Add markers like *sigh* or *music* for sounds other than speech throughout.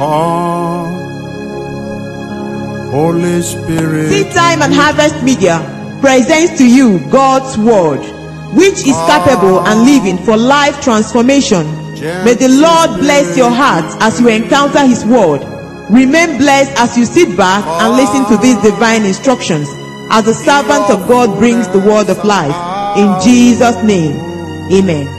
Come, Holy Spirit. Seed Time and Harvest Media presents to you God's Word, which is capable and living for life transformation. May the Lord bless your heart as you encounter His Word. Remain blessed as you sit back and listen to these divine instructions as the servant of God brings the word of life. In Jesus' name, Amen.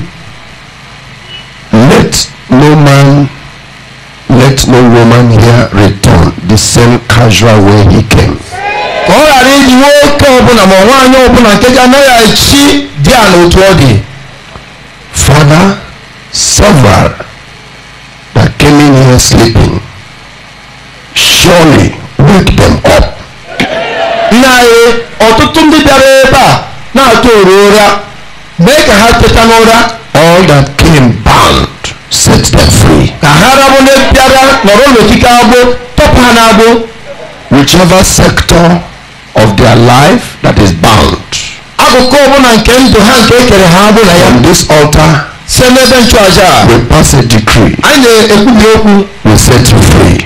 Let no man, let no woman here return the same casual way he came. ka ọ ghara iji nwoke ọbụla ma nwaanyị ọbụla nke ga anaghị echi di ya n'otu ọ dị. Father, several that came in here sleeping, surely wake them up. Nna anyị ọtụtụ ndị bịara ebe a na-atụ oru ụra mee ka ha teta n'ụra. All that came bound. set them free. whichever sector of their life that is bound. akụkụ ọbụla on this altar. we pass a decree. Eh, eh, eh, we set you free.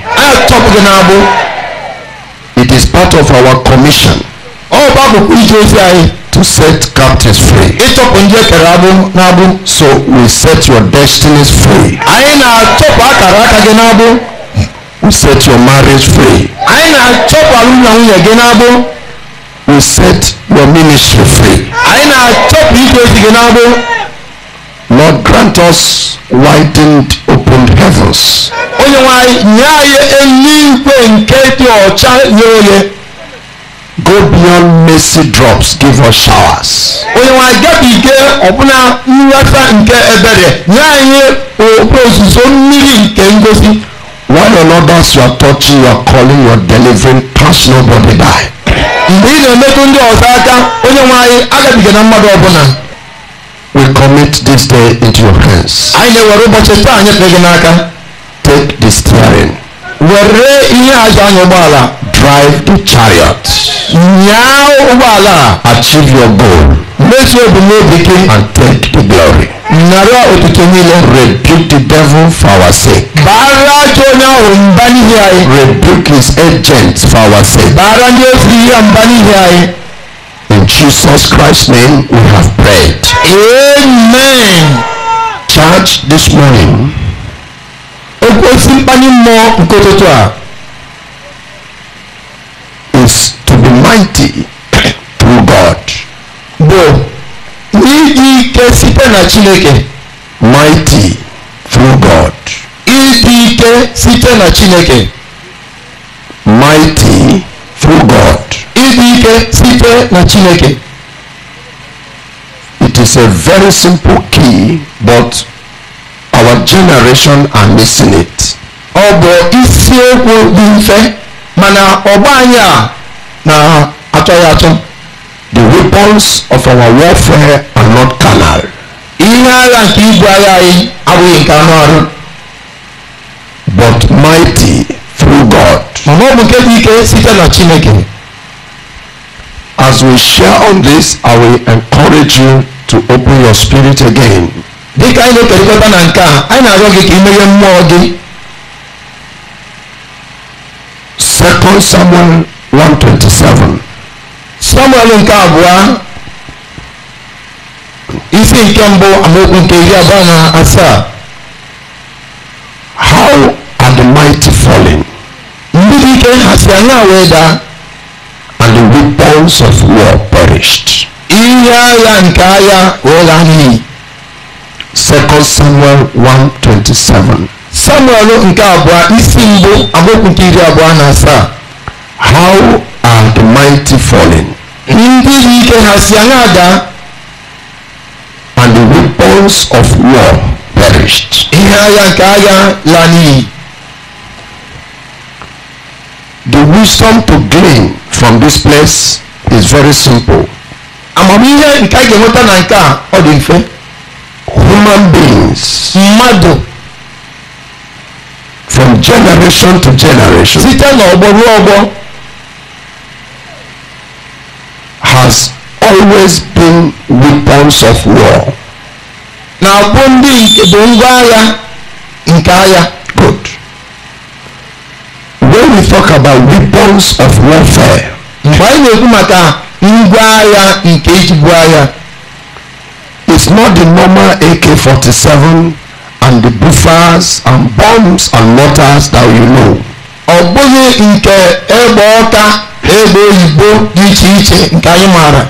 it is part of our commission. Oh, to set captives free. ịtọpụ ndị ekere agbụ n'agbụ. so we set your destinies free. anyị na-atọpụ akara aka gị n'agbụ. we set your marriage free. anyị na-atọpụ alụmdi na nwunye gị n'agbụ. we set your ministry free. anyị na-atọpụ ike ozi gị n'agbụ. lord grant us widened opened heavens. onye nwe anyị nye anyị eluigwe nke dị ọcha nye onye. go beyond mercy drops give us showers. onye nwe ike ọbụna nnweta nke ebere nye anyị ozuzo mmiri nke ngosi. one on others you are touching you are calling you are delivering pass nobody by. mgbe ị na-emetụ ndị ọzọ aka onye nwe anyị agabiga na mmadụ ọbụla. we commit this day into your hands. anyị na-ewere ụbọchị taa anyị pere gị n'aka. take the steering. were ihe azụ anya ụgbọala drive the chariot nyaa ụgbọala achieve your goal mezuo ebumnobi gị and take the glory nara otuto niile rebuke the devil for our sake baara ajọ onye ahụ mba n'ihi anyị rebuke his agent for our sake baara ndị ozi ya mba n'ihi anyị in jesus christ name we have prayed amen church this morning esimpanyi mọ nkototo a is to be mighty through God. bụ n'iji ike site na Chineke. mighty through God. ịdị ike site na Chineke. mighty through God. ịdị ike site na Chineke. it is a very simple key but our generation are missing it. ọ bụ isiokwu dị mfe mana ọgba anyị a na-atọghị atọ. the weapons of our warfare are not carnal. ihe agha nke ibu agha anyị abụghị nke anụ arụ. but mighty through God. mana ọ bụ nke dị ike site na Chineke. As we share on this, I will encourage you to open your spirit again dịka anyị na-ekerịkọta na nke a anyị na-arịọ gị ka imeghe mmụọ gị second samuel 127 samuel nke abụọ isi nke mbụ amaokwu nke iri abụọ na asaa how are the mighty falling ndị ike ha si anya wee daa and the weapons of war perished ihe agha nke agha wee laa n'iyi Second Samuel 1:27. Samuel nke abụọ isi mbụ amaokwu nke iri abụọ na asaa. How are the mighty fallen? Ndị dị ike ha si anya ada. And the weapons of war perished. Ihe agha nke agha laa n'iyi. The wisdom to glean from this place is very simple. Amamihe nke a ga-enweta na nke a ọ dị mfe human beings mmadụ from generation to generation site n'ọgbọ ruo ọgbọ has always been weapons of war na-abụ ndị bụ ngwa agha nke agha good when we talk about weapons of warfare mgbe anyị na-ekwu maka ngwa agha nke agha it's not the normal AK-47 and the buffers and bombs and mortars that you know. Ọ bụghị nke egbe ọka na oyibo dị iche iche nke anyị maara.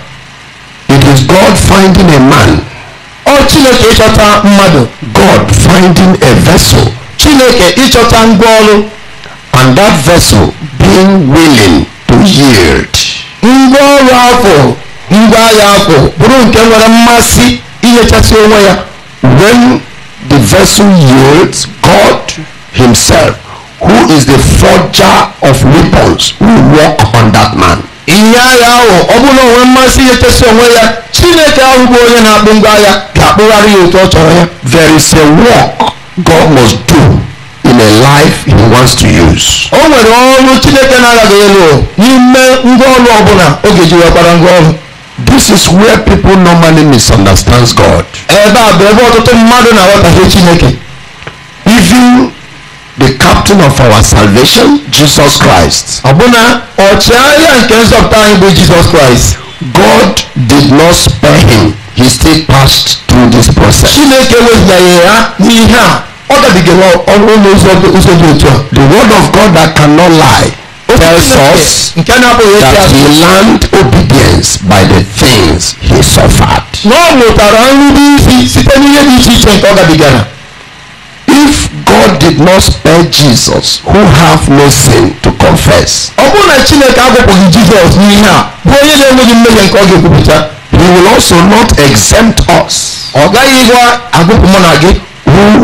It is God finding a man. Ọ Chineke ịchọta mmadụ. God finding a vessel. Chineke ịchọta ngwa ọrụ. And that vessel being willing to yield. Ngwa ọrụ afọ ngwa agha afọ bụrụ nke nwere mmasị ihechasia onwe ya when the vessel yields God himself who is the forger of weapons will work on that man. ihe agha ahụ ọ bụrụ na o nwee mmasị ihechasia onwe ya chineke ahụ bụ onye na-akpụ ngwa agha ga-akpụgharị ya otu ọ chọrọ ya. there is a work God must do in a life he wants to use. o nwere ọrụ chineke na-agaghị elu n'ime ngwa ọrụ ọ bụla oge ji wekwara ngwa ọrụ. This is where people normally misunderstand God. Ẹ̀bá àbẹ̀wò ọ̀tọ̀tọ̀ mmadụ na àwọn ọ̀tàfẹ́ Chineke. Even the captain of our salvation Jesus Christ. Ọ̀bụna ọ̀chịagha nke nzọpụta anyị bụ Jesus Christ. God did not spare him. He still passed through this process. Chineke wezụgharị ya n'ihe a ọ dabigara ọrụ n'ụzọ dị otu a. The word of God that cannot lie. tells us that he learned obedience by the things he suffered. If God did not spare Jesus, who have no sin to confess, he will also not exempt us oh, who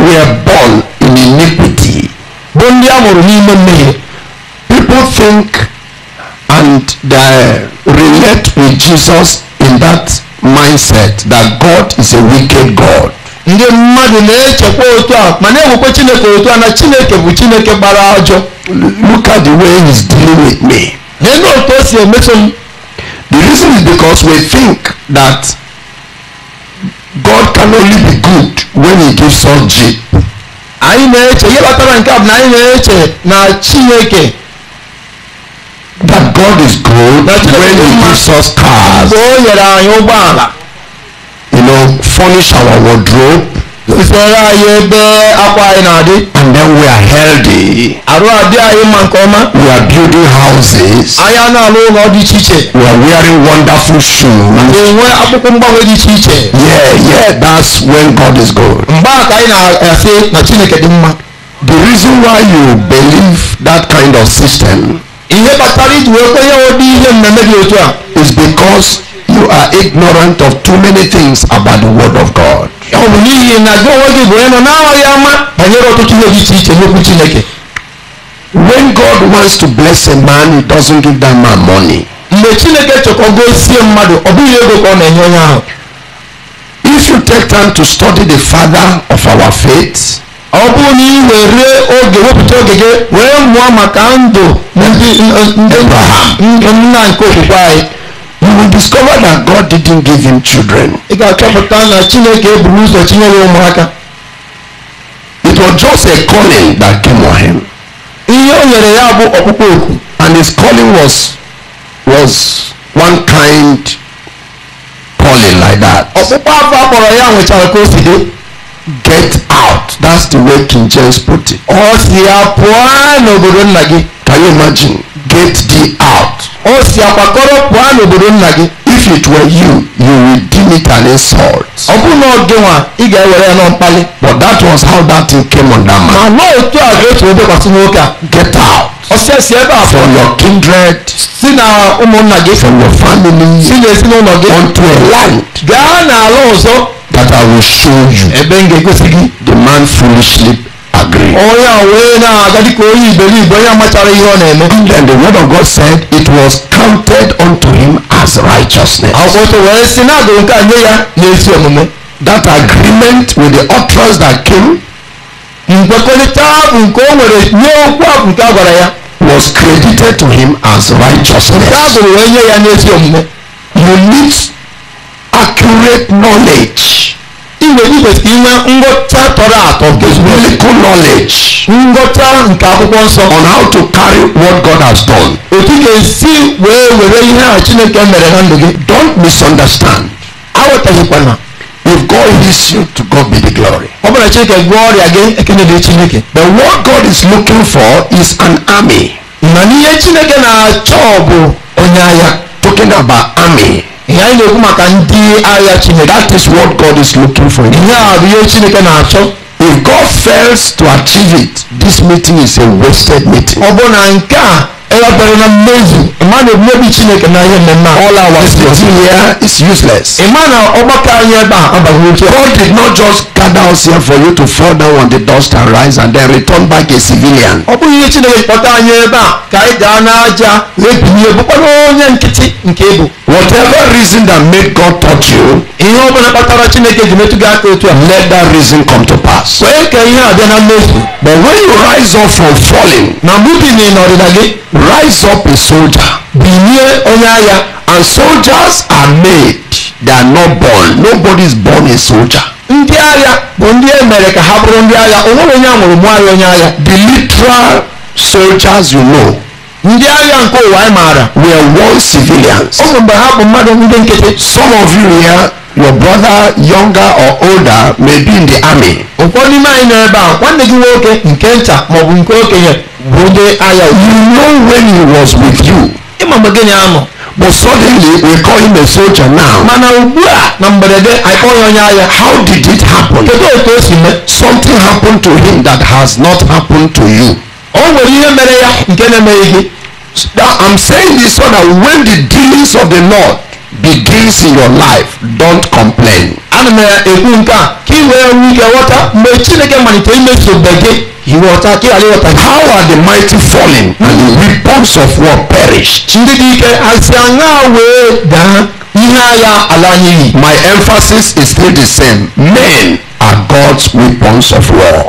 were born in iniquity people think and they uh, relate with Jesus in that mindset that God is a wicked God. ndị mmadụ na-echekwa otu a ma na-ewekwa chineke otu a na chineke bụ chineke gbara ajọ look at the way he's dealing with me lee na otu o si emeso m the reason is because we think that god can only be good when he gives us jeep anyị na-eche ihe nke a bụ na anyị na-eche na chineke that God is good That when He gives us cars. You know, furnish our wardrobe. Ìfẹ̀rẹ̀ ayé bẹ́ apá iná àdé. And then we are healthy. Àrò àdé ayé máa ń kọ́ mọ́. We are building houses. Aya náà ló ń ọdún ṣíṣe. We are wearing wonderful shoes. Ìwé akókó ń di ṣíṣe. Yeah, yeah, that's when God is good. Mgbà àkàyè na ẹ̀fẹ́ na Chineke dị mma. The reason why you believe that kind of system. ihe kpatara iji wee kwenye ụdị ihe dị otu a is because you are ignorant of too many things about the word of God. ọ bụ n'ihi na gị onwe gị bụ ama banyere ọtụtụ ihe dị iche iche n'okwu Chineke. When God wants to bless a man, he doesn't give that man money. Mgbe Chineke gosie mmadụ, ọ bụghị ego ka ọ na-enye onye ahụ. If you take time to study the father of our faith. ọ bụrụ na ị were oge wepụta oge gị wee mụọ maka ndụ ndị nna nke okwukwe anyị you will discover that God didn't give him children. ị ga-achọpụta na chineke eburu ụzọ chinyere ụmụaka it was just a calling that came on him. ihe o nyere ya bụ ọkpụkpọ oku. and his calling was was one kind calling like that. ọkpụkpọ afọ akpọrọ ya nwechara ka o si dị get out that's the way King James put it. ọ si apụọ n'obodo nna gị. can you imagine get the out. ọ si akwakọrọ pụọ n'obodo nna gị. if it were you you will deem it an insult. ọ bụrụ na ọ gị nwa ị ga-ewere ya n'ọmkpali. but that was how that thing came on that man. ma na otu a ga-eso obekwasị nwoke a. get out ọsẹ ẹsẹ ẹ bá a fọ. from your kindred. sínú ụmụnna gị. from your family. sínú ezinụlọ gị. unto a land. gaa n'ala ọzọ. that I will show you. ebe m ga-egosi gị. the man foolishly agree. onye a wee na-agadi ka onye iberibe onye amachara ihe ọ na-eme. and then the word of God said it was counted unto him as righteousness. akwụkwọ wee sị na nke a nye ya n'ezi omume. that agreement with the utterance that came. nkwekọrịta bụ nke o nwere nye okwu ahụ nke a gwara ya was credited to him as righteousness. Báàbò rẹ̀ yẹ ya ní etí ọ̀mọ́. You need accurate knowledge. Ìwé nígbà tí iná ngọta tọrọ àtọ. Biblical knowledge. Ngọta nke akwụkwọ nsọ. On how to carry what God has done. Otu ga-esi wee were ihe a Chineke mere na ndụ gị. Don't misunderstand. Aghọtaghịkwana. If God hears you, to God be the glory. But what God is looking for is an army. na Talking about army. That is what God is looking for. Chineke na If God fails to achieve it, this meeting is a wasted meeting. ɛyɛbɛrɛ na mezi mmaa na ebien bi kyinɛ kana yɛ mɛ na all our sitting here is useless. mmaa na ɔbɛka yɛ ba abahunkye. God did not just gather us here for you to fall down on the dust and rise and then return back a civilian. ɔbɔ yi kyinɛ ɔta yɛ ba ka ɛ da n'aja ebie bɔbɔ na ɔnyɛ nkete nke ebo. whatever reason that made God touch you. ihe ọbụla kpatara chineke ji metụ gị aka a. let that reason come to pass. wee ka ihe a bịa na mmefu. but when you rise up from falling. na mbubi na ịnọrịla gị rise up a soldier. bilie onye agha. and soldiers are made they are not born nobody is born a soldier. ndị agha bụ ndị e mere ka ha bụrụ ndị agha o nwere onye amụrụ mụọ ya onye agha. the literal soldiers you know. ndị agha nke ụwa anyị maara. were one civilians. ọ bụ mgbe ha bụ mmadụ ndị nkịtị. some of you here. your brother younger or older may be in the army. ụfọdụ n'ime anyị nọ ebe a nwanne gị nwoke nke maọbụ nke okenye bụ onye agha you know when he was with you. ịma mgbe na-anọ. but suddenly we call him a soldier now. mana ugbu a na mberede ya onye agha. how did it happen? kedu o si mee. something happened to him that has not happened to you. o nwere ihe mere ya nke na-emeghị gị. i'm saying this so that when the dealings of the lord begins in your life don't complain. ana m ekwu nke a ka ị wee nwee ike ghọta mgbe chineke malitere imezuobe gị iwọta kí alẹ́ wọta. how are the mighty falling? and the weapons of war perish. ndị dị ike asị aṅa wee daa ihe agha ala n'iyi. my emphasis is still the same men are God's weapons of war.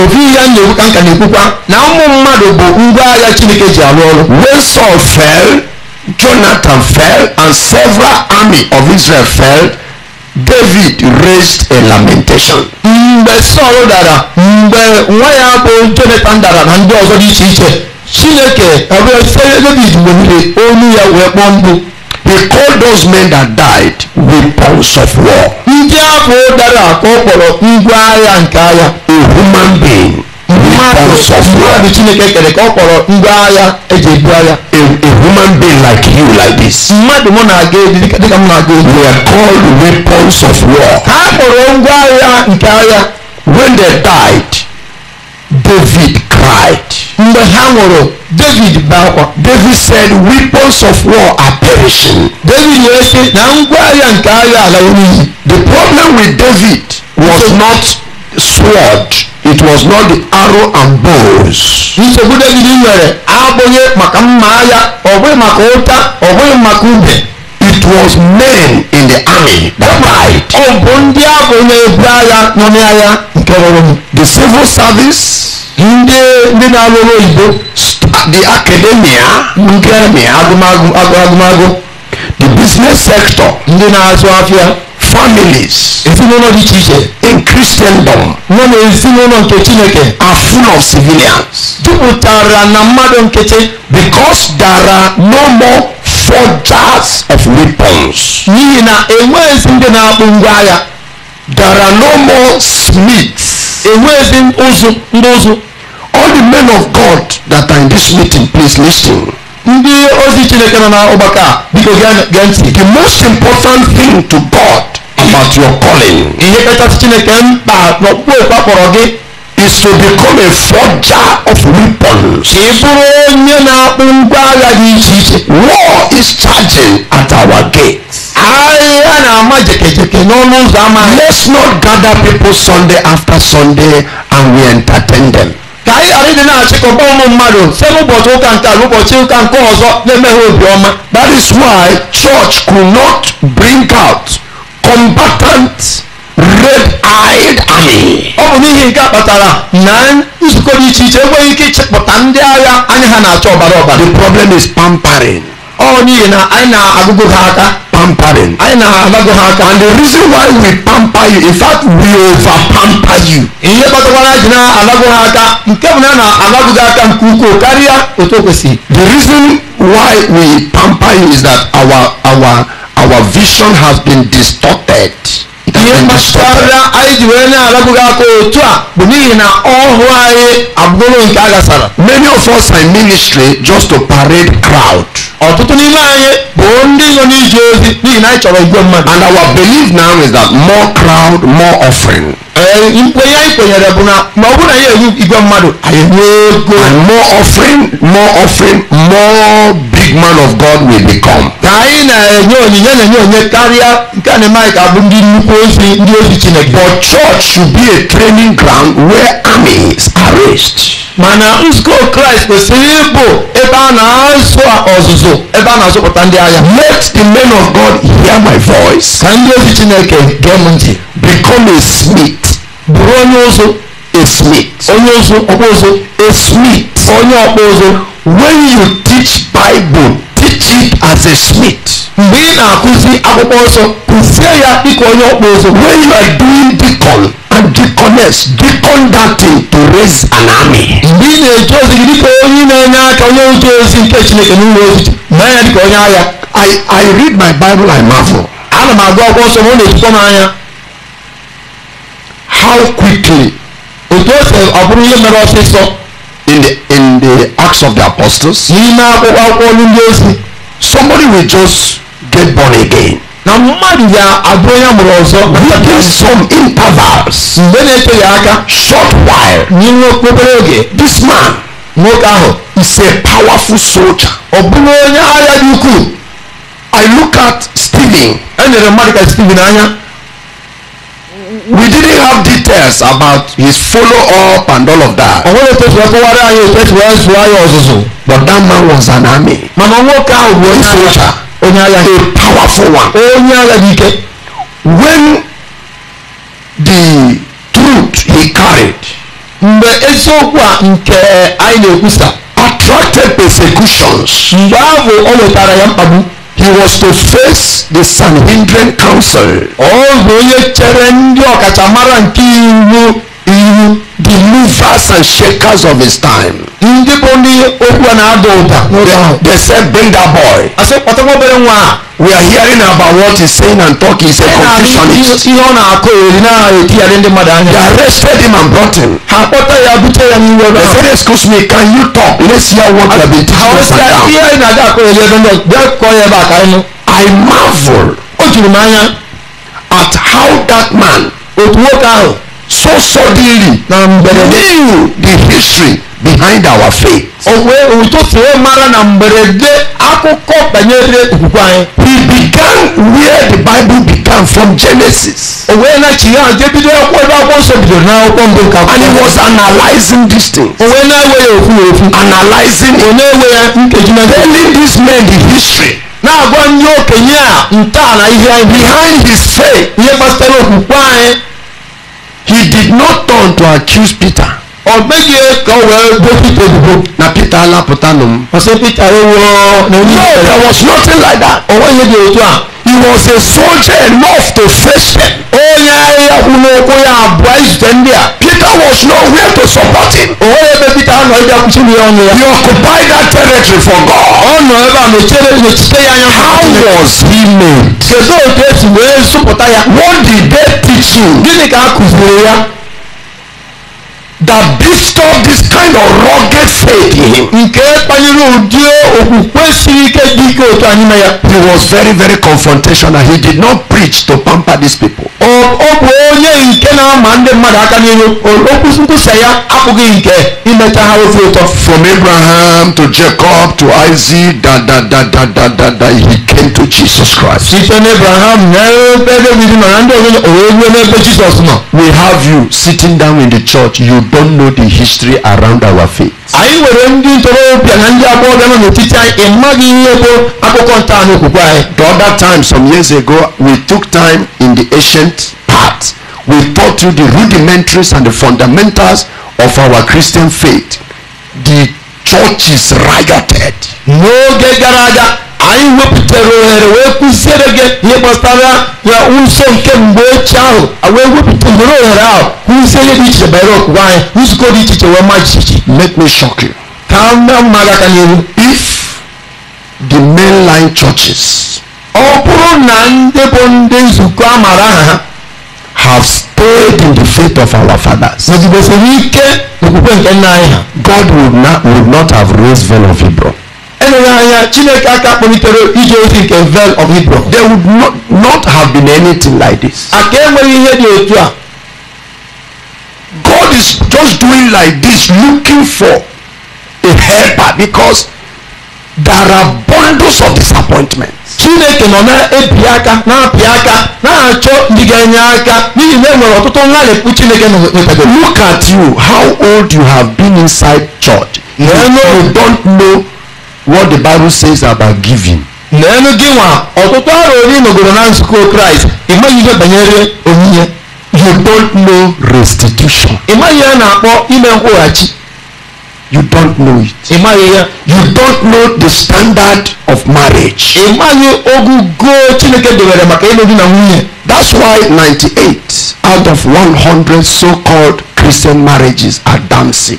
ofu ya na-ekwukwa nka na-ekwukwa na ụmụ mmadụ bụ ngwa agha Chineke ji alụ ọrụ. when Saul fell. Jonathan fell and several army of Israel fell. David raised a lamentation. Mgbe Sọl dara mgbe nwa ya bụ Jonathan dara na ndị ọzọ dị iche iche Chineke ọbụla site David weliri olu ya wee kpọọ mkpu. He called those men that died weapons of war. Ndị ahụ dara ka ọ kpọrọ ngwa agha nke agha. A human being. a being like you like this we are called weapons of war when they died david cried david david said weapons of war are perishing david the problem with david was not sword it was not the arrow and bows. nsogbu david nwere abụghị maka mma agha ọ bụghị maka ụta ọ bụghị maka ube it was men in the army that died. ọ bụ ndị abụ na-ebu agha nọ n'agha nke rụrụ m. the civil service. ndị ndị na-arụ oyibo. the academia. nke agụmagụ agụmagụ. the business sector. ndị na-azụ afịa families ezinụlọ dị iche iche in christendom nọ na ezinụlọ nke chineke are full of civilians jupụtara na mmadụ nkechi because there are no more forgers of weapons n'ihi na enweghịzi ndị na-akpụ ngwa agha there are no more smiths enweghịzi ụzụ ndị ụzụ all the men of god that are in this meeting please listen ndị ozi chineke nọ n'ọgbakọ biko gee ntị the most important thing to god about your calling. ihe kacha chineke mkpa n'ọkpụkpọ ịkpakpọrọ gị is to become a forger of weapons. kì bụrụ onye na-akpụ ngwa agha dị iche iche. war is charging at our gate. ahịa na-ama jekejeke n'ọnụ ụzọ ama. let's not gather people sunday after sunday and we entertain them. ka anyị ghara ịdị na-achịkọba ụmụ mmadụ site n'ụbọchị ụka nke ala ụbọchị ụka nke ọzọ na-emeghe obiọma. that is why church could not bring out combatant red-eyed army. ọ n'ihi nke a kpatara na nzukọ dị iche iche enweghị ike ịchịpụta ndị agha anya ha na-acha ọbara ọbara. the problem is pampering. ọ n'ihi na anyị na-agụgụ ha aka. pampering. anyị na-agụgụ ha aka. and the reason why we pamper you in fact we over pamper you. ihe kpatakwara ji na-agụgụ ha aka nke bụ na na-agụgụ aka nke ukwuu karịa otu o kwesịrị. the reason why we pamper you is that our our our vision has been distorted. Yemmasara anyị ji were na-alabụghị aka otu a bụ n'ihi na ọhụụ anyị abụrụ nke agasara. Many of us are in ministry just to parade crowd. Ọtụtụ n'ime anyị bụ ndị nọ n'ije ozi n'ihi na anyị chọrọ igwe mmadụ. And our belief now is that more crowd, more offering. Nkwenye eh, anyị kwenyere bụ na ma ọ bụrụ na anyị enwe igwe mmadụ anyị nwee ego. And more offering, more offering, more big man of God will become. na na-enye na-enye karịa nke na-eme ka ndị nnukwu ozi ndị ozi chineke but church should be a training ground where armies are raised mana nzukọ kraịst kwesịrị ịbụ ebe a na-azụ ọzụzụ ebe a na-azụpụta ndị agha let the men of god hear my voice ka ndị ozi chineke gee m ntị become a smith bụrụ onye ụzụ a smith onye ụzụ ọkpụ ụzụ a smith onye ọkpụ ụzụ when you teach bible as a smith. mgbe ị na-akụzi akwụkwọ nsọ kụzie ya dịka onye ọkpụ ụzọ when you are doing deacon and deaconess deacon that thing to raise an army. mgbe ị na-eje ozi gị dịka onye na-enye aka onye otu ozi nke chineke n'ụlọ ozi mee ya dịka onye agha. I I read my bible I marvel. ana m agụ akwụkwọ nsọ m ọ na-ejikwa m anya. how quickly otu o si ọ bụrụ ihe mere ọsịsọ. in the in the acts of the apostles. n'ime akwụkwọ akwụkwọ ndị ozi. somebody will just get born again. na mmadụ ya abụrụ ya mụrụ ọzọ. within some intervals. mgbe na-ete ya aka. short while. n'ime okpobere oge. this man. nwoke ahụ. is a powerful soldier. ọ bụrụ onye agha dị ukwuu. I look at Stephen. e nyere mmadụ ka Stephen anya we didn't have details about his follow up and all of that. ọ̀hún lè tẹ̀sí ẹ̀kọ́ wárí ayé ìtẹ̀sí wáyé ayé ọ̀sùnsùn. but that man was an army. màmá wọn ká òwò ní àyà onye agha a powerful one. onye agha dị ike. when the truth he carried. mgbe eziokwu a nke anyị na-ekwusa. attracted persecutions. mgbe ahụ o wetara ya mkpagbu. he was to face the Sanhedrin council. ọ bụ onye chere ndị ọkachamara nke iwu the movers and shakers of his time. ndị bụ ndị okwu na-ada ụda n'oge ahụ. they said bring that boy. asị kpọtakwa obere nwa a. we are hearing about what he saying and talking is a confusionist. ihe ọ na-akọ eri na-etigharị ndị mmadụ anya. they arrested him and brought him. ha kpọta ya bute ya n'iwe ọrụ. they said excuse me can you talk let's hear what you have been teaching us and now. ihe anyị na-aga akọ eri ebe ndị bịa kọọ ya ebe a ka anyị I marvel. o juru m anya. at how that man. otu nwoke ahụ so suddenly na mberede knew the history behind our faith. òwe òtútù ó mara na mberede akụkọ banyere okwukwe anyị. he began where the bible began from genesis. òwe na-achị ya je bido akwụkwọ ebe akwụkwọ nsọ bidoro n'akwụkwọ mbụ nke akwụkwọ. and he was analysing these things. òwe na-enweghị okwu okwu. analysing it. na-enwe ya nkeji na telling these men the history. na-agwa ndị okenye a ntọala ihe anyị. behind his faith. ihe gbasara okwukwe anyị he did not turn to accuse Peter. ọ̀gbẹ́ni ẹ̀ka wẹ̀ gbé Peter dìbò. na Peter alápòtánù. ọ̀sẹ̀ Peter ewu ọ̀ nà no there was nothing like that. ọwọ́ yẹ di ojú à he was a soldier enough to face them. onye ahịa kwunokwu ya abụọ ijide ndị a. Peter was nowhere to support him. o nwere Peter anọ ịbịa kwụsịrị ya ọnụ ya. he occupied that territory for God. ọ nọ ebe a nọchere nọchite ya anya. how was he made? kedu otu esi wee zụpụta ya. what did they teach you? gịnị ka a kụziri ya? that bestowed this kind of rugged faith in him. nke kpaliri ụdị okwukwe siri ike dị ike otu anyị na ya. he was very very confrontational he did not preach to pamper these people. ọ bụ onye nke na-ama ndị mmadụ aka n'ihu okwu nkwusa ya abụghị nke imecha ha ofe ụtọ. from abraham to jacob to isaac da da da da da da he into Jesus Christ. Site n'Abraham We have you sitting down in the church you don't know the history around our faith. I nwere ndị ntorobịa other time some years ago we took time in the ancient part we taught you the rudimentaries and the fundamentals of our Christian faith. The is rioted. N'oge gara aga anyị wepụtara ohere wee kụziere gị ihe gbasara ya ụzọ nke mgbe ochie ahụ wee wepụta ohere ohere ahụ kụzie ihe dị iche banyere okwukwe anyị nzukọ dị iche iche wee ma jijiji make me shock you ka mma gị aka n'ihu if the mainline churches ọ bụrụ na ndị bụ ndị nzukọ amara, aha ha have stayed in the faith of our fathers. nọgidesiri assim, ike n'okwukwe nke nna anyị ha. God would not, would not have raised Ven of Hebron. enwere anya chineke aka kpọlitere ije ozi nke vel of hebron there would not, not have been anything like this aka enweghị ihe dị otu a god is just doing like this looking for a helper because there are bundles of disappointment. chineke nọ na-ebi aka na-apị aka na-achọ ndị ga-enye aka n'ihi na enwere ọtụtụ nlalịpụ chineke nọkwado look at you how old you have been inside church you, you don't know what the bible says about giving. n'elu gị nwa ọtụtụ ọrụ onye nọgoro na nzukọ kraịst ịmaghị ihe banyere onyinye you don't know restitution. ịmaghị ya na-akpọ ime nkwụghachi. you don't know it. ịmaghị ya. you don't know the standard of marriage. ịmaghị ogugo chineke debere maka ịlụ di na nwunye. that's why 98 out of 100 so-called christian marriages are dancing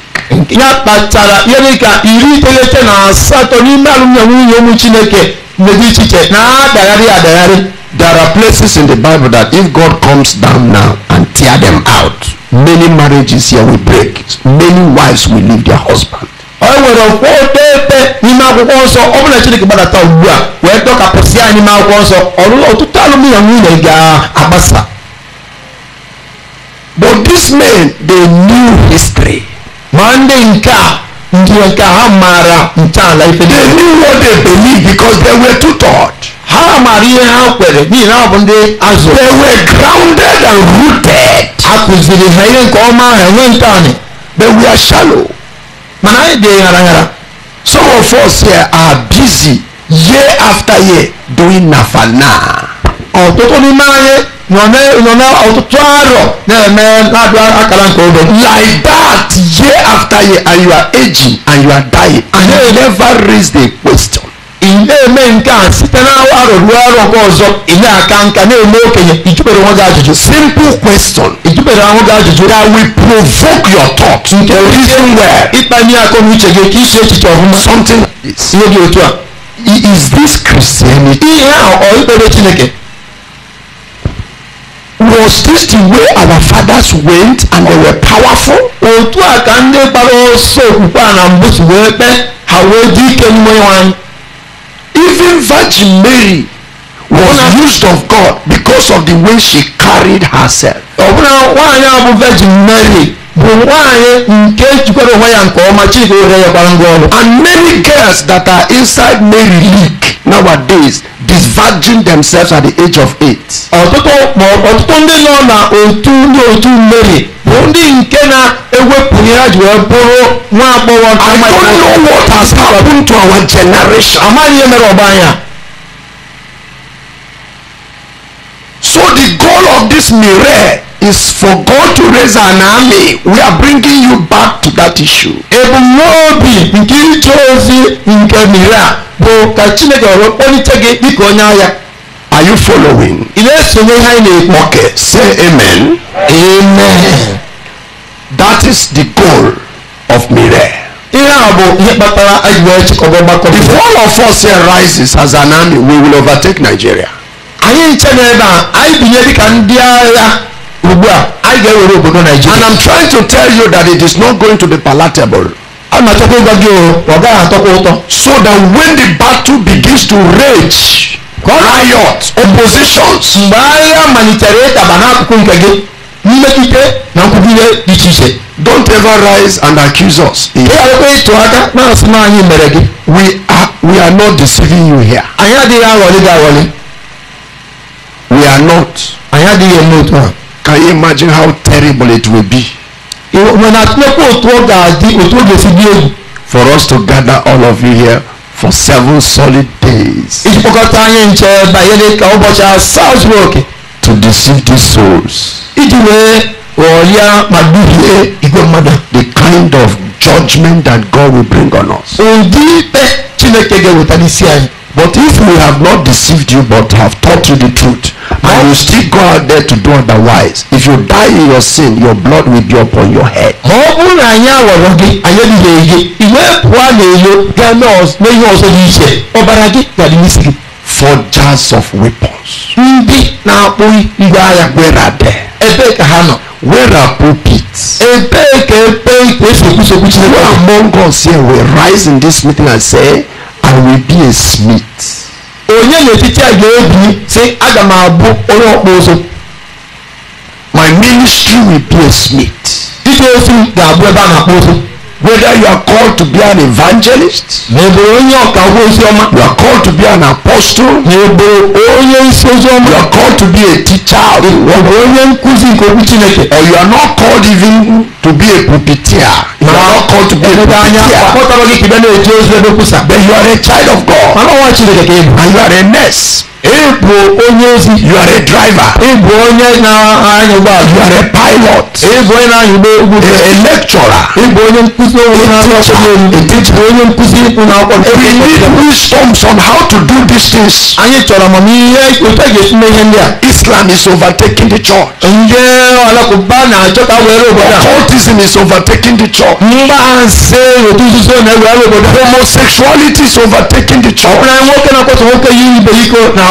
ya kpatara ya dị ka iri iteghete na asatọ n'ime alụmdi nwunye ụmụ chineke mmegbu ichiche na-adagharị adagharị there are places in the bible that if god comes down now and tear them out many marriages here will break many wives will leave their husband. ọ nwere okwu otepe n'ime akwụkwọ nsọ ọ bụla chineke gbadata ugbu a wee dọkapụsị ya n'ime akwụkwọ nsọ ọlụlụ ọtụtụ alụmdi nwunye ga-agbasa but this man, they knew history mande nke a ndị nke ha maara ntọala ife niile. they knew what they believed because they were taught. ha maara ihe ha kwere n'ihi na ọ bụ ndị azụ. they were grounded and rooted. a kụziri ha ihe nke ọma ha enwe ntọala. they were shallow. mana anyị dị ghara some of us here are busy year after year doing nafana. ọtụtụ n'ime anyị nɔnɛ ɔtɔtɔarɔ ne mɛ ladu akala nkɔ bɛ. like that year after year and you are aging and you are dying and you never raise the question. na-eme nke a site na awa rụrụ ọrụ nke ọzọ inye aka nka na-eme okenye ijubere onwe gị ajụjụ simple question ijubere onwe gị ajụjụ that will provoke your thought nke reason where ịkpanye akọ na uche gị ka isi echiche ọhụma something like this ihe dị otu a is this christianity ihe ahụ ọ ikpere chineke was this the way our fathers went and they were powerful? otu a ka ndị kpara ọsọ okwukwe a na mbụ si wee kpee ha wee dị ike n'ime nwanyị. even virgin mary was used of god because of the way she carried herself. ọbụna nwaanyị a bụ virgin mary bụ nwaanyị nke jikwara onwe ya nke ọma chineke were ya gbara ngwa ọrụ. and many girls that are inside mary league nowadays disverging themselves at the age of eight. ọtụtụ ọtụtụ ndị nọ na otu ndị otu mmeri bụ ndị nke na-ewepụghị ha ji wee bụrụ nwa agbọghọ I don't know what has happened to our generation. amaghị ihe mere ọgba anya. so the goal of this mirror is for God to raise an army. We are bringing you back to that issue. ebumnobi nke ije ozi nke miri a bụ ka chineke ọrụ kpọlite gị dịka onye agha Are you following? Ị na-esonye ihe na Okay, say amen. Amen. That is the goal of Mire. Ihe a bụ ihe kpatara If all of us here rises as an army, we will overtake Nigeria. Anyị nche n'ebe a, anyị binye dịka ndị agha ugbu a, anyị ga-ewere obodo Nigeria. And I'm trying to tell you that it is not going to be palatable so that when the battle begins to rage. riot oppositions. mgbe agha malitere ịtaba n'akụkụ nke gị mmetụta don't ever rise and accuse us. we are we are not deceiving you here. we are not. can you imagine how terrible it will be. When I play for us to gather all of you here for seven solid days. It's Ìjùpọ̀kọ̀tà yẹn ń jẹ báyẹn ní ká ọbọ̀ṣà South Rock. To deceive these souls. It Ìdílé ọ̀ọ́líà màdúgbìlẹ̀ ìgbọ̀mọ̀dà. The kind of judgment that God will bring on us. Òǹdí bẹ́ẹ̀ Chineke gẹ̀wò tani sí àyè. But if we have not deceived you but have taught you the truth, and you still go out there to do otherwise, if you die in your sin, your blood will be upon your head. Mọ̀ ọ́ bú na ayé àwọ̀rọ̀ gé ayé ni lè yé ìwé ẹ̀kọ́ lè yé yìí ṣe ọ̀bàrà gé yàrá ní sìkì. For jars of weapons. Ndị na-akpụ ngwa agha were there. Ebee ka ha nọ? Where are pulpits? Ebee ka ebe ikpe sokwusokwu Chineke? Where among us here will rise in this meeting and say. I will be a smith. onye n'etiti a ga-ebi sị aga m abụ onye ọkpụ ụzụ. my ministry will be a smith. ije ozi ga-abụ ebe a na-akpụ ụzụ whether you are called to be an evangelist. n'eboro onye ọka ozi ọma. you are called to be an apostle. n'eboro onye isi ozi ọma. you are called to be a teacher of onye nkuzi nke okwu chineke. or you are not called even to be a puppeteer. you are not called to be a puppeteer. anya akpọtara gị ka na-eje ozi ebe kwusa. but you are a child of God. mana ọwa chineke ka ị bụ. and you are a nurse. ịbụ onye ozi you are a driver ịbụ onye na-anya ụgbọala you are a pilot ịbụ onye na-anya ụgbọ a lecturer ịbụ onye nkụzi onye na-akpọ onye nkụzi ịkpụ na-akpọ we need wisdoms on how to do these things anyị chọrọ amamihe otu ga-esi ihe ndị a islam is overtaking the church ndị alakụba na-achọta were obodo a occultism is overtaking the church mgbanse otu nzuzo na-ewere obodo homosexuality is overtaking the church ọ bụla nwoke na-akpọtụ nwoke yi ibe iko na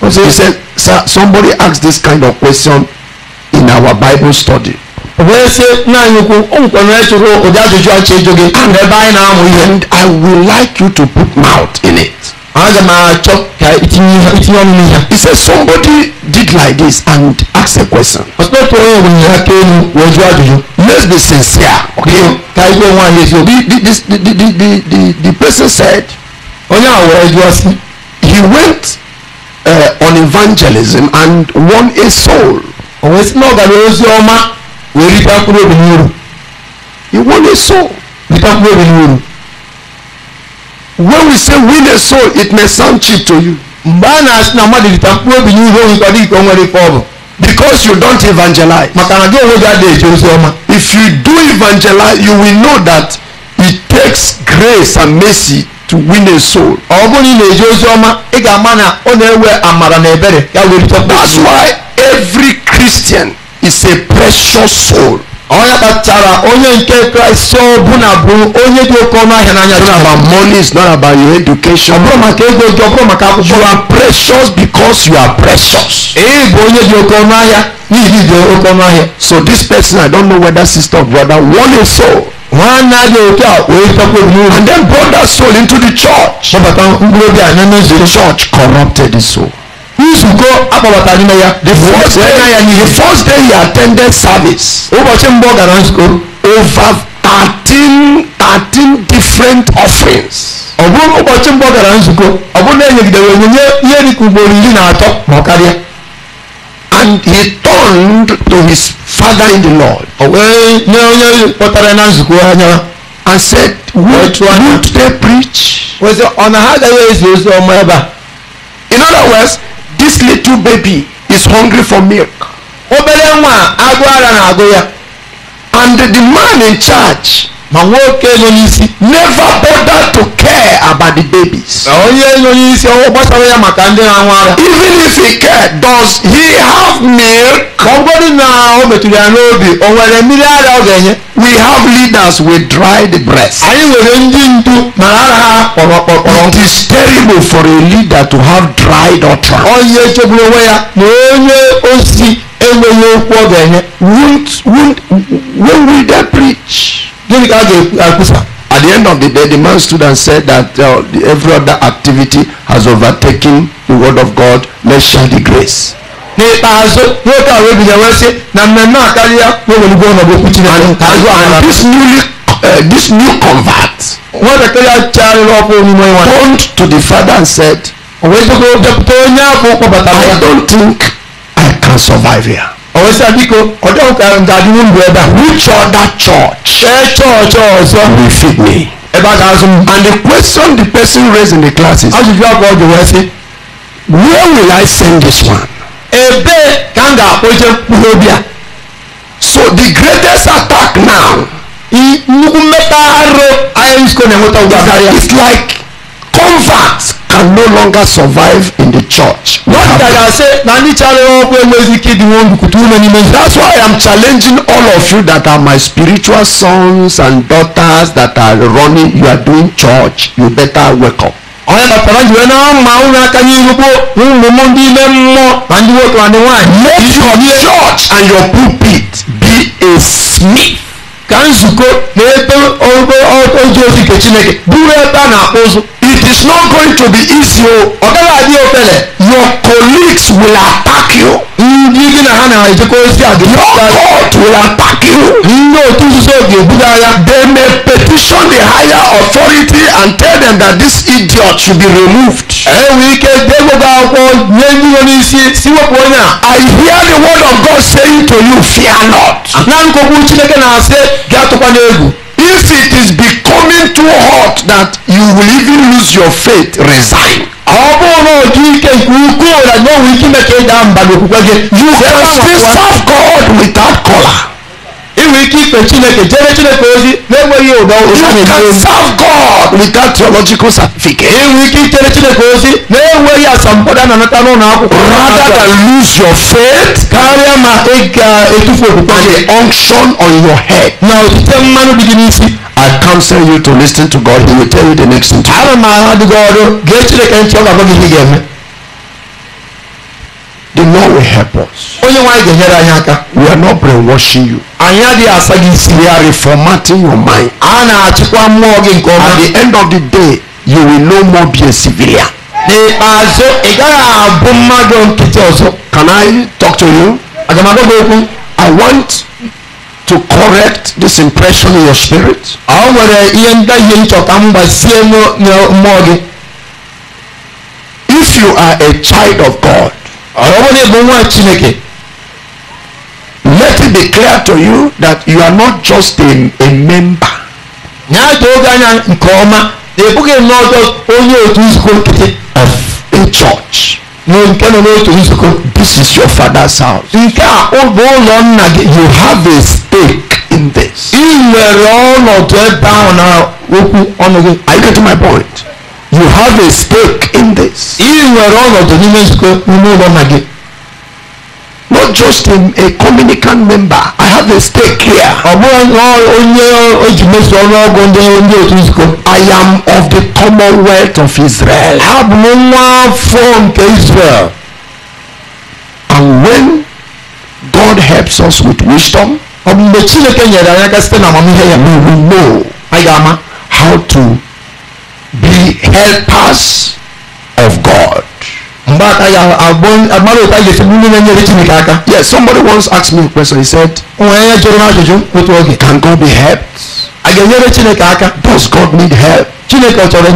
He said, Sir, somebody asked this kind of question in our Bible study. Oh, oh, and I would like you to put mouth in it. He said somebody did like this and asked a question. Let's be sincere. Okay. The, the, the, the, the, the, the person said oh, he went uh, on evangelism and won a soul. O wee sị na ọ gara ọma wee ritakwuru obi n'uru. He won a soul. Ritakwuru obi n'uru. When we say win a soul, it may sound cheap to you. because you don't evangelize. if you do evangelize you will know that it takes grace and mercy to win a soul. ọ bụrụ na ị na ị ga-ama na ọ na-ewe amara na ebere ya were chọta. that's why every Christian is a precious soul. onye kpachara onye nke kraịst ọbụna bụ onye dị oke ọnụ ahịa n'anya chineke. about money is not about your education. ọ bụrụ maka ego gị ọ bụrụ maka akwụkwọ. you are precious because you are precious. ị bụ onye dị oke ọnụ ahịa n'ihi dị oke ọnụ ahịa. so this person i don't know whether sister or brother won a soul. nwanne adị otu a wee chekwa obi and then brought that soul into the church. kpọbata mkpụrụ obi anya n'ezie. the church corrupted the soul. izuko akpọbatara n'ime ya the first day the first day he attended service ụbọchị mbụ ọ gara nzukọ over thirteen thirteen different offerings ọ bụrụ ụbọchị mbụ ọ gara nzukọ ọ bụrụ na enyegidere onyinye ihe dịka ugboro iri na atọ ma ọ karịa and he turned to his father in the lord o wee nye onye kpọtara na nzukọ anya and said would, would they preach? ọ sị ọ na ha agaghị ezi ozi ọma ebe a in other words this little baby is hungry for milk. obere nwa agụ ara na-agụ ya and the man in charge ma nwoke ịlụnyisi never bother to care about the babies. onye ịlụnyisi ọwụ gbasara ya maka ndị na-anwụ ara. even if he care does he have milk. ma ọ bụrụ na o metụrụ ya n'obi o nwere mmiri ara ọ ga-enye. we have leaders we dry the breast. anyị nwere ndị ndu mara ara ha kpọrọ kpọrọ. it is terrible for a leader to have dried utter. onye chegburu onwe ya na onye ozi enweghị okwu ọ ga-enye. when will they preach. David asked Akusa. At the end of the day, the man stood and said that uh, every other activity has overtaken the word of God. Let's share the grace. N'ikpeazụ nwoke a webi ya wee na mmemme a karịa nweweligo ọnọdụ okwu Chineke. And this newly uh, this new convert. Nwatakịrị a chagharịrị ọkụ omume nwa. Turned to the father and said. O wee jikọọ onye ahụ kpọbata ya. I don't think I can survive here ọ̀wọ́sẹ̀ bíko ọ̀dọ́ ọ̀kàrùn dàbí ń bu ẹ̀dá. which other church. ṣé church ọ̀sọ́. will fit me. ẹ bá ta sùn. and the question the person raised in the classes. a sì fi ọkọ̀ ọjọ́ wẹ́ sí. where will I send this one. ebe kanga oje kpulobia. so the greatest attack now. nnukwu mmekpa arụ ahịa isko na-enweta ụgbọ karịa. it's like convert can no longer survive in the church. wọ́n dàgbà ṣe na ní chale wọ́n pé wẹ́sì kìdí wọn kùtù wọn ni méjì. that's why I am challenging all of you that are my spiritual sons and daughters that are running you are doing church you better wake up. ọ̀rẹ́ na pẹ̀lú ìwé náà ma ń ra ká gbogbo ń mú mú ní ilé mọ́ àdúgbò tó wà ní wọ́n àyè. make your church and your pulpit be a smith. ka nzukọ na ebe oge ozi nke chineke bụrụ ebe a na-akpụ ụzụ it is not going to be easy oh. your colleagues will attack you. Mm, uh, your court will attack you. ndị otu nzuzo ga-ebuga ya. they may petition the higher authority and tell them that this idiot should be removed. Eh, I hear the word of God saying to you fear not. Ah, if it is becoming too hot that you will even lose your faith resign you can still serve God without color we keep ikpe chineke jere chineke ozi na-enweghị ụdọ God without theological certificate. enwe ike ichere chineke ozi na-enweghị asambodo a na n'ụlọ akwụkwọ rather than lose your faith karịa ma ị ga-etufu okwukwe the unction on your head na otite mmanụ dị gị n'isi I counsel you to listen to God. He will tell you the next thing. Ana m ahụ adịghị ọrụ God. Chineke ntị ọ ga-agwa gị the lord will help us. we are not brainwashing you. anyị adịghị asa we are reformatting your mind. a at the end of the day you will no more be a civilian. can i talk to you. i want to correct this impression in your spirit. if you are a child of God. ọlọ́wọ́n ego chineke let it be clear to you that you are not just a, a member. na-atụ oge anya nke ọma na-ebughị nnọọ just onye otu nzukọ nkịtị. of a church. No, nke nọ n'otu nzukọ. this is your father's house. nke a bụ ụlọ nna gị. you have a stake in this. ị nwere ọnọdụ ebe ahụ na okwu ọnụ gị. are you getting my point? You have a stake in this. Not just in a communicant member. I have a stake here. I am of the commonwealth of Israel. Israel. And when God helps us with wisdom, we will know how to be helpers of God. Yes, somebody once asked me a question. He said, Can God be helped? does god need help chineke ọ chọrọ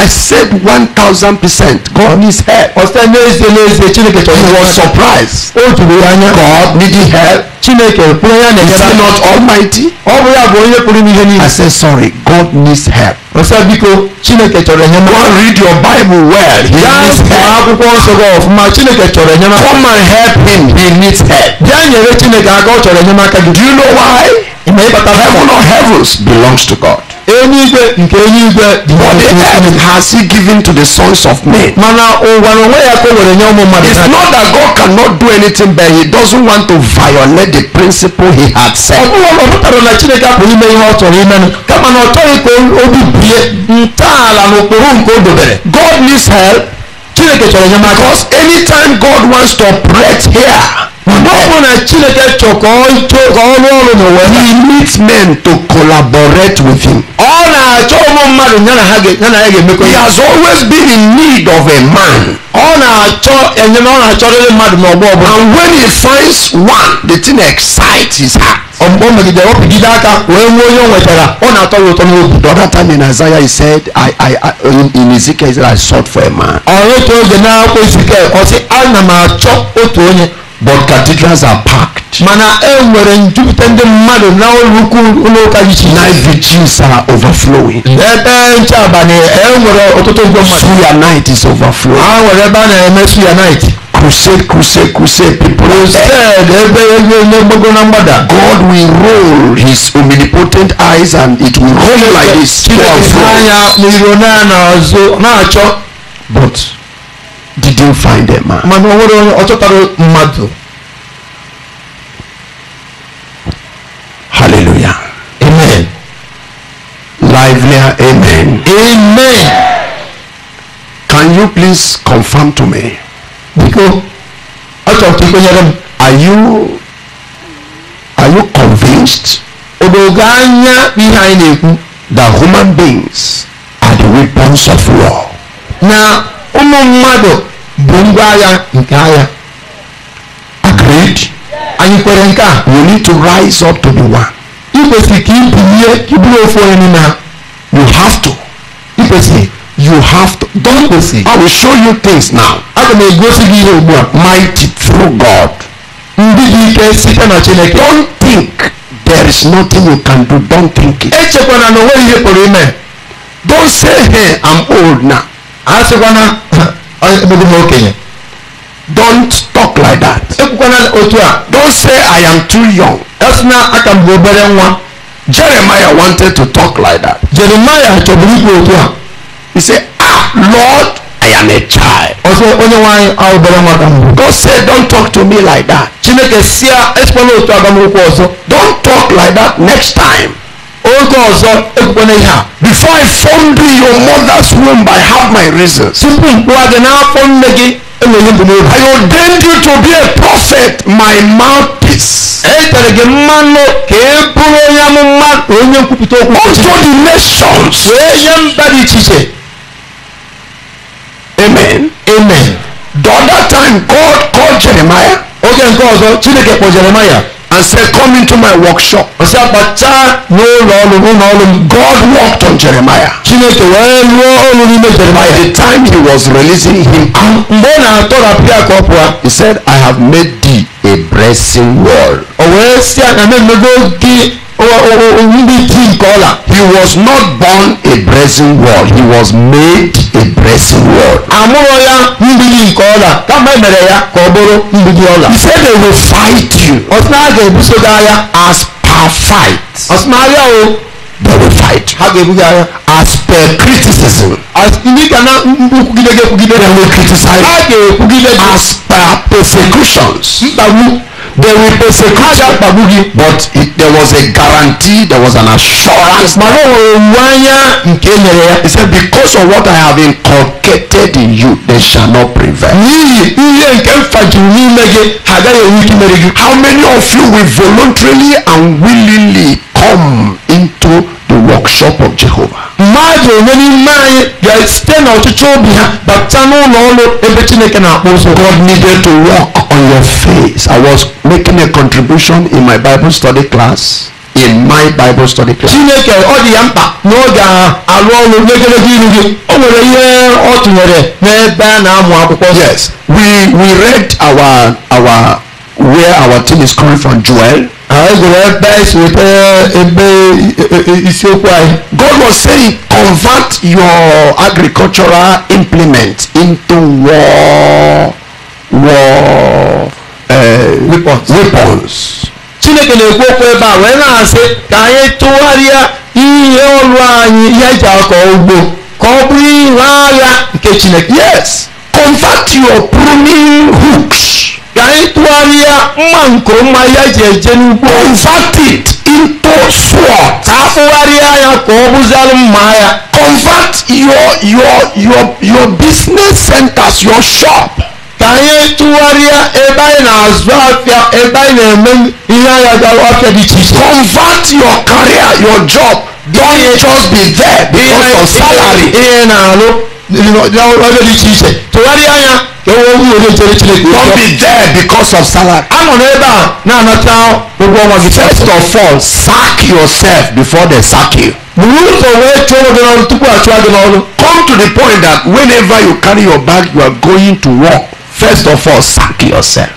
i said 1000% god needs help ọsịta n'ezie n'ezie chineke chọrọ he was surprised o juru god needed help chineke kwuru not almighty i said sorry god needs help ọsịta biko chineke chọrọ enyemaka go read your bible well he needs help come and help him he needs help chineke aka ọ do you know why ịma heaven or heavens be belongs to God. But has he given to the sons of men. It's not that God cannot do anything, but he doesn't want to violate the principle he had set. God needs help. Because anytime God wants to operate here, Ọ na Chineke chọkọọ ọrụ ọrụ n'ụwa. He needs men to collaborate with him. Ọ na-achọ ụmụ mmadụ ya na ha ga-emekọ. He has always been in need of a man. Ọ na-achọ enyemaka ọ na-achọrịrị mmadụ n'ọgbọ ọbụla. And when he finds one, the thing excites his heart. Ọ megidere ọ pigide aka wee nwee onye o nwetara ọ na-atọ ya ụtọ n'obi. The other time in Isaiah he said I I I in, Ezekiel he said I sought for a man. Ọ otu oge na Ezekiel ọ sị ana m achọ otu onye but cathedrals are packed. mana e nwere njupụta ndị mmadụ na ụlọukwu ụlọụka dị iche iche. night are overflowing. ebe nche abalị e nwere ọtụtụ igwe mmadụ. suya night is overflowing. ha nwere ebe a na-eme suya night. crusade crusade crusade people. crusade ebe ebe gbogbo na mgbada. God will roll his omnipotent eyes and it will roll like this. chineke anya n'iro na-achọ. but did you find a man. hallelujah. amen. livelier amen. amen. can you please confirm to me. Because, I ka ikwenyere m. are you are you convinced. odogo behind ihe that human beings are the weapons of war. Now ụmụ mmadụ bụ ngwa agha nke agha agreed anyị kwere nke a we need to rise up to be one ị kwesịrị ka ị bilie ka bụrụ ofu onye n'ime ha you have to ị kwesịrị you have to don kwesị i will show you things now aga m egosi gị ihe ugbu a mighty true god ndị dị ike site na chineke don't think there is nothing you can do don't think it echekwana na onweghị ihe pụrụ ime don't say hey i'm old now asịkwana emeghị oke ya don't talk like that. ekwukwana otu a. don't say I am too young. esina aka m bụ obere nwa. Jeremiah wanted to talk like that. Jeremiah chọburu ikwu otu a. he say, ah Lord I am a child. ọsọ onye nwanyị obere nwa ka mbụ. God said don't talk to me like that. Chineke si a esikwala otu agamokwu ọzọ. don't talk like that next time. oge ọzọ ekpukpena before i formed you your mother's womb i have my reasons tupu mkpụwa gị n'afọ nne gị i ordained you to be a prophet my mouthpiece etere gị the nations amen amen the other time god called jeremiah oge nke ọzọ chineke kpọ jeremiah and said, Come into my workshop. God walked on Jeremiah. By the time he was releasing him out, he said, I have made thee a blessing wall. humility oh, oh, oh, kola. he was not born a blessing world he was made a blessing world. àmúrò ya mgbidi nke ọla kama emere ya ka ọ bụrụ mgbidi ọla. he said they will fight you. ọsịna a ga-ebuso gị agha. as per fight. ọsịna agha o. they will fight. ha ga-ebu gị agha. as per criticism. as ndị ka na nkwugide they will criticize. ha ga-ekwugide as per persecutions. mkpagbu. there will persecute you but it, there was a guarantee there was an assurance he said because of what i have inculcated in you they shall not prevail how many of you will voluntarily and willingly come into workshop of Jehovah. mmadụ onye n'ime anyị ga-esite n'ọchịchị obi ha bata n'ụlọ ọrụ ebe Chineke na-akpọ ụzọ. God needed to walk on your face. I was making a contribution in my Bible study class. in my Bible study class. Chineke ọ dị ya mkpa n'oge alụ ọrụ n'egedege iru gị o nwere ihe ọ tụnyere n'ebe a na-amụ akwụkwọ. Yes, we we read our our where our team is coming from Joel. God was saying convert your agricultural implement into war war uh, weapons. Chineke na-ekwu okwu ebe a wee na-asị ka anyị tụgharịa ihe ọrụ anyị ihe eji akọ ugbo ka ọ bụrụ ihe agha nke Chineke. Yes, convert your pruning hooks ka ịtụgharịa mma nke ọma ya ji eje n'ugbo convert it into sword ka akpụgharịa ya ka ọ bụzara mma ya convert your your your your business centers your shop ka anyị tụgharịa ebe anyị na-azụ afịa ebe anyị na-eme ihe anya gara afịa dị iche iche convert your career your job don't just be there because of salary ihe na-alụ ọrụ dị iche iche tụgharịa ya owó wúwo ní torí tí lè gbé. don't be there because of salary. àmọ̀nà ẹ̀bà a náà tán gbogbo ọmọ gidi. first of all sack yourself before they sack you. Mùrùtò wẹ́ẹ́ tó o dọ̀nà tukú àti àdìmọ̀ ọ̀nà. Come to the point that whenever you carry your bag you are going to work first of all sack yourself.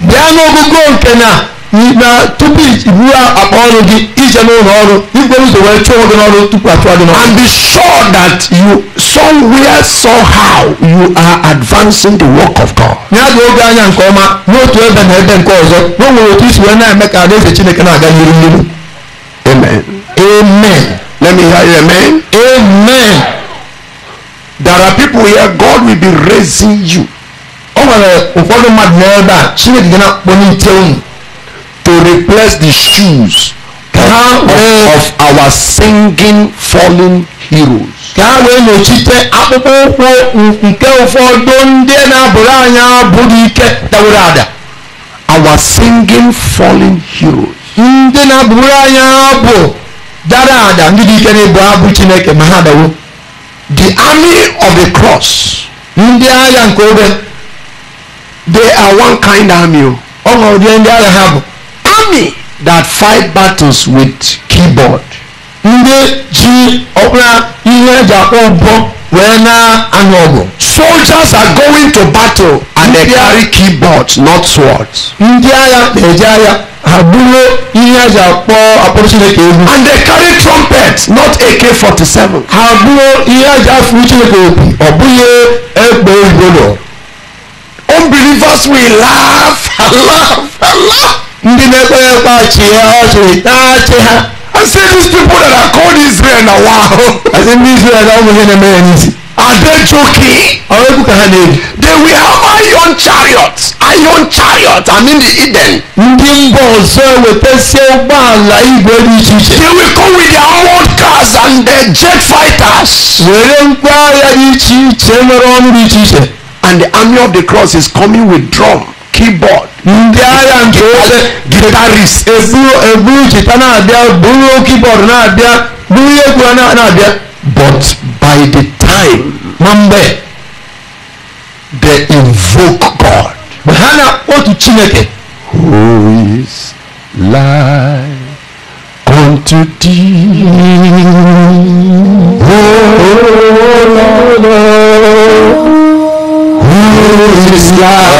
Bí a ń gbogbo na tupu iwu akpa ọrụ gị ije n'ụlọ ọrụ igwere ụzọ wee chụọ gị n'ọrụ tupu achụọ gị n'ọrụ. and be sure that you somewhere somehow you are advancing the work of God. ya dị oge anya nke ọma n'otu ebe na ebe nke ọzọ n'onwere otu isi wee na-eme ka alaeze Chineke na-aga n'ihu n'ihu. amen. amen. let me hear you amen. amen. there are people here God will be raising you. o nwere ụfọdụ mmadụ n'ebe a Chineke gị na-akpọ n'ite unu to replace the shoes of, of our singing fallen heroes. ka a wee nọchite akpụkpọ ụkwụ nke ụfọdụ ndị na-abụrụ anyị abụrụ ike dawere ada. our singing fallen heroes. ndị na-abụrụ anyị abụ dara ada ndị dị ike na-ebu abụ chineke ma ha dawo. the army of the cross. ndị agha nke obe they are one kind army o. ọ ṅụrụ ndị agha ha bụ army that fight battles with keyboard. ndị ji ọbụla ihe eji akpọ ụgbọ wee na-anụ ọgụ. soldiers are going to battle and they carry keyboards not swords. ndị agha na-eji agha ha buru ihe eji akpọ akpọrọ chineke egwu. and they carry trumpets not AK-47. ha buru ihe eji afụrụ chineke obi ọ bụghị egbe egwolo. unbelievers will laugh and laugh and laugh. ndị I say these people that are called Israel now, wa I say ndị Israel na ụmụ Are they joking? Ọrụ They will have iron chariots. Iron chariots. I mean the Eden. Ndị mba ọzọ ewetasie ụgbọala They will come with their armored cars and their jet fighters. And the army of the cross is coming with drum. keyboard. Ndị agha nke ofe guitarist. Eburu eburu chita na-abịa buru keyboard na-abịa buru ihe egwu na-abịa. But by the time na mgbe they invoke God. Mgbe ha na otu Chineke. Who is like unto thee? Oh, Lord. Oh, oh, oh, Who is God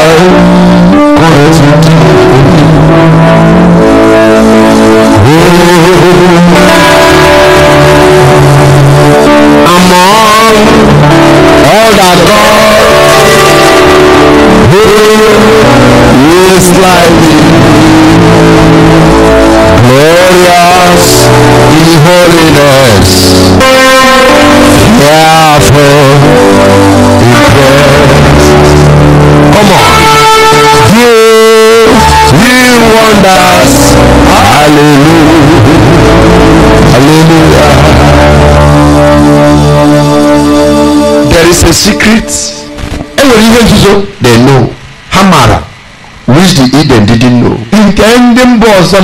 Among all that God who is like glorious holiness. Therefore, Come on. Do real wonders. Hallelujah. Hallelujah. There is a secret. Enwere ihe nzuzo they know Hamara, which the Eden didn't know. Nke ndị mba ọzọ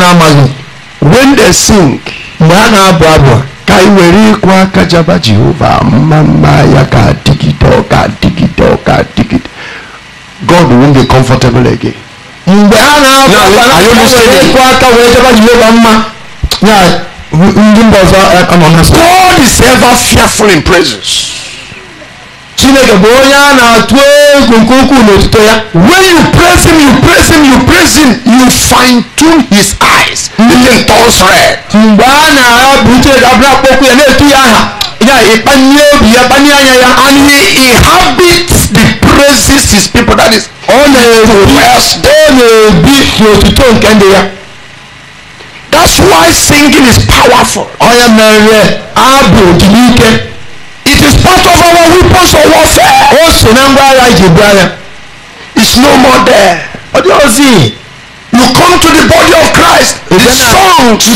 When they sing. Mgbe ha na-abụ abụ ka ị were Jehova mma mma ya ka adịgide ọ ka adịgide ka adịgide. God won't be comfortable again. mgbe a na-akwa aka wee jebe ji yoba mma ya ndị mba ọzọ aka nọ na God is ever fearful in presence. Chineke bụ onye a na-atụ egwu nke ukwuu n'otuto ya. When you praise him, you praise him, you praise him, you fine tune his eyes. He hmm. turns red. Mgbe a na-abụ Chineke abụrụ akpọkwu ya na-etu ya aha, ya ịkpanye obi ya, kpanye anya ya. And he inhabits raises his people that is ọ na-ebi ọ na-ebi n'otuto nke ndị ya that's why singing is powerful ọya mere abụ dị n'ike it is part of our weapons of warfare o so na ngwa agha iji bu agha it's no more there ọ dị ozi you come to the body of Christ the songs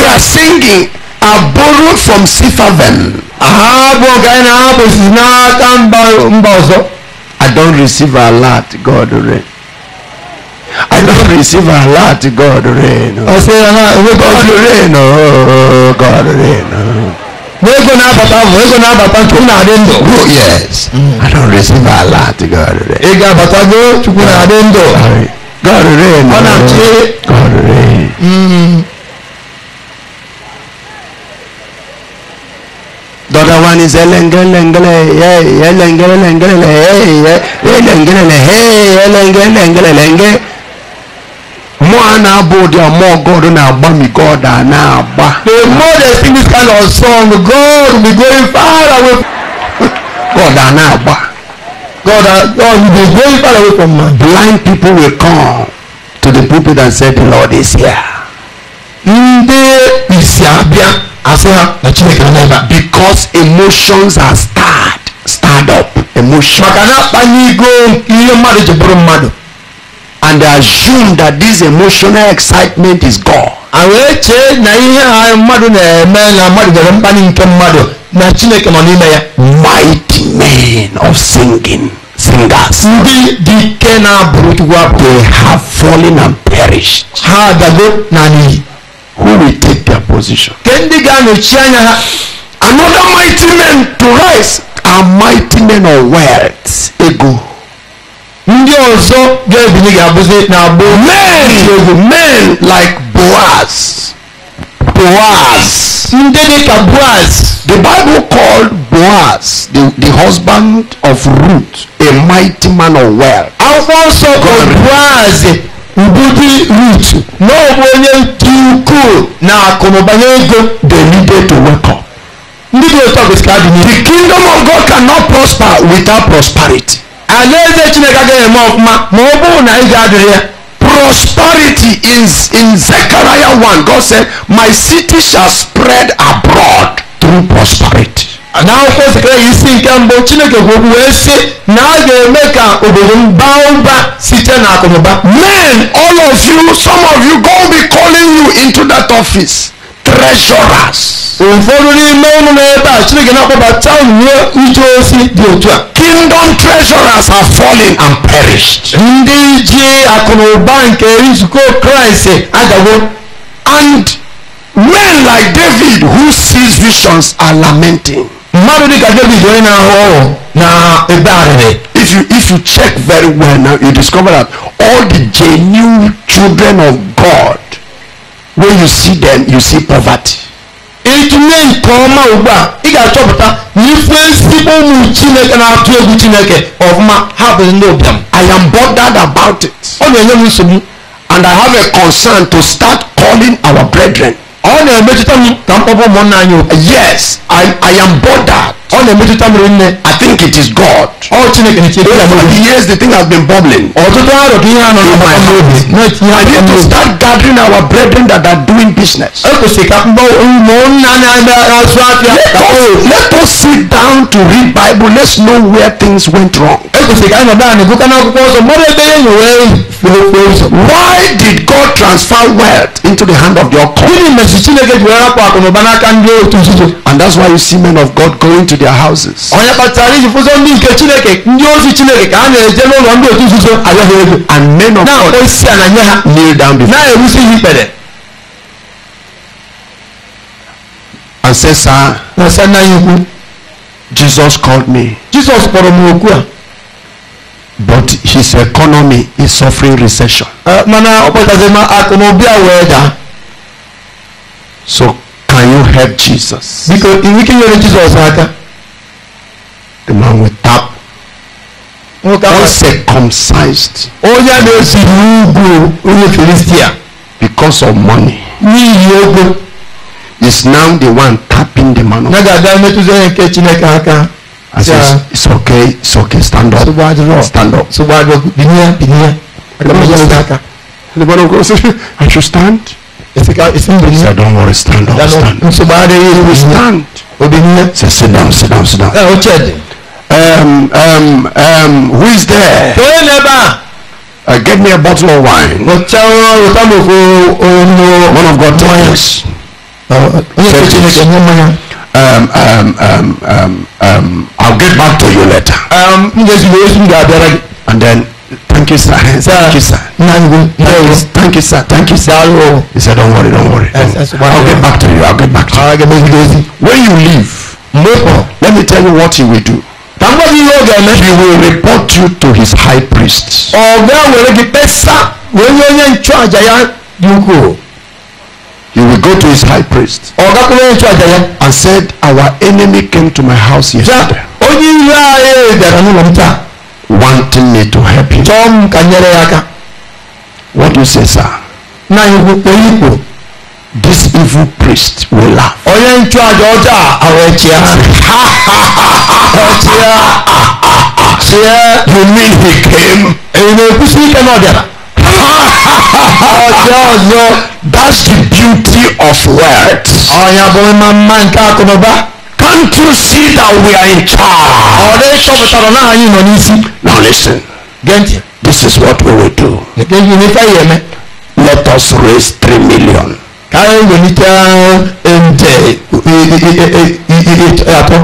we are singing are borrowed from Sifaven. aha bụ ọgaranya na-abụ si n'aka mba ọzọ I don't receive a lot, God rain. I don't receive a lot, God rain. I say, uh-huh, God rain, oh, God rain. Wego na abata mu, wego na abata chukwu na-adị Oh yes, mm. I don't receive a lot, God rain. Ị ga-abata go, chukwu na-adị God rain. Ọ na God rain. Mm. ni sẹ lẹ́ngẹ́lẹ́ngẹ́lẹ́ yẹ yẹ lẹ́ngẹ́lẹ́ngẹ́lẹ́ yẹ yẹ yẹ lẹ́ngẹ́lẹ́ngẹ́ yẹ yẹ lẹ́ngẹ́lẹ́ngẹ́lẹ́ lẹ́ngẹ́. More I now bow, the more God and I bow me God and I bow. The more they sing this kind of song, God will be going far away. *laughs* God and I bow. God, uh, God will be going far away from man. Blind people will come to the pulpit and say, The Lord is here. They because emotions are stirred stirred up emotion and they assume that this emotional excitement is God. mighty men of singing singers ndị dị ike they have fallen and perished ha adago na who will take their position. Another mighty man to rise are mighty men of wealth. Ego. Ndị ọzọ ga-ebili ga-abụzi na bụ men men like Boaz. Boaz. Ndị Boaz. The Bible called Boaz the, the husband of Ruth a mighty man of wealth. Akwụkwọ nsọ kọrọ Boaz Mbudi rich. N'ọbụ onye dị ukwuu na akụnụbanye ego dey needed to work on. Ndị dị otu a kwesịrị adị n'ihu. The kingdom of God cannot prosper without prosperity. Alaeze Chineke agaghị eme ọfụma ma ọ bụrụ na ego adịrị ya. Prosperity is in Zechariah 1. God said, My city shall spread abroad through prosperity na akwụkwọ sekere isi nke mbụ chineke kwuru wee sị na a ga-eme ka obodo m baa ụba site na akụnụba men all of you some of you go be calling you into that office treasurers. ụfọdụ n'ime ụnụ n'ebe a chineke na-akpọbata uwe uche osi dị otu a kingdom treasurers are fallen and perished. ndị ji akụnụba nke nzukọ kraịst eh, adago and men like david who sees visions are lamenting mmadụ dị ka david onye na-ahụ ọrụ na ebe arịrị if you if you check very well now you discover that all the genuine children of god when you see them you see poverty. ịtụnye nke ọma ugbu a ị ga-achọpụta na ife ezigbo ụmụ chineke na-atụ egwu chineke ọfụma ha bụ ndị ụbịam i am bothered about it. ọ na-enye m nsogbu and i have a concern to start calling our brethren na-emetụta m mkpọpọ anyị yes I, I am bothered ọ na-emetụta m rinne I think it is God ọ Chineke na Chineke years the thing has been bubbling ọtụtụ arọ ka ihe n'obi I need to start gathering our brethren that are doing business e kwesịrị ka na afịa oh. let us sit down to read Bible let's know where things went wrong e kwesịrị ka anyị nọdụ anyị n'akwụkwọ ọzọ ebe nyere why did God transfer wealth into the hand of the occult esi chineke ji were rapụ akụnụba n'aka ndị otu nzuzo and that's why you see men of God going to their houses. onye kpatara iji fụzọ ndị nke chineke ndị ozi chineke ka a na-eje n'ụlọ ndị otu nzuzo abịa ego and men of God na-akpọ isi ala nye ha kneel down before na-ewusi ha ikpere and say sir na sir nna ya Jesus called me Jesus kpọrọ m okwu a but his economy is suffering recession. Eh, mana ọ kpọtazima akụnụba wee daa So can you help Jesus? Because if we can help Jesus, the man will tap. Uncircumcised. Oh yeah, there's a Philistia. Because of money. Is now the one tapping the man. I says, it's okay, it's okay, stand up. Stand up. So The man of God says, I should stand. It's a, it's in don't worry, stand up, stand up. So bad he will stand. Obinye. Say, sit down, sit down, sit down. Uh, um, um, um, who is there? Uh, get me a bottle of wine. One of God toys. Uh, uh um, um, um, um, um, I'll get back to you later. Um, and then Thank you, sir. Thank you, sir. Thank you, sir. Thank you, sir. He said, Don't worry, don't worry. Don't. I'll get back to you. I'll get back to you. When you leave, let me tell you what he will do. He will report you to his high priest. He will go to his high priest and said, Our enemy came to my house yesterday. wanting me to help him. Tom ka nyere ya aka. What do you say sir? Na ihu oyikpo. This evil priest will laugh. Onye nchụàjà ọjọọ a ahụ echia. Echia. Chie. You mean he came? Èyí na-ekwusi ike na ọ bịara. Ọjọọ ọzọ. That's the beauty of words. Ọnya bụ mma mma nke akụnụba. Can't you see that we are in charge? Ọ̀rẹ́ sọ̀bùtàrọ̀ náà yìí nọ n'isi. Now listen. Gẹ́ntì. This is what we will do. Gẹ́ntì ní fẹ́ yẹ mẹ́. Let us raise three million. Káyọ̀ ìwé ní tẹ́ ìyàtọ̀.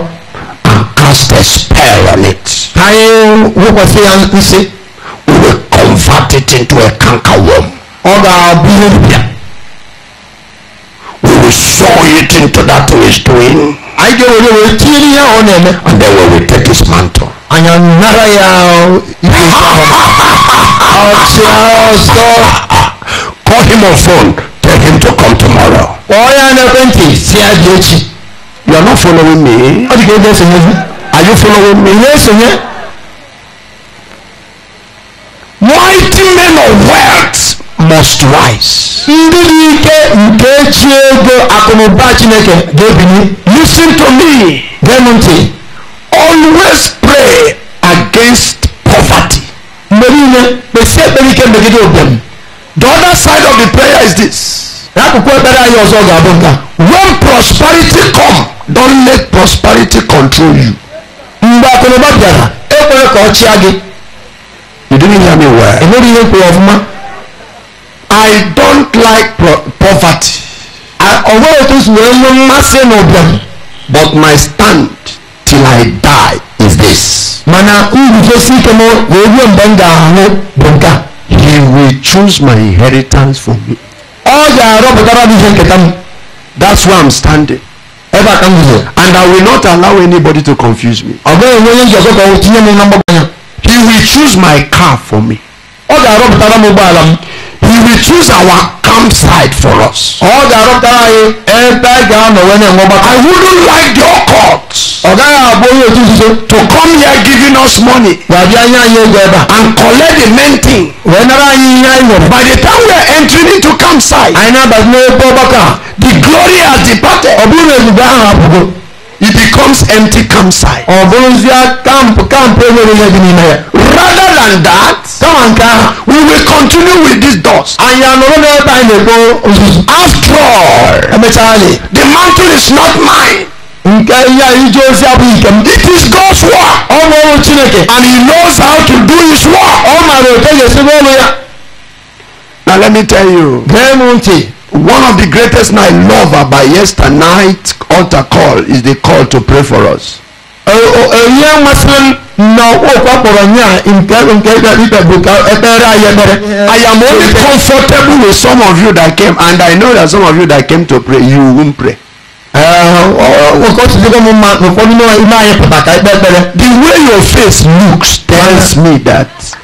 And cast a spell on it. Káyọ̀ wọ́pọ̀ sí ya ń We will convert it into a canker worm. Ọ̀dà àbúrò. We will sow it into that which doing ayidowore wo etiri ya ọ na-eme. and then we will take his mantle. anya nara ya ibe ọchịa call him on phone tell him to come tomorrow. kpọọ ya n'ekwentị si ya dị you are not following me. ọ dị ka ebe are you following me. ihe mighty men of wealth most wise. ndị dị ike nke chi ego akụnụba chineke ga-ebili. listen to me. gee ntị. always pray against poverty. mgbe niile kpesi ekpere ike megide ụbịam. the other side of the prayer is this. n'akụkụ ekpere anyị ọzọ ga-abụ nka. when prosperity come don't let prosperity control you. mgbe akụnụba bịara ekwere ka ọ chịa gị. you didn't hear me well. enweghị ihe kwuru ọfụma. I don't like poverty. ọ̀wọ́ ètò ìṣúná ló má ṣe nà ọ̀bẹ̀rù. But my stand till I die is this. Mana nrufe si kemo wewuo mgbe m ga-ahụ bụ He will choose my inheritance for me. Ọ ga-arọpụtara m ihe nketa m. That's why I'm standing. Ebe a ka m And I will not allow anybody to confuse me. Ọ bụghị onye onye njọkọ ka o tinye m na mgbagọ ya. He will choose my car for me. Ọ ga-arọpụtara m ụgbọala m he will choose our campsite for us. ọ̀gá àrùntàrà yìí ẹ̀ẹ́dá ìgbà ànàwẹ́ náà wọ́n bá I wouldn't like your court. ọ̀gá yà àbórí ètò ìṣiṣẹ́. to come here giving us money. wàbí ayé ayé ẹgbẹ́ ẹ̀dá. and collect the main thing. wẹ́n náírà yìí yá ìwọ̀n. by the time we are entering into campsite. àyìnbá bàtí ní bọ́ bọ́kà. the glory has departed. ọ̀bùrù èdùbà àwọn àbùkù. it becomes empty campsite. ọ̀bùrù sí camp camp ẹ̀ e Rather than that, we will continue with these doors. and all, are no is not mine. nke ihe the ji is not mine. it is God's work and he knows how to do his work now let me tell you one of the greatest I love about yesternight altar call is the call to pray for us ɛyɛ masan na ɔkɔkɔrɔ nyɛ a nkɛ nkɛ ɛbɛ buka ɛbɛrɛ ayɛbɛrɛ I am only comfortable with some of you that came and I know that some of you that came to pray you won't pray. Uh, The way your face looks tells me that.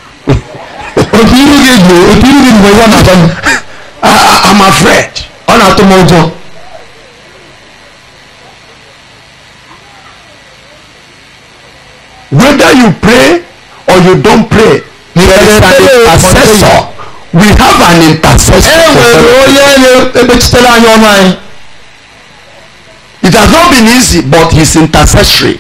I'm afraid. *laughs* whether you pray or you don't pray there is an intercessor we have an intercessor. Eh, it has not been easy but he's intercessory.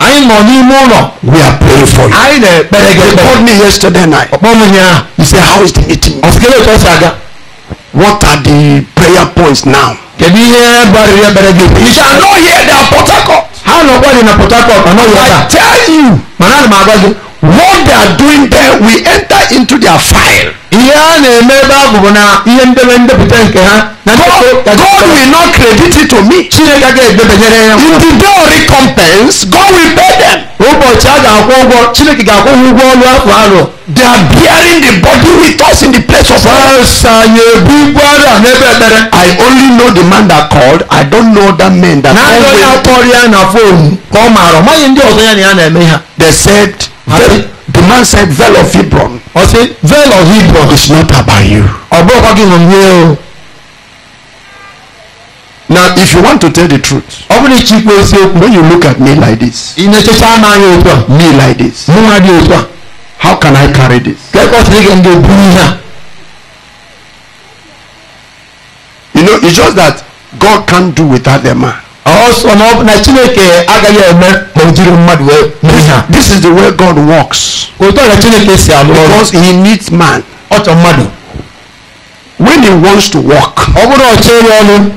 I'm on you, ụlọ we are praying for you I know, but gị ekpere called me yesterday night ọkpọ m ụnyaahụ he how is the meeting ọsịkere what are the prayer points now kedu you shall not hear the Port Harcourt ha nọkwa dị na I tell you what they are doing there we enter into their file God, God will not credit it to me. In the day of recompense, God will pay them. They are bearing the body with us in the place of I only know the man that called. I don't know that man that called. They said. Veil, the man said, Veil of Hebron. I say, Veil of Hebron is not about you. Now, if you want to tell the truth, when you look at me like this, me like this, how can I carry this? You know, it's just that God can't do without the man na chineke agaghị eme ma o jiri mmadụ wee mee ha. this is the way God works. otu ọrịa chineke si alụ ọrụ. because he needs man. ọ mmadụ. when he wants to work. ọ bụrụ ọchọ ya ọnụ.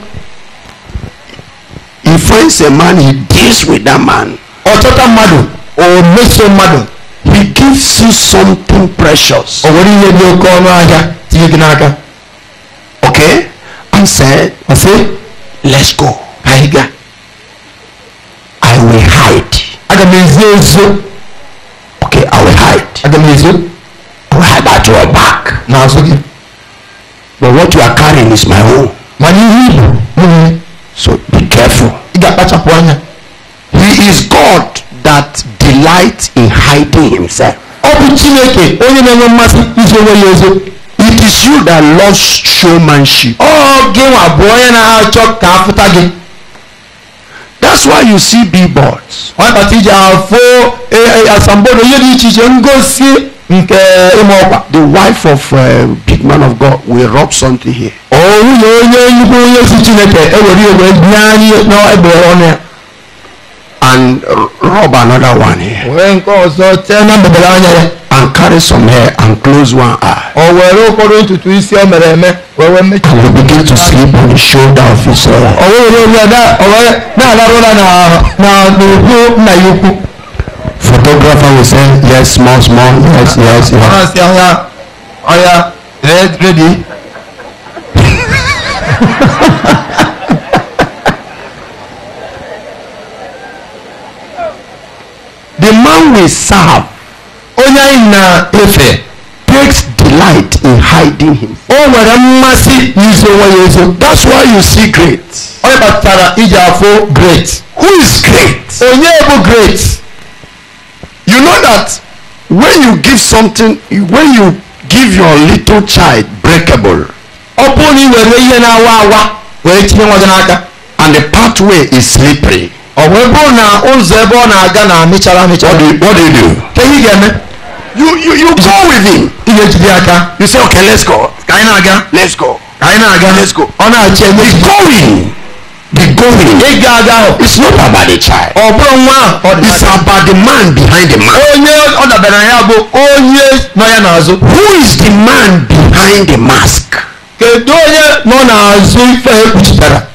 he finds a man he deals with that man. ọ chọta mmadụ o meso mmadụ. he gives you something precious. o nwere ihe dị oke ọnụ ahịa tinye gị n'aka. okay I said. I said. let's go. anyị I will hide aga m ezo ezo okay I will hide aga m ezo I will hide at your back n'azụ gị but what you are carrying is my own mana ihe ibu so be careful he is God that delights in hiding himself it is you that loves showmanship Oh, gị nwa bụ onye na-achọ ka afụta gị that's why you see billboards. ọkọchị ji afọ eh, eh, asambodo ihe dị iche iche ngosi nke ịma ọkwa. the wife of uh, big man of God will rub something here. ọ nwunye onye nnukwu onye si Chineke ewere iwe nye anyị n'egbe ọnụ ya and rub another one here. wẹ́n kọ́ sọ tẹ́ náà bẹ̀bẹ̀ and carry some hair and close one eye. ọ̀wọ̀ ẹ̀rọ kọ́dún tuntun isi ọ̀mẹ̀rẹ̀ mẹ́ wẹ́wẹ́ méjì. and you begin to sleep on the shoulder of his head. ọ̀wọ́ ìlú ìlú ẹ̀dá náà lárúra na na nùkú nà yókù. photographer will say yes small small yes yes yes. ọ̀rọ̀ sí ọ̀ya ọ̀ya ready. *laughs* the man we serve onye anyị na-efe takes delight in hiding him. o nwere mmasị n'izo onwe ya ezo. that's why you see great. ọ kpatara iji afọ great. who is great? onye bụ great. you know that when you give something when you give your little child breakable. ọ bụrụ na ị were ihe na-awa awa were tinye nwa gị n'aka. and the pathway is slippery. what do you do Can you hear me? you you you go with him you say okay let's go ka na-aga let's go ka na-aga let's go o he's going the going it's not about the child it's about the man behind the man nọ ya who is the man behind the mask nọ ife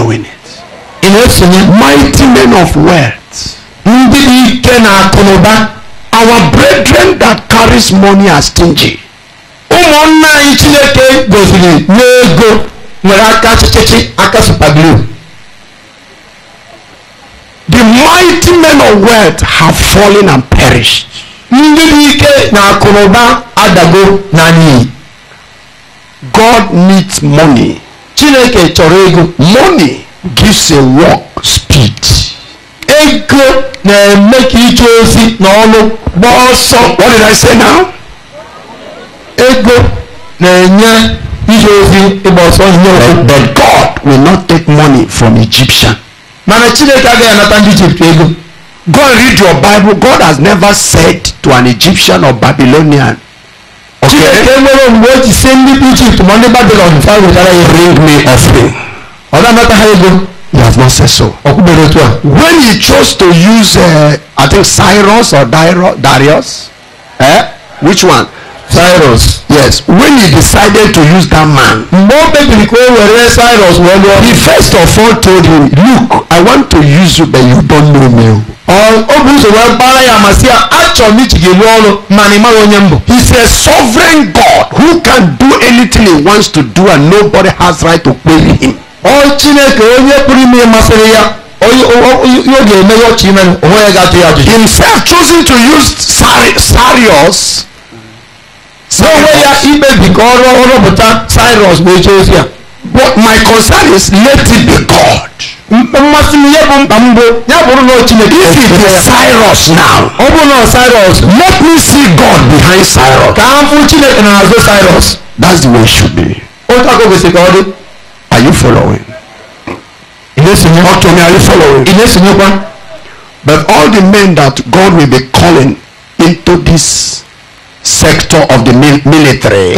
following it. Mighty men of words. Our brethren that carries money are stingy. ụmụnna anyị chineke goziri n'ego nwere aka chịchịchị aka supaglu the mighty men of wealth have fallen and perished ndị dị ike na akụnụba adago na n'iyi god needs money chineke chọrọ ego money gives a work speed ego na-eme ka ije ozi na ọlụ gbaa ọsọ what did I say now ego na-enye ije ozi ịgba ọsọ ihe ozi but God will not take money from Egyptian mana chineke agaghị anata ndị Ijipt ego go and read your Bible God has never said to an Egyptian or Babylonian chineke nwere mgbe o ji sie ndị ijipt ma ndị babilon fa wetara ya bring me offering ọ na-amata ha ego you have not said so ọkwụgbere otu a when he chose to use uh, i think cyrus or darius eh? which one Cyrus. Yes, when he decided to use that man. Mgbe o kpebiri ka o were Cyrus He first of all told him, look, I want to use you but you don't know me. O He is a sovereign God who can do anything he wants to do and nobody has right to query him. Ọ Chineke onye ya. ya Himself choosing to use Sarius. So ya ikpebi ka ọ rụọ rụpụta cyrus bụ eche ozi but my concern is let it be god mmasị m ihe bụ mkpa m bụ ya bụrụ na chineke if it is cyrus now ọ bụrụ na cyrus let me see god behind cyrus ka And I'll go cyrus that's the way it should be otu aka kwesịrị ka ọ dị are you following In this na-esonye ọtụ are you following ị na-esonyekwa but all the men that god will be calling into this sector of the military.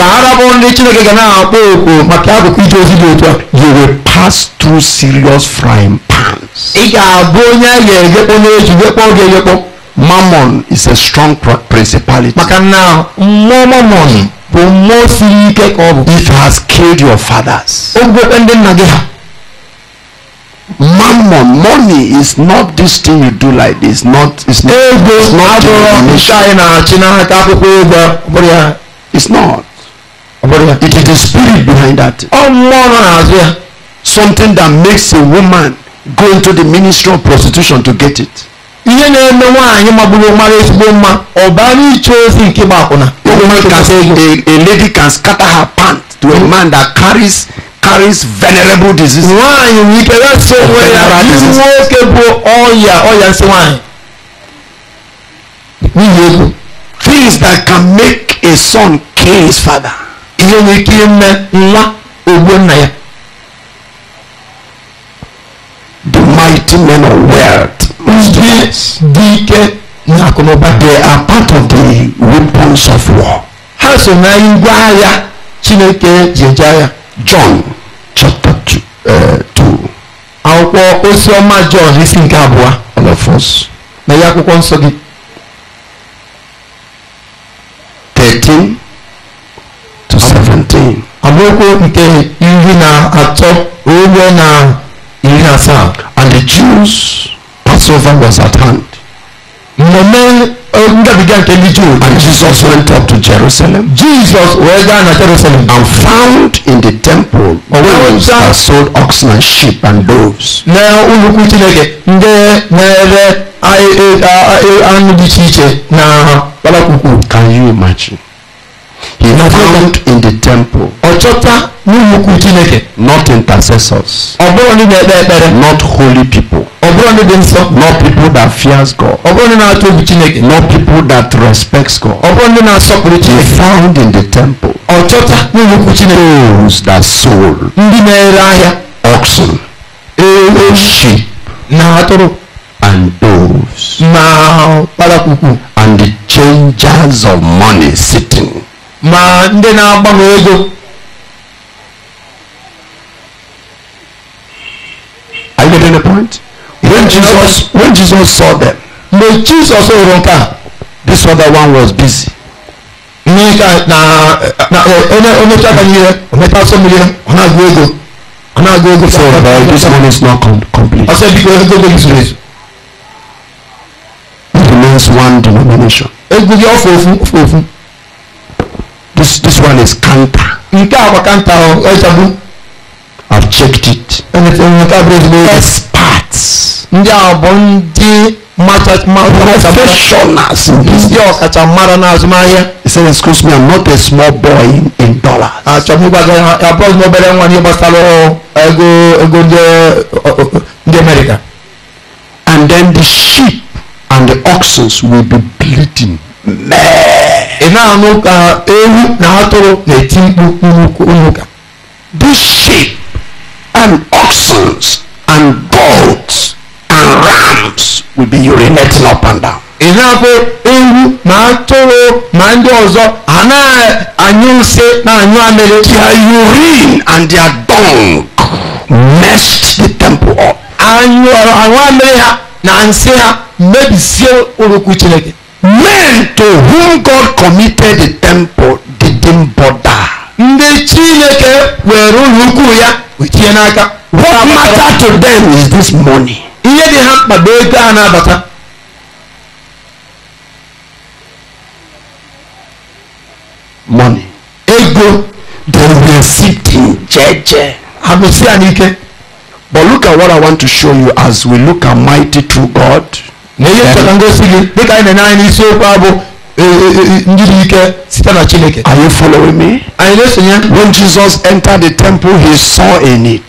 you will pass through serious frying pans. mammon is a strong principality. maka na mammon bụ it has killed your fathers mammon money is not this thing you do like this not it's not ego abụrụ nchị na-achị n'aka it's not it is the spirit behind that ọ mmụọ nọ n'azụ something that makes a woman go into the ministry of prostitution to get it ihe na-eme a lady can scatter her pant to a hmm. man that carries carries venerable disease. nwanyị why things that can make a son kill his father. the mighty men of wealth. they are part of the weapons of war. so chineke john Eh, to. Àwọn osioma John isi nke abụọ. All of us. Na ya akwụkwọ nsọ gị. Thirteen to seventeen. Amaokwu nke iri na atọ ruo na iri na asaa. And the Jews Passover was at hand. Mmemme And Jesus went up to Jerusalem. Jesus wee gaa na Jerusalem. And found in the temple those that sold oxen and sheep and doves. Na ụlọukwu Chineke ndị I, anụ dị iche iche na I, Can you imagine? He found in the temple. Ọchọta n'ụlọ ukwu Chineke. Not intercessors. Ọ bụrụ ndị Not holy people. Ọ bụrụ ndị nsọ. Not people that fears God. Ọ Chineke. Not people that respects God. Ọ bụrụ Chineke. He found in the temple. Ọchọta n'ụlọ ukwu Chineke. Those that sold. Ndị na-ere ahịa. Oxen. Ewu. Sheep. Na atụrụ. And those. Na kpalakwukwu. And the changers of money sitting. ma ndị na-agbanwe ego are you getting the point when jesus when jesus saw them mgbe jesus hụrụ nke a this other one was busy mmiri na na onye onye chaka ihe ometa asọ mmiri ọ na-agụ ego ọ na-agụ ego so but this one is not complete ọ sị biko ego ego zuru ezu it remains one denomination ego gị ọfụ ofu ofu ofu This, this one is canter. Nke a bụ kanta i I've checked it. Experts. Ndị a bụ ndị professionals in business. Ndị ọkachamara n'azụmahịa. He said, excuse me, I'm not a small boy in, in dollars. Achọm ịgbaga ya abụọ na America. And then the sheep and the oxen will be bleeding. Man. ịna-anụ ka ewu na atụrụ na-eti mkpu nnukwu unu ka sheep and oxen and goats and rams will be urinating up and down. ịhapụ ewu na atụrụ na ndị ọzọ anaghị nsị na-anyụ amịrị. their urine and their dung messed the temple up. anyụ amịrị ha na nsị ha mebisie ụlọukwu chineke men to whom God committed the temple didn't bother. ndị chineke were ụlọ ukwu ya wechie n'aka. what matter to them is this money. ihe dị ha mkpa bụ ego a na-abata. money. ego they were sitting jeje. amesi anyị ike. but look at what I want to show you as we look at mighty true God. ngosi dika anyị na chineke are you following me anyị na-esonye when jesus entered the temple he saw a need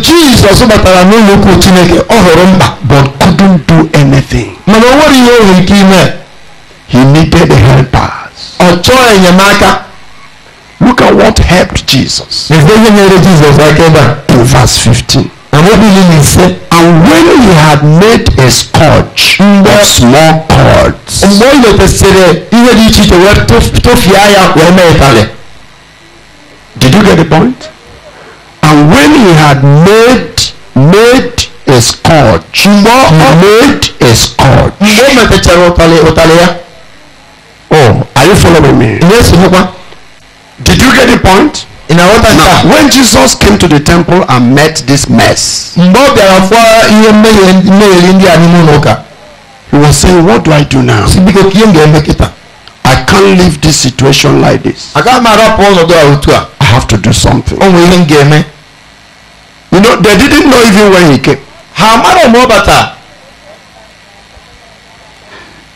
Jesus, jizọs batara n'ụlọ ukwu chineke ọ hụrụ but couldn't do anything mana o nwere ihe o nwere he needed a helper ọ chọọ enyemaka look at what helped jesus ihe nyere jizọs aka to verse 15 Ànábì yìí ni sẹ́. And when he had made a scourge mm. of small cords. Did you get the point? And when he had made made a scourge. Mgbe made a scourge. Oh, are you following me? Yes, Did you get the point? Now, when Jesus came to the temple and met this mess, he was saying, What do I do now? I can't leave this situation like this. I have to do something. You know, they didn't know even when he came.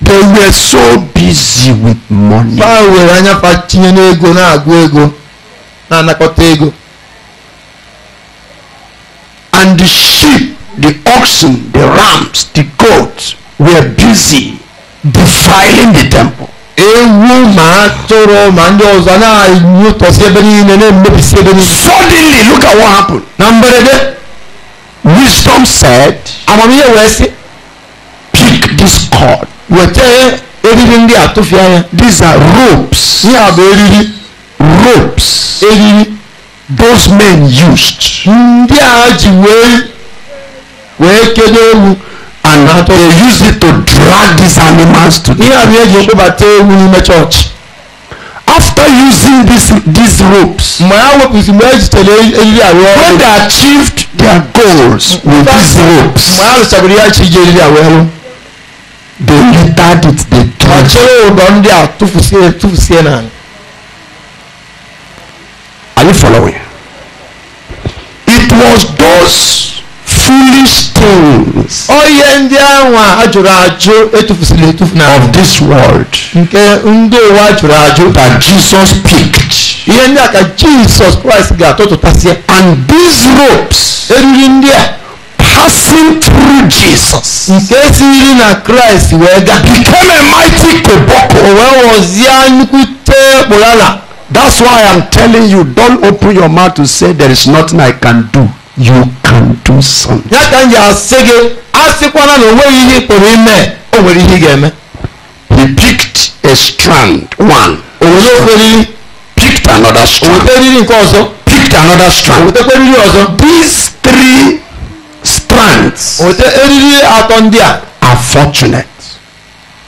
They were so busy with money na-anakọta ego and the sheep the oxen the rams the goats were busy defiling the temple ewu ma atụrụ ma ndị ọzọ na-anyụtọsi ebe niile na-emebisi ebe niile suddenly look at what happened na mberede wisdom said amamihe wee sị pick this cord weta eriri ndị a tụfịa ya these are ropes ihe a bụ eriri ropes eyi those men used ndị a ji wee wee kedo ewu and how they use it to drag these animals to the church. ihe abịa eji eles ewu n'ime chọọchị. after using these these ropes. mgbe ha mgbe eriri ọrụ. when they achieved their goals with these ropes. mgbe ha ji eriri ọrụ. they littered it they tore. chere ụdọ ndị a tụfusie tụfusie n'ala. Are you following? It was those foolish things. Ọ ihe ndị anwa ajụrụ ajụ etufu na. Of this world. Nke ndị ụwa ajụrụ ajụ. That Jesus picked. Ihe ndị a Jesus Christ ga-atụtụtasịa. And these ropes. Eriri ndị a. passing through Jesus. nke siri na Christ wee gaa. became a mighty koboko. o wee ghọzie nnukwu tee kpụrụ ala. That's why I'm telling you, don't open your mouth to say there is nothing I can do. You can do something. Ya ka nje asị gị, a na onweghị ihe ị ime, o nwere ihe ị ga He picked a strand, one. O were okweriri. Picked another strand. O weta eriri nke ọzọ. Picked another strand. O wetakwa ọzọ. These three strands. O weta atọ ndị a. Are fortunate.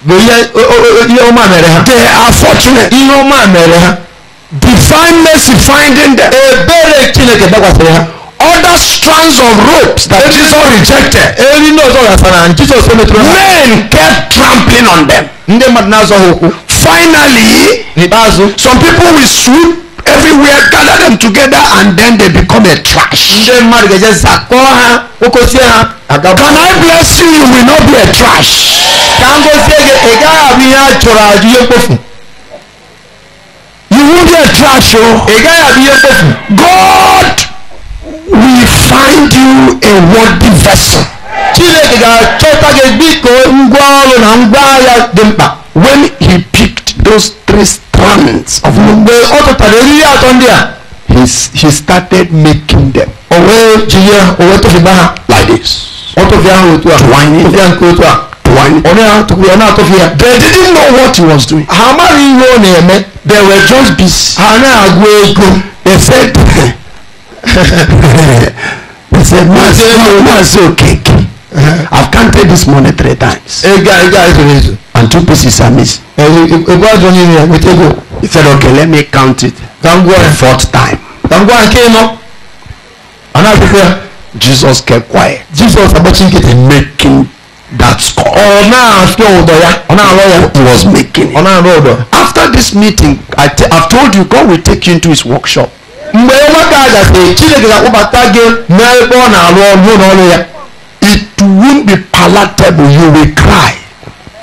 Bụ ihe ọma mere ha. They are fortunate. Ihe ọma mere ha. divine mercy finding them other strands of ropes that Jesus rejected. Jesus Men kept trampling on them. Finally, some people will swoop everywhere gather them together and then they become a trash. Can I bless you? You will not be a trash. You won't be a trash o. Ègá yàbí yẹn fòfù. God will find you a worthy vessel. Chineke ga-achọta gị dịka ngwa ọrụ na ngwa agha dị mkpa. When he picked those three strands of gold. Mgbe ọ tụtara eriri atọ ndị a. He, started making them. O wee ji ya o wee tụfịba ha. Like this. Ọ tụfịa ha otu a. Twining. Tụfịa nke otu a wine. ọ̀nà tó ọ̀nà tó fi yà. they didn't know what he was doing. àmàlí yóò ní ẹ̀mẹ́. they were just busy. àná àgbo ego. they said *laughs* they said man say no man say okeke. I've counted this money three times. Ega ega ego. And two pieces are missed. Ego ajo ni ni with ego. He said okay let me count it. Kangwa. The fourth time. Kangwa nke nọ. Ana akwụkwọ ya. Jesus kept quiet. Jesus agbachin kete. Making that score. ọ̀nà àfẹ́ ọ̀dọ̀ ya. ọ̀nà àrọ̀ he was making it. ọ̀nà àrọ̀ after this meeting I t I told you God will take you into his workshop. mgbe nwata a gasịrị Chineke ga-akpọbata gị n'ebe ọ na-arụ ọrụ n'ọrụ ya. it won't be palatable you will cry.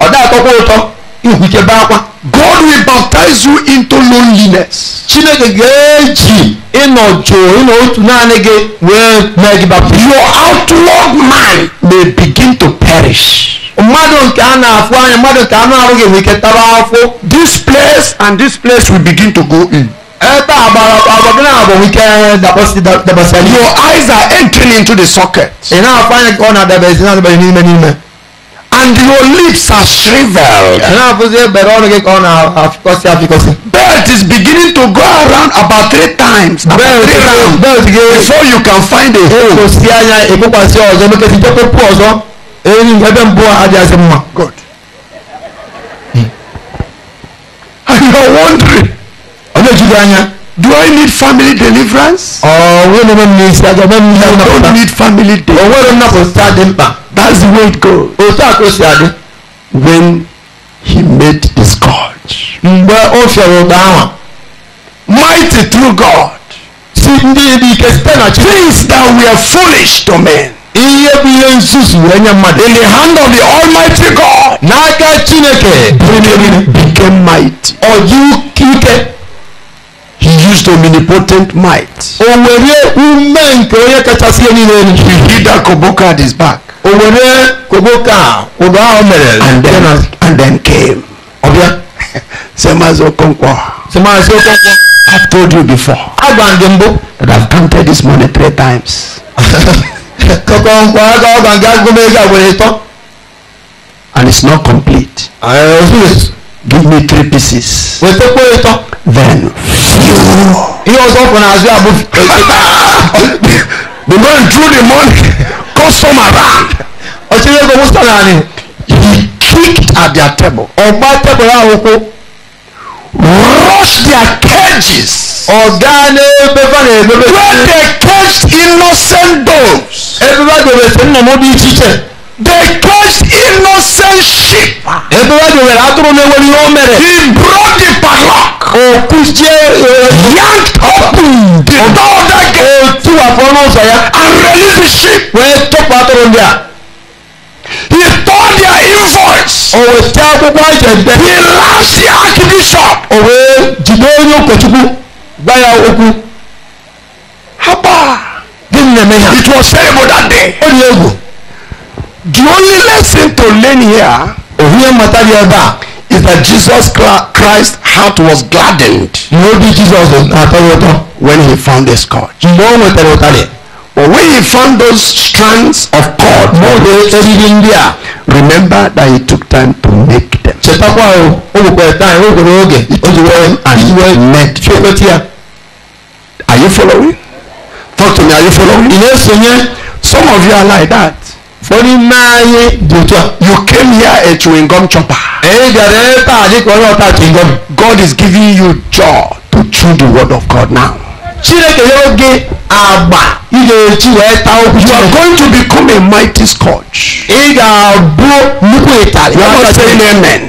ọ̀dà àtọ́kwa ụtọ ihujebakwa God will baptize you into loneliness. Chineke ga-eji ịnọ jụụ ịnọ otu naanị gị wee mee gị baptize. Your outward man may begin to perish. mmadụ nke a na-afụ anya mmadụ nke anụ arụ gị nwere ike tara afọ. This place and this place will begin to go in. Ebe agbara agba gị na-abụ nwike eh, dabasị dabasị. Your eyes are entering into the socket. Ị na-afụ anya ka ọ na-adabezi na-adabezi n'ime n'ime. and your lips are shriveled. Belt is beginning to go around about three times. three rounds before you can find a hole. Good. And you are wondering. Do I need family deliverance? I don't need family deliverance. That's the way it goes. o When he made the scourge. o fịara ụda Mighty through God. Things that were foolish to men. In the hand of the almighty God. N'aka Chineke. Became, became Or you ike. He used omnipotent might. Or were ume nke onye kachasị ihe He hid Akoboko at his back. owurɛ kogo kaa odo a ɔmɛrɛ and then and then came ɔbia sɛmaso kɔnkɔ sɛmaso kɔnkɔ i told you before agbandembo that i counted this money three times kɔkɔ nkɔ aka ɔgbanga agome ɛga wele tɔ and it's not complete give me three pieces wete kpo etɔ then iye ɔsɔ fana azu abu the man drew the money customer around. ọ̀sẹ̀ yóò gbé mustard náà ni he kicked at their table. ọ̀gbá table náà wọ́n kó. rush their cages. ọ̀gá ni pépà ni pépà. where they caged innocent dogs. ẹgbẹ́ bá gbèrè sínú ọmọ bíi jíjẹ. they caged innocent sheep. ẹgbẹ́ bá gbèrè látúrò ní ewé ni wọ́n mẹ̀rẹ̀. he brought the padlock. Okuchie young open the door that gate. Otu afọlọsọ ya. And the relationship. Wee tọpụ atụrụ ndị a. He turned their invoice. O wee tee akwụkwọ ajende. He laughs the archbishop. O wee jide onye ụkọchukwu gwa ya okwu. Haba. Gịnị na-eme ha? It was terrible that day. O dị egwu. The only lesson to learn here. Ohi mmata dị ebe a is that Jesus Christ heart was gladdened. ní ó bí jesus àtọwọ́ tán. when he found a scourge. mgbe o nwetara ụtarị. but when he found those strands of cord. n'oge eriri ndị a. remember that he took time to make them. chetakwa o oh, nwekwara time oh, nwere oge oh, wee iji wee make chekwetị ya. are you following? talk to me are you following? ị na-esonye some of you are like that oni naaye dotwa. you came here a chewing gum chopper. èyí jàdé ta àdìpọ̀ náà ta chewing gum. God is giving you jaw to chew the word of God now. Chineke yóò gé àgbà ilé etí rẹ̀ ta okùn. you are going to become a mighty scotch. ị ga-abụ nnukwu ịtarị. you are not saying amen.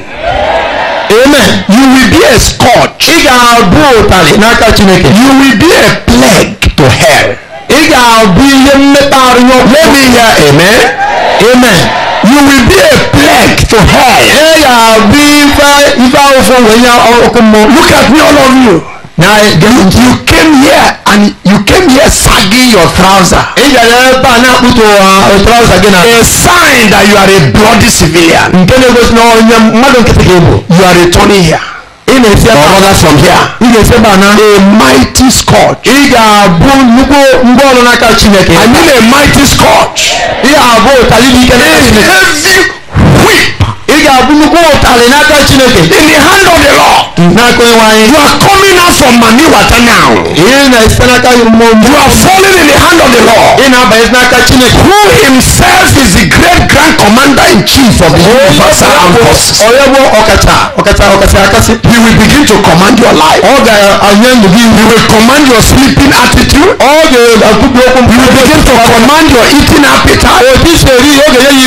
amen. you will be a scotch. ị ga-abụ ụtarị n'aka Chineke. you will be a plague to hell ị ga-abụ ihe mmekparụ let me hear amen amen you will be a plague to hell ị ga-abụ ife ife ahụfụ wee nye ọkụ mmụọ look at me all of you now you came here and you came here sagging your trouser. ị bịara ebe a na-akpụtụ uh, trouser gị a sign that you are a bloody civilian. nke na-egosi na onye mmadụ nkịtị gị you are returning here. ị a from here i a mighty scotch i need a mighty scotch ị whip in the hand of the Lord, you are coming out from mani water now you are falling in the hand of the Lord. who himself is the great grand commander in chief of the universal forces he will begin to command your life ọ ga-anye ndụ he will command your sleeping attitude he will begin to command your eating appetite He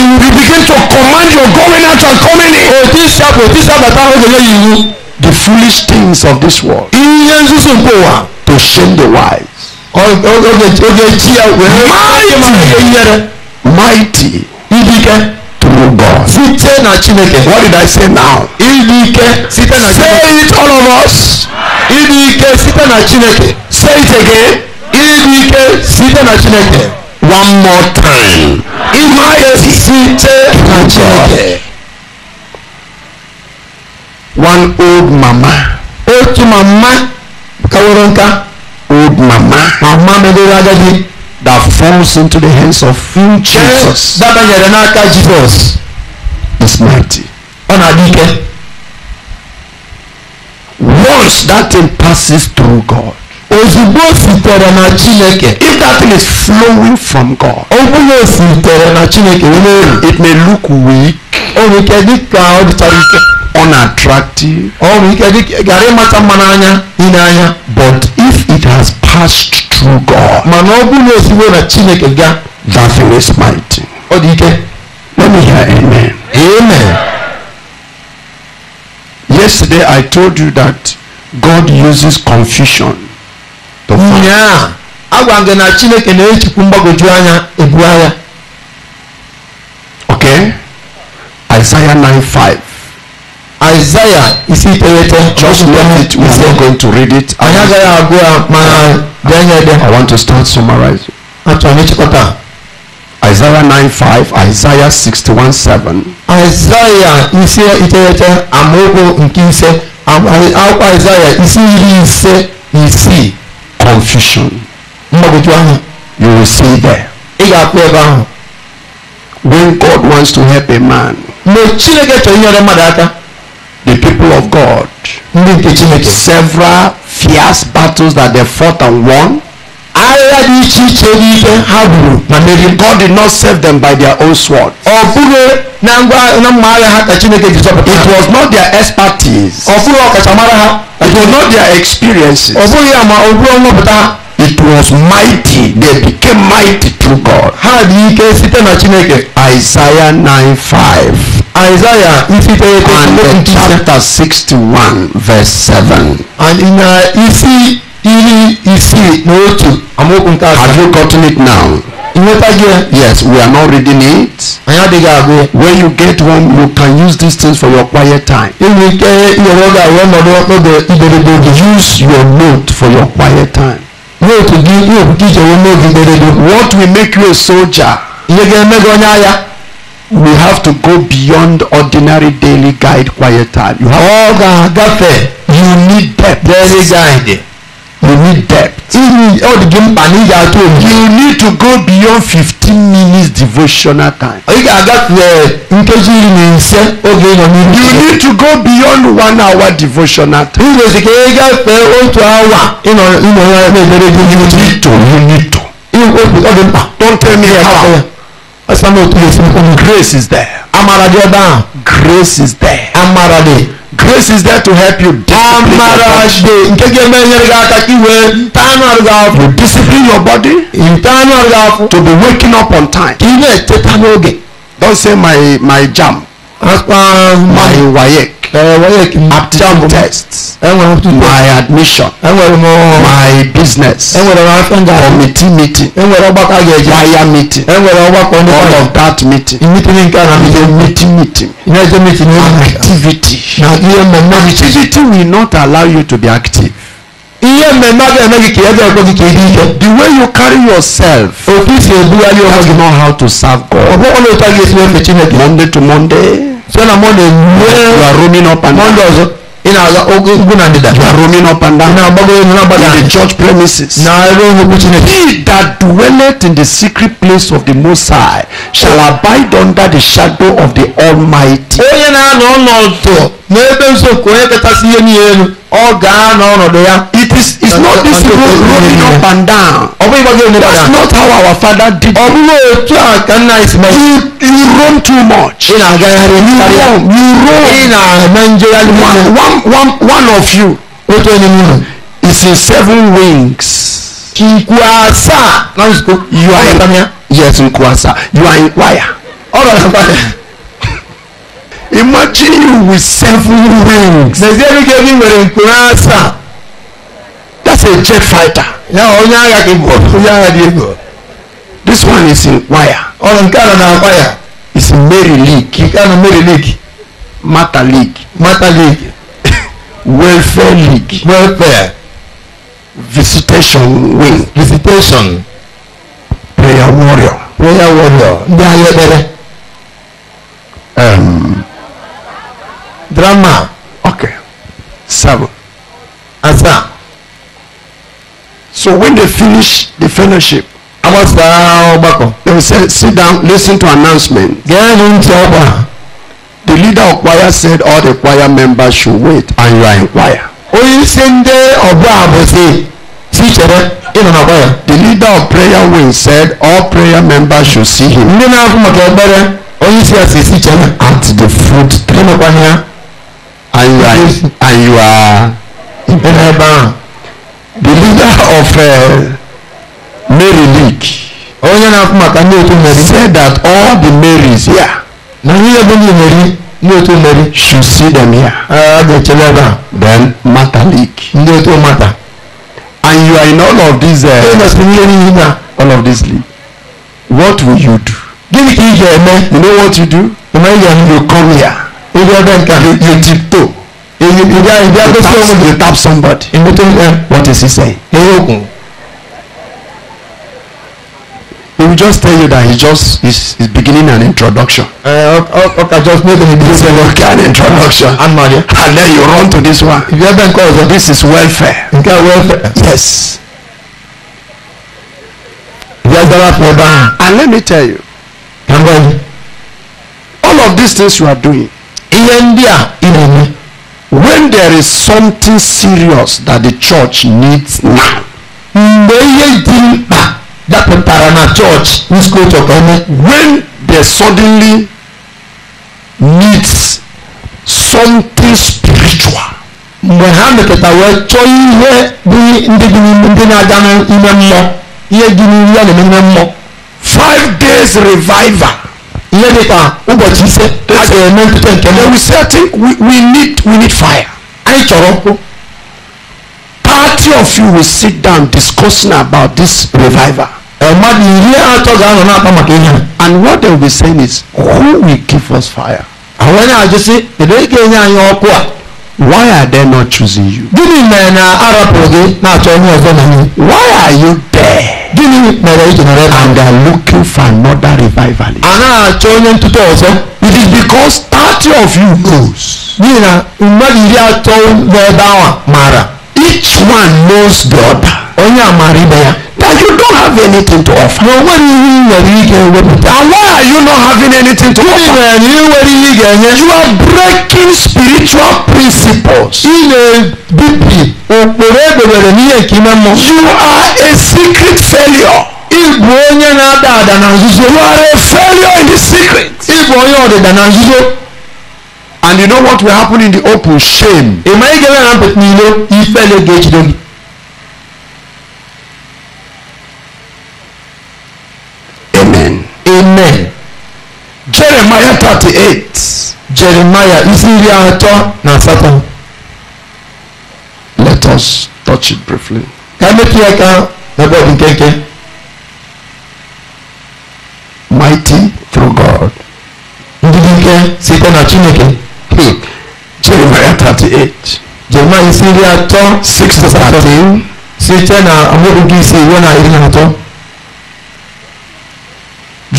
will begin to command your going out of coming in. òtí sàpò òtí sàpò táwọn òjò lóyìn yìí. the foolish things of this world. iye sísun kò wá. to shame the wise. oge oge tí a wẹ̀rẹ̀. mighty mighty. ibi kẹ́. through God. site na Chineke. what did I say now. ibi kẹ́ site na Chineke. say it all of us. ibi kẹ́ site na Chineke. say it again. ibi kẹ́ site na Chineke. one more time. ibi kẹ́ site na Chineke one old mama. otu mama kawere nka. old mama. mama meriri agadi. that falls into the hands of Jesus. dabanyere n'aka Jesus. is mighty. ọ na-adị ike. once that thing passes through God. ozugbo sitere na chineke. if that thing is flowing from God. ogbulo sitere na chineke na-eru. it may look weak. o nwere ike dị ka ọ dịchara ike. unattractive oh, but if it has passed through God that thing oh, is mighty let me hear amen amen yesterday I told you that God uses confusion to find agwa gị na chineke na-ejikwu mgbagwoju anya ebu agha okay isaiah 9 5 Isaiah isi iterete. Just left it. We are going to read it. I want to start summarizing. Isaiah 9:5, Isaiah 61:7. Isaiah is iterete amaokwu nke ise akwụkwọ Isaiah isi iri ise na isii. Confusion. Mgbagwoju You will see there. When God wants to help a man. people of God several fierce battles that they fought and won. Agha dị iche iche n'ihe ha gburu ma meriri. God did not save them by their own sword. Ọ bụghị na ngwa na mma agha ha ka Chineke ji zọpụta. It was not their expertise. Ọ bụghị ọkachamara ha. It was not their experiences. Ọ bụghị ama ọ bụghị It was mighty. They became mighty through God. Ha dị ike site na Chineke. Isaiah five. Isaiah Ifiteye Kotunlogun ti sẹ́. And chapter sixty one verse seven. And in uh, Ifi Iri Ifi N'otu Amokun ta. Have you gotten it now? Ìwétajẹ. Yes, we are now reading it. Àyà dìgbà àgbo. When you get one, you can use these things for your quiet time. Èmi jẹ́ ìrọ̀lọ́dà àwọn ọmọdé ọ̀pẹ̀bẹ̀ ìgbèrègbè. Use your note for your quiet time. Note tún jí yóò tún jíjẹ owó What will make you a soldier? Ìyẹ́gẹ́ mẹ́gbẹ́ ọ̀nyá ya. we have to go beyond ordinary daily guide quiet time. You have agafe. You need depth. Daily guide. You need depth. You need to go beyond 15 minutes devotional time. You need to go beyond one hour devotional time. You need to. You need to. Don't tell me how. I'm not speaking, grace is there. Amara de ba. Grace is there. Amara de. Grace is there to help you. Amara de. Nke ge me nyere ga ka ki we. Tanar ga to discipline your body. In tanar ga to be waking up on time. Don't say my my jam. my WAEC eh, eh, aptitude test my admission eh, my business committee meeting choir meeting all of that meeting meeting meeting meeting activity activity will not allow you to be active. the way you carry yourself. otu isi ebugharị onwe gị. that's not how to serve God. ọ Monday to Monday. site na Monday you are roaming up and down. Monday you are roaming up and down. in the church premises. he that dwelleth in the secret place of the Most High shall abide under the shadow of the Almighty this is not this road rolling up and down. ọbẹ̀ ìbọn yóò ní that's not how our father did Oh it. ọbúrò ètò àkànná ìsìnmẹ́. you you roam too much. ìnà àgàyàrè you kárí. you roam you roam. ìnà nàìjíríà ní wọn. one one of you. ó tó is in seven wings. nkwasa. náà sọ you are in yes in nkwasa you are in wire. All right, *laughs* imagine you with seven wings. nàìjíríà ní kébí wèrè nkwasa. a jet fighter. Ya onye agha gị bụ onye agha dị egwu. This one is in wire. Ọ nke a na wire. It's in Mary League. Nke a na Mary League. Mata League. Mata League. *laughs* Welfare League. Welfare. Visitation wing. Visitation. Prayer warrior. Prayer warrior. Ndị agha ekpere. Um, Drama. So when they finish the fellowship, they will say, sit down, listen to announcement. The leader of choir said all the choir members should wait and you are in choir. The leader of prayer wing said all prayer members should see him. At the fruit tree. And you are, and you are the leader of uh, Mary League onye na-akpọ maka ndị otu Mary said that all the Marys here na ihe bụ ndị Mary ndị otu Mary should see them here a ga-echele ebe a then Mata League ndị otu Mata, and you are in all of these uh, all of this league what will you do gịnị ka ị ga-eme you know what you do you come here you, you tiptoe If you, if you, you, you, tap, you tap somebody. In between them, what is he saying? He will just tell you that he just is, is beginning an introduction. Uh, okay, maybe just make an introduction. Okay, an introduction. and then you run to this one. If you have been called, this is welfare. Okay, welfare. Yes. And let me tell you, all of these things you are doing, in India, in. India. when there is something serious that the church needs now. mgbe ihe dị mkpa dapụtara na chọọchị nzukọ when they suddenly needs something spiritual. mgbe ha mepụta wee chọọ ihe bụ ndị dị n'ime ndị na-aga n'ime mmụọ ihe dị n'ime ya na-eme mmụọ. five days revival nípa ụbọchị ise a ga-eme ntụtụ nke mbụ. we say think we, we need we need fire. anyị chọrọ ọkụ. party of you will sit down discussing about this revival. mmadụ iri atọ ga-anọ na-akpa maka ihe and what they will be saying is who will give us fire. àwọn onye ajụ sị kedu onye ga-enye anyị ọkụ a. why are they not choosing you. gịnị mere na arapụrụ gị na-achọ onye ọzọ na anyị. why are you there gịnị mere iji nọrọ ebe and they are looking for another revivalist. a na-achọ onye ntụtụ ọzọ. it is because thirty of you knows. n'ihi na mmadụ iri atọ n'ebe ahụ Mara. each one knows the other. onye a maara ibe ya. that you don't have anything to offer. and why are you not having anything to offer? you are breaking spiritual principles. you are a secret failure. you are a failure in the secret. and you know what will happen in the open shame. ị ị ga-eme na mpụta If I ga-ejide amen jeremiah thirty eight jeremiah isi iri atọ na asatọ let us touch it briefly ka mepee ya ka n'ebe ọ dị nkenke mighty through god ndị dị ike site na chineke hmm. jeremiah thirty eight jeremiah isi iri atọ six to thirteen site na amaokwu nke ise iwe na iri na atọ.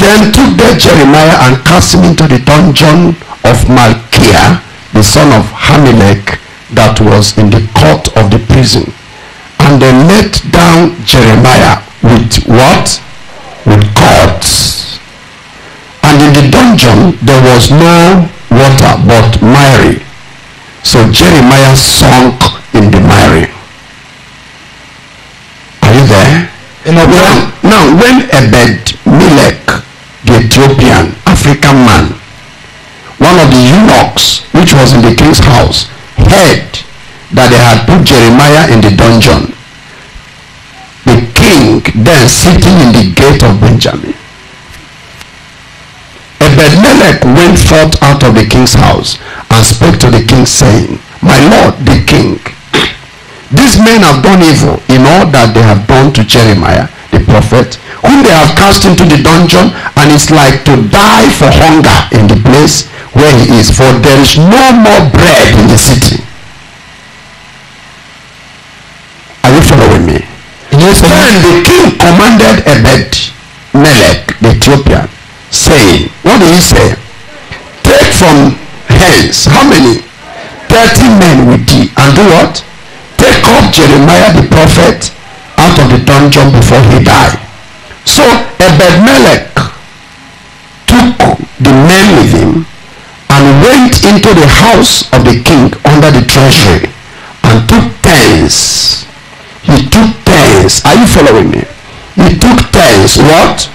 Then took they Jeremiah and cast him into the dungeon of Malchiah, the son of Hamilek, that was in the court of the prison. And they let down Jeremiah with what? With cords. And in the dungeon there was no water but miry. So Jeremiah sunk in the miry. Are you there? Now, now when Ebed Melech the Ethiopian African man, one of the eunuchs which was in the king's house, heard that they had put Jeremiah in the dungeon. The king then sitting in the gate of Benjamin. Ebedmelech went forth out of the king's house and spoke to the king saying, My lord, the king, these men have done evil in all that they have done to Jeremiah the prophet, whom they have cast into the dungeon, and it's like to die for hunger in the place where he is, for there is no more bread in the city. Are you following me? Yes, Then the king commanded Ebed Melek the Ethiopian, saying, What did he say? Take from hence how many? Thirty men with thee, and do what? Take up Jeremiah the prophet out of the dungeon before he died. So Ebed-Melech took the men with him and went into the house of the king under the treasury and took pence. He took pence. Are you following me? He took pence. What?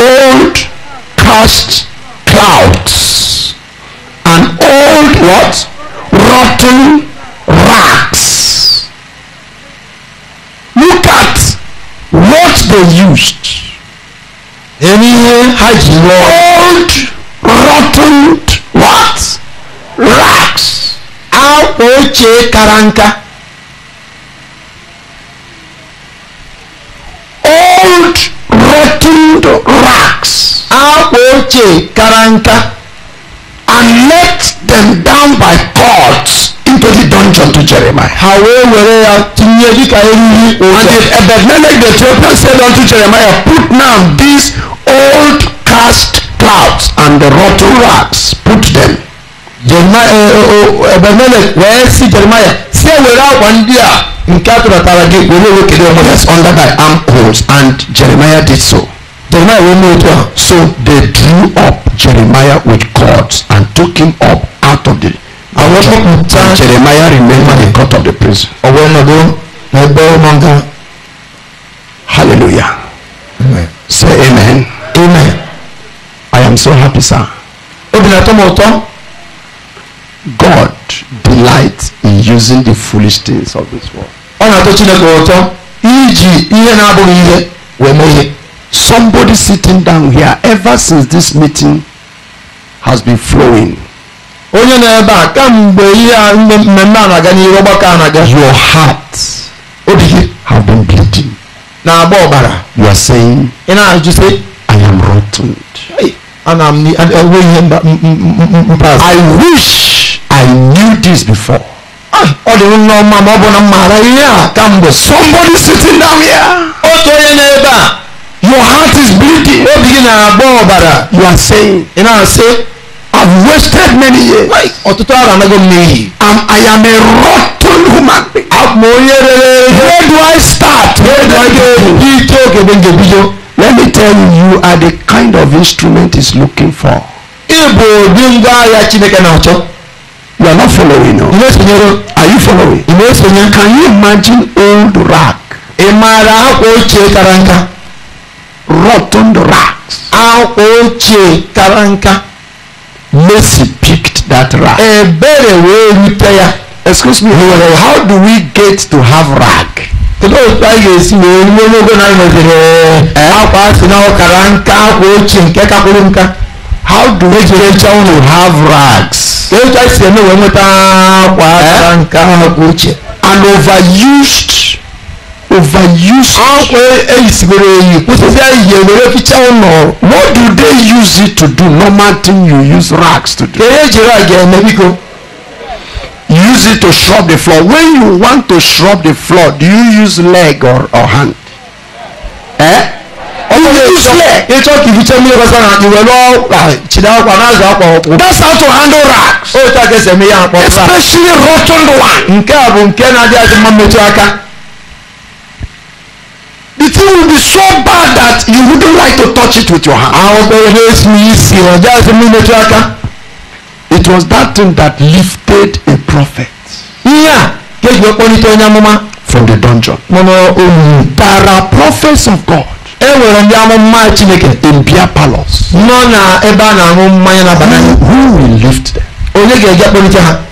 Old cast clouds. and old what? Rotten rats. they used. Any yẹn hajj Old rotten what? rocks? A ochie kara nka. Old rotten rocks. A ochie kara nka. And let them down by cords. Every dungeon to Jeremiah. ha wee were ya tinye dịka eriri ụzọ and the Ebedmelech the Ethiopian said unto Jeremiah put now these old cast clouds and the rotten rags put them. Ebedmelech wee sị Jeremiah si ewere akwa ndị a nke a gị were ewekere onwe ya under thy arm poles and Jeremiah did so. Jeremiah wee mee otu a so they drew up Jeremiah with cords and took him up out of the I was tó kù tán. Jeremiah remained at the court of the prison. ọ̀wọ́ ẹ̀nàdó na ẹgbẹ́ ọmọga. hallelujah. say amen. amen. I am so happy sir. obìnrin àtọ́ mọ̀ God delights in using the foolish things of this world. ọ̀nà tó Chineke ọ̀tọ́ iji ihe na-abụghị ihe wee mee ihe. Somebody sitting down here ever since this meeting has been flowing. onye na-ebe a kamgbe ihe a mmemme a na-aga n'ihu ọgbakọ a na-aga your heart obi gị have been bleeding na-agba ọbara you are saying ị na-ajụ sị I am rotten ana m enwe ihe mpaghara I wish I knew this before ah, ọ dị nneọma ma ọ bụ na mmaara ihe a kamgbe somebody sitting down here otu onye na-ebe a your heart is bleeding obi gị na-agba ọbara you are saying ị na-asị have wasted many years. ọtụtụ arọ anago m n'iyi. and I am a rotten human. abụ onye rere. where do I start? where do I go? ike oge bụ nje bido. let me tell you you are the kind of instrument he is looking for. ịbụ ụdị ngwa agha Chineke na you are not following now. na-esonyere. are you following? ị na can you imagine old rag? ị maara akwa ochie kara nka. rotten rags. akwa ochie kara nka. Mercy picked that rag. Ẹ̀bẹ̀rẹ̀ wo rí prayer. Excuse me, how do we get to have rag? Kedụ a ga-esi wee ruo n'ogo na nweziri akwa si na ọkara nka akwa ochie nke kakwuru nka. How do we get to have rags? Kedụ a si eme wee nweta akwa nka akwa ochie. An overused overuse it. What do they use it to do? Normal thing you use rags to do. use it to scrub the floor. When you want to scrub the floor, do you use leg or, or hand? Eh? Oh, ah, That's how to handle rags. Oh, Especially rotten ones the thing will be so bad that you wouldn't like to touch it with your hand. I'll ẹgbẹ́ me. yìí sì ọjà sí mi lójú aka. it was that thing that lifted a prophet. Yeah, kéjì ọ̀pọ̀ ní tó ń yá from the dungeon. no, olùyìn. there oh, mm. are prophets of God. e nwere ndị amụma chineke. in beer palace. nọ na ebe eh, a na-aṅụ mmanya n'abalị. who will lift them. onye ga-eji akpọrịta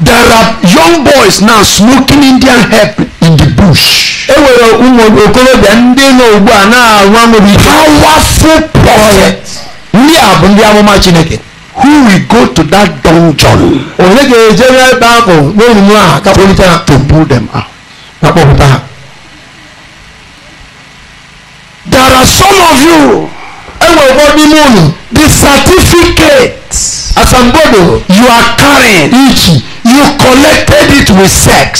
there are young boys now smoking Indian hemp in the bush. e nwere ụmụ okorobịa ndị nọ ugbu a na-anwa nwere powerful prophet. ndị a bụ ndị amụma chineke. who will go to that dungeon. onye ga-eje n'ebe ahụ n'olulu a kapụlite ha. to pull them out. ka kpọpụta ha. there are some of you. enwere ụfọdụ n'ime unu. the certificate. asambodo. you are carrying. ichi you collected it with sex.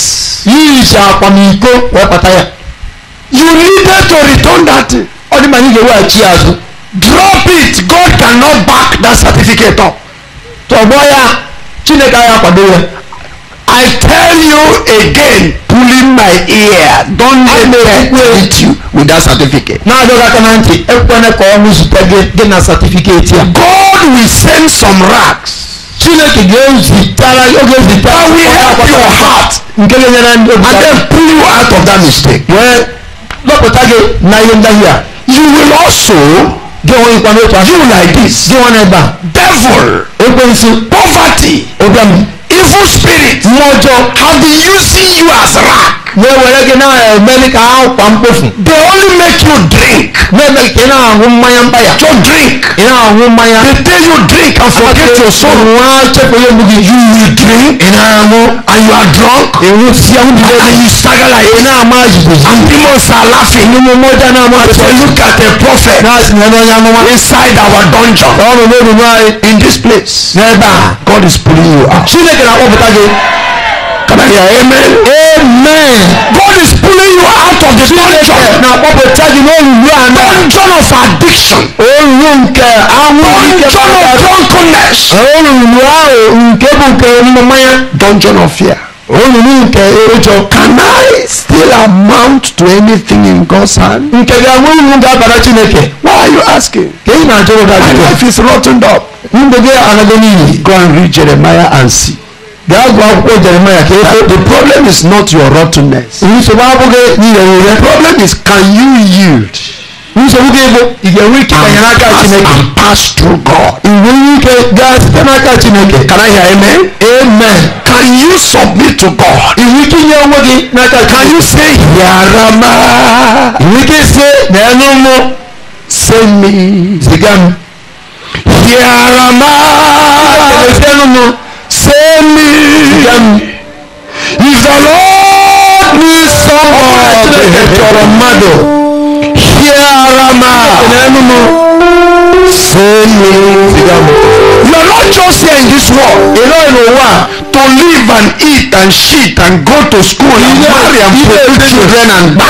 yìí ṣe àpamìkó wọ́n pàtàyà. you needed to return that. ọdún màá ní ìyẹ̀wò àti drop it God cannot back that certificate up. tọ̀gbọ́yà Chineke ayé àpàdé rẹ̀. I tell you again pulling my ear don tell me treat you with that certificate. náà ló dákẹ́ náà ntì ẹ kọ́ ẹ kọ́ ọ́ ní zùtẹ́gẹ́ dé na certificate yà. God will send some rags. But we ezitara your heart and then pull you out of that mistake Well, lọpụta gị na ihe you will also gị onwe ikwa n'otu a you like this gị nwa n'ebe devil poverty evil spirit mmụọ have been using you as rat ne wɛrɛ kɛ n'a yɛ mɛli k'a kwan po fun. they only make you drink. ne bɛ kɛ n'a ko mayaba ya. to drink. i n'a ko maya. they tell you drink and forget your soul. wa cɛ ko ye mugi. you drink. i n'a ko and you are drunk. ewu fiyawu bi dɛ. and you sagala ye. i n'a ma jigi. and demons are laughing. ni mo mɔ ja n'a ma. so look at a prophet. n'a sinɛ dɔ ɲa mɔ. inside our dungeon. ɔn bɛ bɛ bɛ in this place. ne ba God is pulling you out. sinɛ kɛra o bɛ taa kɛ amen? Amen. God is pulling you out of this dungeon. Na gbogbo tẹ́jú ní olùlú àná. Dungeon of addiction. Olùlú nke àwọn ike bàbá. Dungeon of drunkenness. Olùlú ahụ nke bụ nke mmanya. Dungeon of fear. Olùlú nke erojọ. Can I still amount to anything in God's hand? Nke gị àwọn ìlú ga-abara Chineke. Why are you asking? Ka ị na-ajụ ụda jụrụ. My life is rotten up. Ndụ gị anaghị Go and read Jeremiah and see. That's why Paul kì í fẹ́. The problem is not your rottenness. Ìṣòwò abúlé ìyẹ̀wò rẹ̀. The problem is can you yield? Ìṣòwò kébò ìyẹ̀wò ike ẹ̀yẹ̀rẹ̀ aka Chineke. And pass through God. Ìwé ike gas ẹ̀yẹ̀rẹ̀ aka Chineke. Can I hear amen? Amen. Can you submit to God? Ìwé ike yẹ owó gị n'aka Chineke. Can you say yàrá máa? Ìwé ike ṣe n'ẹnu mú. Send me. Ziga m. Yàrá máa. Ìwé ike ṣe n'ẹnu send me. If the Lord needs someone, here am I. Send me. You are not just here in this world. Alone in one to live and eat and shit and go to school and marry and produce children and buy.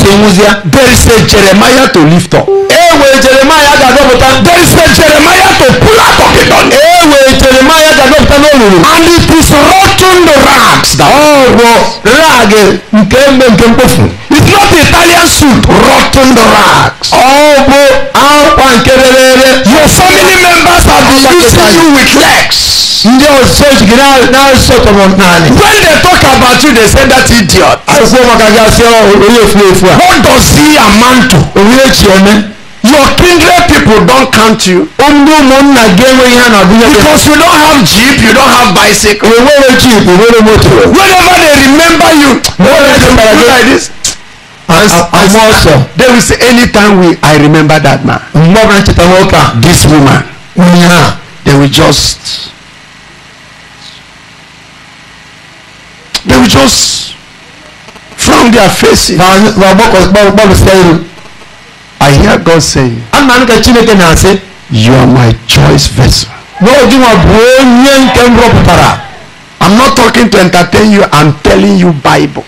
There is a Jeremiah to lift up. There is a Jeremiah a pillar of the dawn. Ewe Jeremiah ga-abịapụta n'olulu. And it is rotten the rags. Oh, bụ rag eh, nke mbe nke mkpofu. It's not Italian suit. Rotten the rags. Oh, bro, akwa nke rere Your family members are using you with legs. ndị ọzọ ejighi na-asọtọrọ when they talk about you they say that idiot. akwụkwọ maka gasị onye oh, efu efu a. what does he amount to? A echi man your kindred people don't count you. because you don't have jeep you don't have bicycle. whenever they remember you. whenever they remember you like this. I'm also. there is any time we I remember that man. This woman. Onye They will just. They will just frown their faces. I hear God saying. Ana nke Chineke na-asị. You are my choice vessel. N'oge nwa bụ onye nke m rọpụtara. I'm not talking to entertain you, I'm telling you Bible.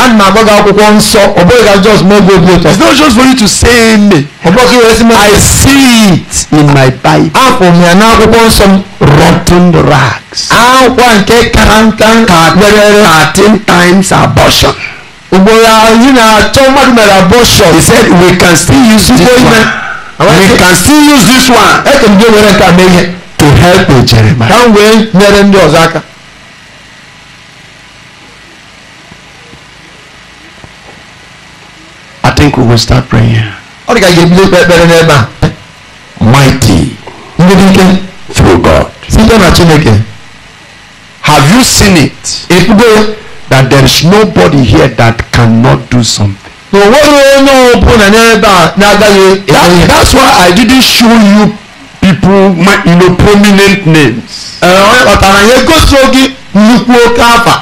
Ana m agbago akwụkwọ nsọ, ọ bụghị ka just mee gị obi ụtọ. It's not just for you to say me. Ọ bụghị ka iwesi mee. I see it in my Bible. Afọ m ya n'akwụkwọ nsọ m. Rotten rags. Akwa nke kara nka. Ka dere thirteen times abortion. He said we can still use this one. We can still use this one. To help you, Jeremiah. I think we will start praying. Mighty through God. Have you seen it? that there is nobody here that cannot do something. That, that's why I didn't show you people my you know, prominent names. Uh-huh.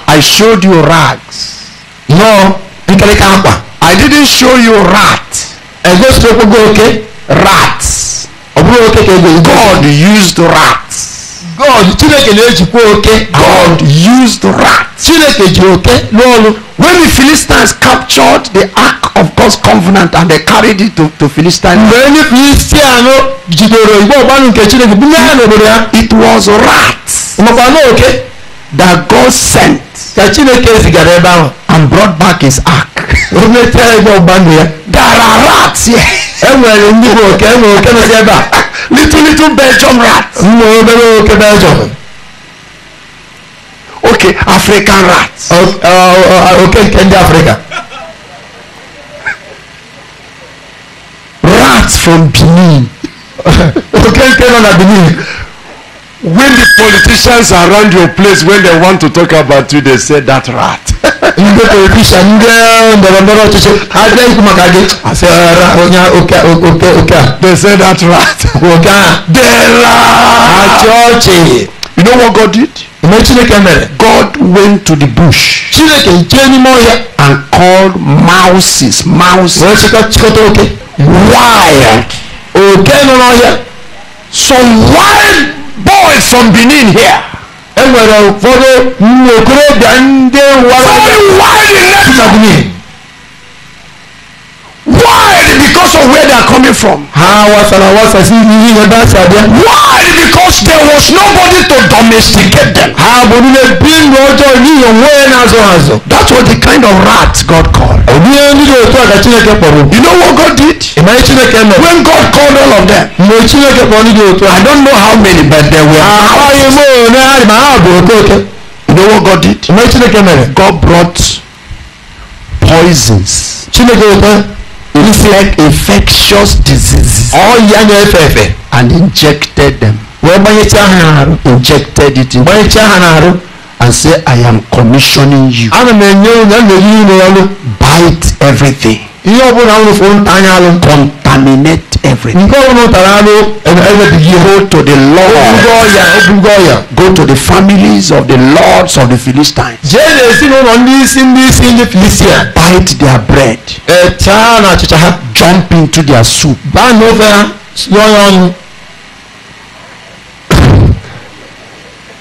I showed you rags. No, I didn't show you rat. Rats. God used rats. God Chineke na-ejikwa oke. God used the rat. Chineke ji oke n'ọrụ. When the Philistines captured the ark of God's covenant and they carried it to, to Philistine. Mgbe ndị Filistian jidoro igbe ọgbanụ nke Chineke bunye ya n'obodo ya. It was rats. Makwa n'oke. That God sent. Ka Chineke zigara ebe ahụ. And brought back his ark. O metara igbe ọgbanụ ya. There are rats here. E nwere ndị oke e nwere oke nọ ebe a little little Belgium rats. no, no, oke Belgium. Okay, African rats. Uh, okay, Kenya, Africa. Rats from Benin. Okay, *laughs* nke na Benin. when the politicians around your place when they want to talk about you they say that rat ndị politician ndị ndọrọ ndọrọ ọchịchị ha bịa ikwu maka gị asị ara onye oke oke oke a they say that rat oke a dera achị ọchị you know what god did ime chineke mere god went to the bush chineke jee n'ime ọhịa and called mouses mouses wee chịkọta oke wild oke nọ n'ọhịa some wild boys from benin here enwere ụfọdụ nwokorobịa ndị wara wide net of me because of where they are coming from. Why? Because there was nobody to domesticate them. That was the kind of rat God called. Oh, you know what God did? When God called all of them. I don't know how many but there were. You know what God did? God brought poisons. looks like infectious diseases. ọ̀ya ni ẹ̀fẹ̀ẹ̀fẹ̀. and injected them. wọ́n bá yẹ kí hàn án. injected it. in. yẹ kí a hàn án. and say, I am commissioning you. Bite everything. Contaminate everything. Go to the Lord. Go to the families of the lords of the Philistines. Bite their bread. Jump into their soup.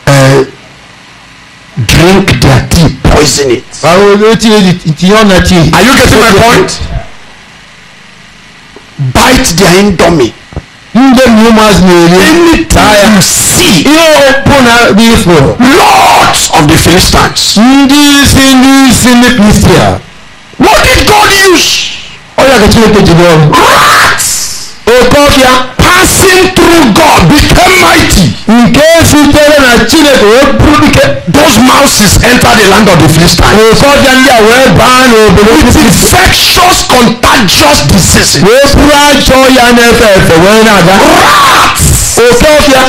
uh, drink their tea poison it. báwo ló ti ti ọ̀nà tea. are you getting my point? bite their indomie. Ndem humans may anytime you see open before lords of the Philistines. Ndị si ndị si ndị Kristian. What did God use? Ọ ya kachiri kejì bọọlụ. Rats. Oke ọfịa passing through God became mighty. nke sitere na Chineke wee bụrụ dike. those mouses entered the land of the Philistines. ụfọdụ ndị a wee baa n'obodo ndị infectious contagious disease. wee bụrụ ajọ ya na-efe wee na-aga. rats. oke ọfịa.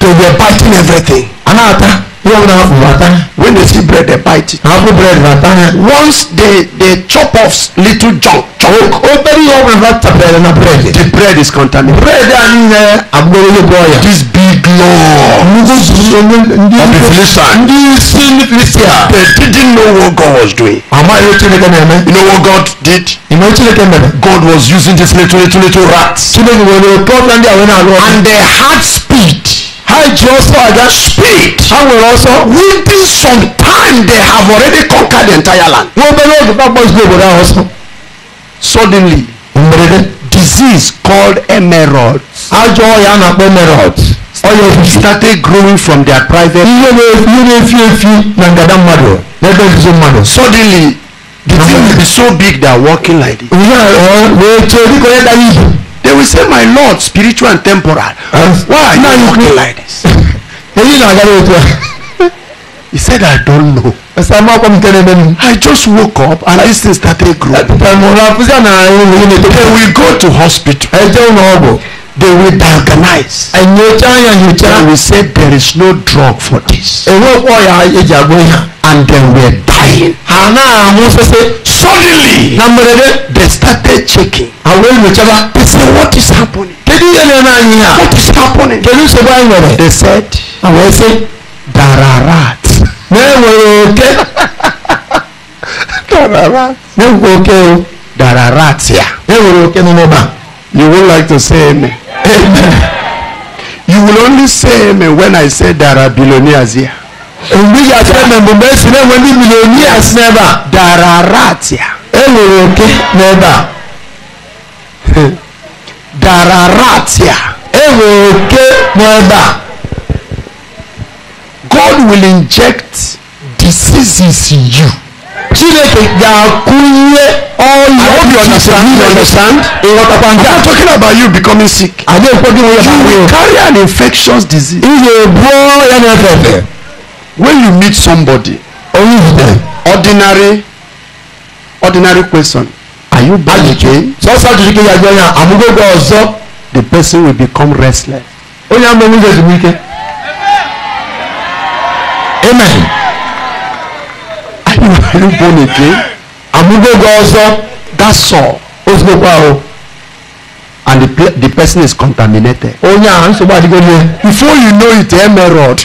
they were biting everything. a na-ata. ihe ọ na-afụ ata they see bread they bite it. àpò bread na tán once they they chop off little junk. chunk. ó bẹ́ẹ̀ ni wọ́n máa ta bread na bread. the bread is contaminated. bread a ní yẹn agbóyè bọ́ọ̀yà. this big law. ndí ndí of the philistine. ndí sin christian. they didn't know what God was doing. àmọ́ ayé tí ne kẹ́ mẹ́ you know what God did. ìmọ̀ tí ne kẹ́ mẹ́ God was using this little little little rat. tí ne kẹ́ mẹ́ mẹ́ problem àwọn ènìyàn and they had speed. I just saw that speed. Àwọn èrò sọ. Within some time they have already conquered the entire land. Wọ́n bẹ̀rẹ̀ ògùn bá gbọ́dọ̀ ìgbòho náà sọ. Suddenly. Mèrèdè. Disease called emerald. Àjọ ọ̀yà náà pé emerald. Ọyọ fi started growing from their private. Iye na iye na efi efi na ngada mmadụ. N'ebe nzuzo mmadụ. Suddenly the thing be so big they are walking like this. Ìyá ọ̀ wee tó dịka onye dara ibu they will say my lord spiritual and temporal As why are you talking like this. *laughs* èyí náà yára ètò ẹ. he said i don't know. ẹsẹ̀ máa kọ́ mi tẹ́lẹ̀ mẹ́nu. i just woke up and this thing started growing. ẹ̀mọ̀ra fúnṣẹ́ náà ń wọlé ní ètò. they will go to hospital. ẹ jẹ́ òun ọ̀bọ̀. they will diagnose. ẹ̀yẹ̀já ẹ̀yẹ̀já. they will say there is no drug for this. èrò ọ̀pọ̀ ya ẹ̀jẹ̀ àgbọ̀nyà. and they were dying. àná àwọn sẹ́sẹ́ suddenly. Namerede. They started checking. Àwọn olùjọba. They said what is happening. Kedu yẹn lẹ́nu anyi a? What is happening? Kedu sọ́kọ́ anyi wẹ̀rẹ̀? They said. Àwọn ẹsẹ̀ dararat. Mẹ́wòrán òkè. Dararat. Mẹ́wòrán òkè o. Dararat yà. Mẹ́wòrán òkè nínú ọba. You would like to say amen. Amen. You will only say amen when I say there billionaires here ebi yàtọ̀ na mbembe si na wani milioni asi n'ebe a. darara atia. enwere oke n'ebe a. darara atia. enwere oke n'ebe a. God will inject diseases in you. Chineke ga-akụnye ọya understand. I'm not talking about you becoming sick. You will carry an infectious disease. Ị ga-ebu na-efe efe when you meet somebody. orí ìdè. ordinary ordinary question. are you born again. sọ́sọ́ jùlọ kí yàgbẹ́ yàn àmúgbógbó ọ̀zọ́. the person will become restless. ó yàn mọ́ nígbà ìdùnnú ike. amen. are you born again. àmúgbógbó ọ̀zọ́. that's all. ó sì gbogbo àwọn. and the, the person is contaminated. ó yàn à ń sọ bá àdìgbò yẹn. before you know it ẹ mẹ́rọ̀d.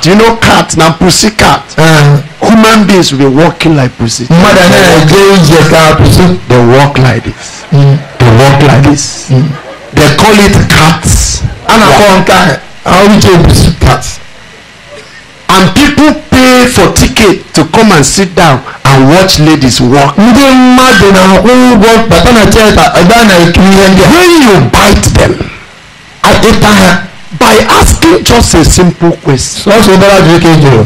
cat. Do you know cat na pussy cat. Uh, human beings will be walking like pussy. Mother anya na-eje ije pussy. they walk like this. Mm. they walk like this. Mm. they call it cats. a na-akpọ nke ahụ ahụ iche pussy cat. and people pay for ticket to come and sit down and watch ladies walk. ndị mmadụ na-akwụ ụgwọ bata na theatre ebe na-ekiri ihe ndị a. when you bite them. ịta ha. by asking just a simple question. Sọ́ọ̀sì ìbára ju kejì o.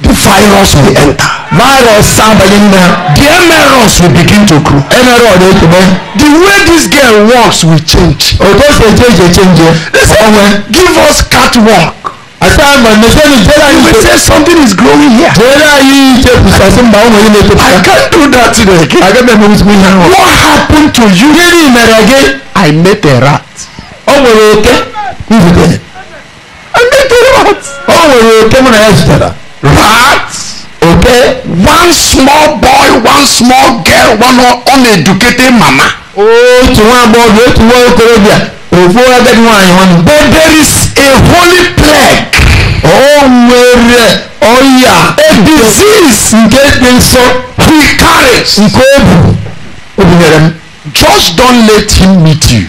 The virus will enter. Virus sábàlì The emerus will begin to grow. Emerus ọ̀dọ̀ ekele. The way this girl walks will change. Òtó oh, ṣe change eh, change. Ọ̀wẹ́. Eh. Oh, eh. Give us catwalk. Asaama neseni jera yi. You will say something is growing here. Jera yi ṣe kusasi mba I can't do that today again. Agẹ́bẹ̀ mi mi hàn wọ́n. What happened to you? Kí ni ìmẹ̀rẹ̀ I met a rat. Oh, nwere Okay? He's And they told what? Oh, you came on a Rats. Okay? One small boy, one small girl, one uneducated mama. Oh, to one boy, to one Colombia. Before I get one, but there is a holy plague. Oh, where? Oh, yeah. A disease. Get me so. He Just don't let him meet you.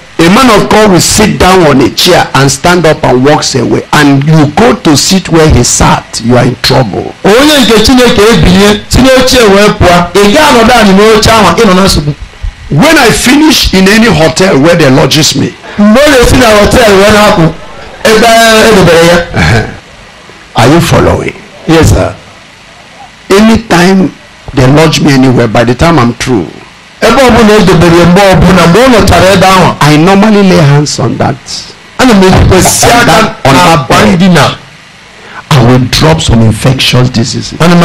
a man of God will sit down on a chair and stand up and walks away and you go to sit where he sat you are in trouble. onye nke chineke ebinye si n'oche wee pụọ ị gaa nọdụ anyị n'oche ahụ ị nọ na nsogbu. when i finish in any hotel where they lodges me. mgbe ọ na-esi na hotel wee na-apụ ebe edobere ya. are you following. yes sir. anytime they lodge me anywhere by the time i'm through ebe ọbụla edobere mgbe ọbụla mgbe ọ nọchara ebe ahụ i normally lay hands on that ana m ekwesị aka n'akwa ndina I will drop some infectious diseases. Ana m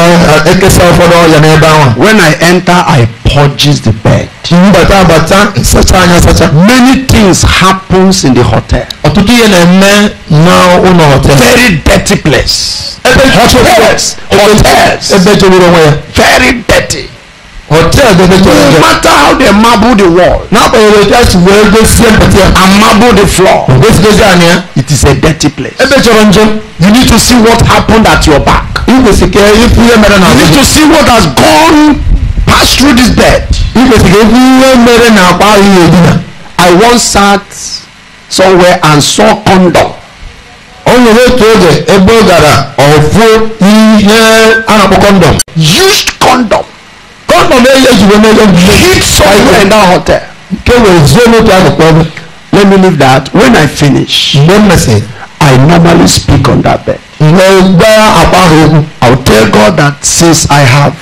ekesa ụfọdụ ọrịa n'ebe ahụ. When I enter, I purges the bed. Mbata abata nsacha anya sacha. Many things happens in the hotel. Ọtụtụ ihe na-eme n'ụlọ hotel. Very dirty place. Ebe hotels. Hotels. Ebe onwe ya. Very dirty hotel de bɛ tɔlɔ dɛ. no matter how they marble the wall. n'a ko yɛrɛ ja si wɛrɛ bɛ fiyɛ marble the floor. o bɛ fiyɛ jaa nin it is a dirty place. e bɛ jɔrɔ n you need to see what happened at your back. i ko se kɛ i you need to see what has gone pass through this bed. i ko se kɛ i fiyɛ mɛrɛ na k'a I once sat somewhere and saw condom. onye n'otu oge ebe ọ gara ọfụ ihe a condom. used condom. hit somewhere in that hotel. Let me leave that. When I finish, I normally speak on that bed. I'll tell God that since I have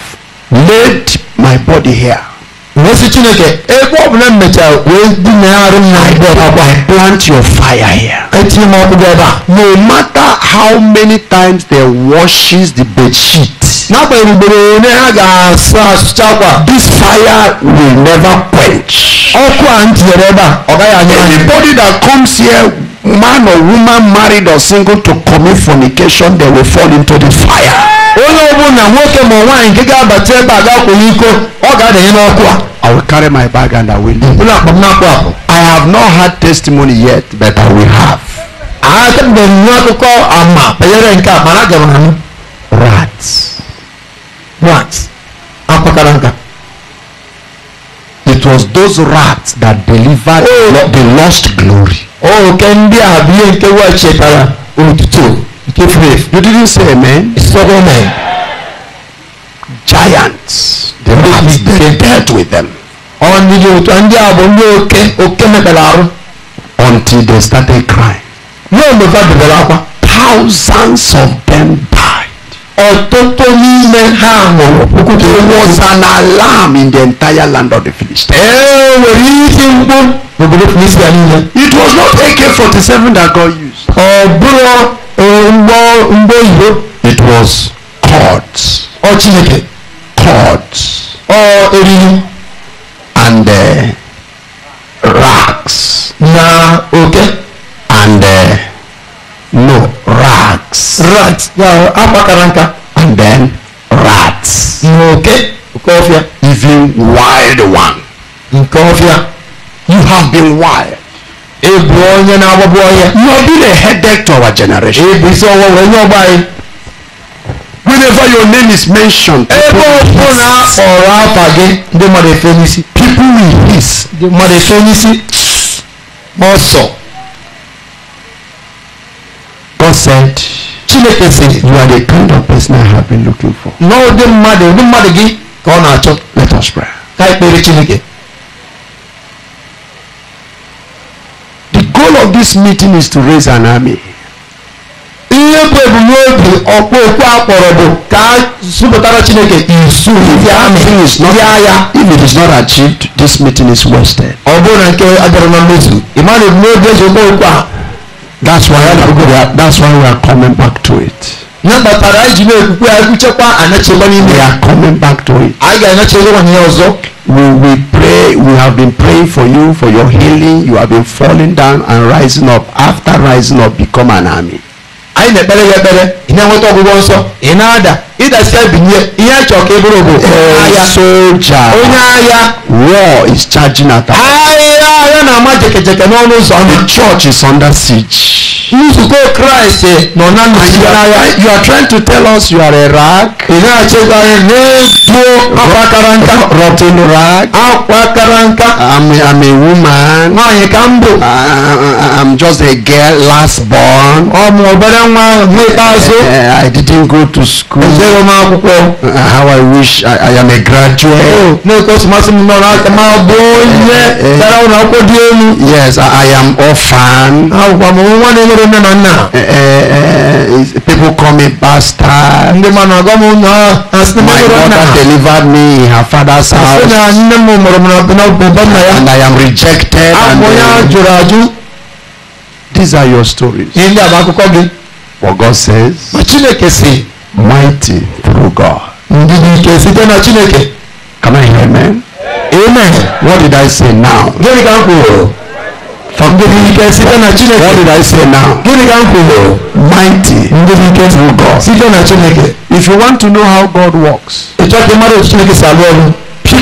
laid my body here. Eh, wee sị chineke ebe ọ bụla m mechara wee dinagharị m n'akwa plant your fire here etinye m ọkụ gị no matter how many times they washes the bed sheet n'agbanyeghị ugboro one ha ga-asa asụcha akwa this fire will never quench ọkọ àǹtí ẹ̀rọ bá ọ̀gá yà nyẹ́. anybody that comes here man or woman married or single to commit fornication they will fall into the fire. onye ọbụla nwoke ma nwaanyị nke ga-abata ebe a ga-akwụnye iko ọ ga-adanye n'ọkụ a. I will carry my bag and I will leave. Ụlọ akpọm na-akpọ akpọ. I have not had testimony yet but I will have. Atabeghị m akụkọ ama banyere nke a mana aga m anụ. Rats. Rats. Akwakara nka it was those rats that delivered oh. the lost glory. òkè oh, ndị a bụ ihe nke wa chetara otuto oh, nke faith. you didn't say amen. sọgbọn mẹ. giants the rats they dealt with them. ọ ndị otu ndị a bụ ndị oke oke mekpere arụ. until they started crying. n'oge fa bidoro akwa. thousands of them ọ̀tọ́tọ́ n'ime ha hụrụ okwute was an alarm in the entire land of the Philistines. ee nwere iti mkpu n'obodo Filistia niile. it was not AK-47 that God used. ọ bụrụ mgbọ mgbọ oyibo. it was cords. ọ Chineke. cords. ọ eriri. and uh, racks. na oke. Okay? and uh, no rats. Yeah, apakaranka. And then rats. Mm, okay. Nkofia. Even wild one. Nkofia. Mm, you have been wild. Ebu onye na-agbagbu ọhịa. You have been a headache to our generation. Ebu isi ọwụwa wee nye ọgba anyị. Whenever your name is mentioned. Ebe ọbụla akpọrọ afa gị ndị mmadụ efe n'isi. People will hiss. Ndị mmadụ efe n'isi. Ọsọ said chineke sị you are the kind of person i have been looking for na ụdị mmadụ ụdị mmadụ gị ka ọ na-achọ let us pray ka anyị chineke the goal of this meeting is to raise an army ihe bụ ebumnobi ọkpọ okwu akpọrọ bụ ka a zụpụtara chineke izu ya ya if it is not achieved this meeting is wasted ọ bụrụ na nke adịrọ na mmezu ị ma na ebumnobi ezi okwu okwu a That's why we are, that's why we are coming back to it. na mbatara anyị ji na-ekwukwe agụchekwa anachekwa n'ime ya. We are coming back to it. anyị ga-anachekwa ihe ọzọ. We we pray we have been praying for you for your healing you have been falling down and rising up after rising up become an army. anyị na-ekpere ya ekpere ị na-enweta ọgwụgwọ nsọ ị na-ada Either ịdasi ebinye ihe chọka ịbụrụ e bụ agha soja onye agha war is charging at us agha agha na-ama jekejeke n'ọnụ ụzọ the church is under siege nzukọ kraịst nọ na nnọchite n'agha you are trying to tell us you are a rag ị na-achịkwa anyị n'ebuo akwa kara nka rotten rag akwa kara nka I'm, I'm a woman nwaanyị ka m bụ I'm just a girl last born ọ bụ obere nwa n'ikpeazụ eh, I didn't go to school Never mind, uh, How I wish I, I am a graduate. Oh, no, because Masim Morak, my boy, eh, eh. Yes, I, I am orphan. Uh, people call me bastard. Oh, my mother delivered me in her father's house. And I am rejected. Ah, and, uh, these are your stories. What God says. mighty through God. Can I hear amen? Amen. What did I say now? Give me m kwuru? What did I say now? Mighty. through God. If you want to know how God works. Pick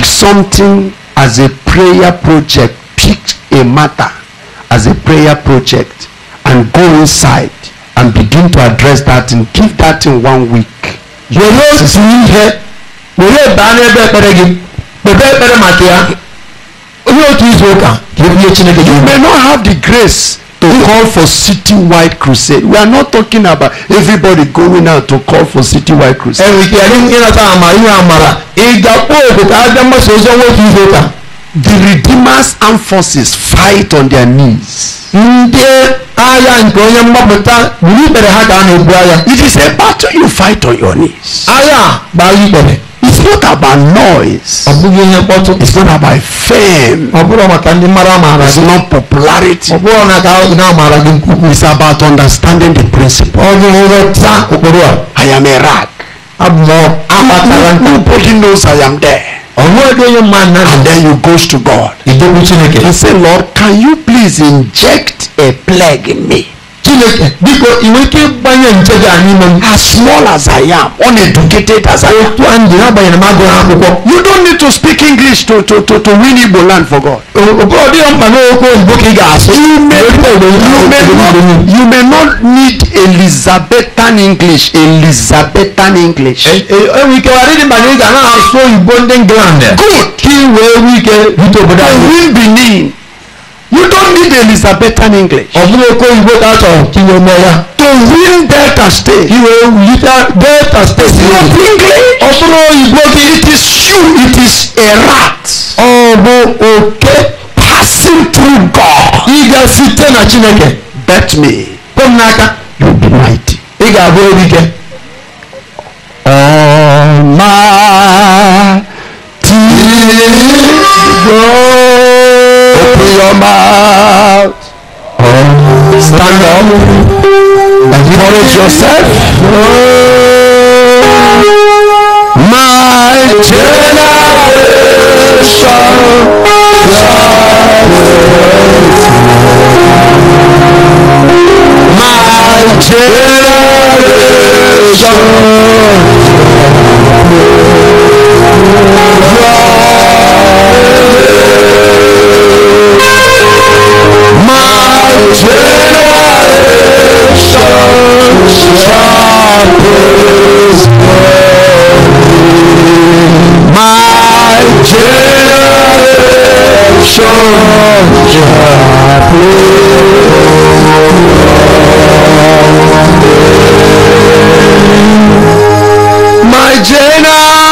something as a prayer project. Pick a matter as a prayer project and go inside and begin to address that and give that in one week. wòye sì ihe wòye baa n'ebe ekpere gị kpebe ekpere maka ya onye otu izu ụka ka ebunye chineke you may not have the grace to call for city-wide crusade we are not talking about everybody going out to call for city-wide crusade. ẹnì kí ẹni ń yẹn àmàlà ìhà àmàlà ìjà pọ̀ òkùnkà ájá mọ́sọ̀ ọjọ́ wọ́n ti ìzọ́ta the redeemer's armed forces fight on their knees. ndị agha nke onye mgbapụta gburu ikpere ha ka na-ebu agha. it is a battle you fight on your knees. agha gbara ikpere. it's not about noise. ọ bụghị ihe mkpọtụ. it's not about fame. ọ bụrụ maka ndị mara amaara gị. it's not popularity. ọ bụrụ na ka ndị amaara gị nkwukwu. it's about understanding the principle. ọ bụ nghọta ụkpụrụ a. I am a rag. abụ m akpatara. nobody knows I am there. Onwere your man and then you goes to God. He said, Lord, can you please inject a plague in me? Chineke biko iweta ịgbanye ncheja anyị ime As small as I am, uneducated as I am. Otu a ndị agbanyeghị m agụghị akwụkwọ. You don't need to speak English to to to to win Igbo land for God. Ọ dịghị mkpa na okwu oyibo ka ị ga-asụ. You may you may not you may not need Elizabethan English Elizabethan English. Enwe e, e, ike ọ dịghị mkpa na ị ga na-asụ oyibo ndị England. Good. Ka ị wee nwee ike rute obodo anyị. win Benin. You don't need Elizabethan English. Ọ̀gbìn Èkó ìgbó dátọ̀ kí ni ọmọ ya. To win Delta State. Kí o yí Delta State ni. English. Ọ̀gbìn ìgbó kí it is you it is a rat. Ọ̀gbìn òkè. Passing through God. Ị ga-esite na Chineke. Bet me. Kpọm n'aka. You be mighty. Ị ga-abụ erike. Ọ̀ma tí. Gbọ́. come out. Stand up. Encourage yourself. My generation My generation My generation My generation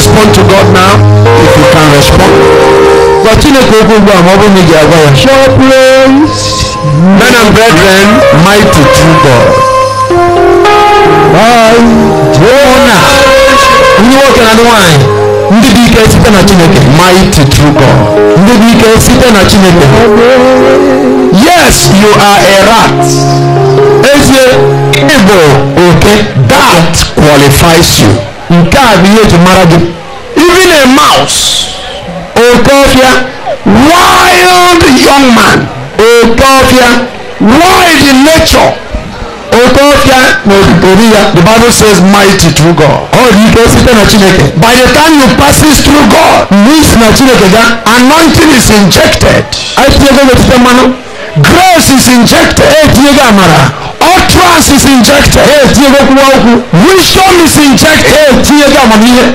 respond to God now if you can respond. Gwa Chineke okwu ugbu a ma ọ bụrụ na ị ga-agwa ya. Show praise. Men and brethren, mighty true God. Ọna ndị nwoke na ndị nwanyị ndị dị ike site na Chineke. Mighty true God. Ndị dị ike site na Chineke. Yes, you are a rat. Ezie, ị bụ oke. That qualifies you nke a bụ ihe eji mara gị even a mouse oke oh, ọfịa wild young man oke oh, ọfịa wild in nature oke ọfịa na ori ya the bible says mighty through god ọ dị ike site na chineke by the time you passes through god means na chineke ga anointing is injected anyị tinyego n'etiti mmanụ grace is injected etinyego amara utterance is injected wisdom is injected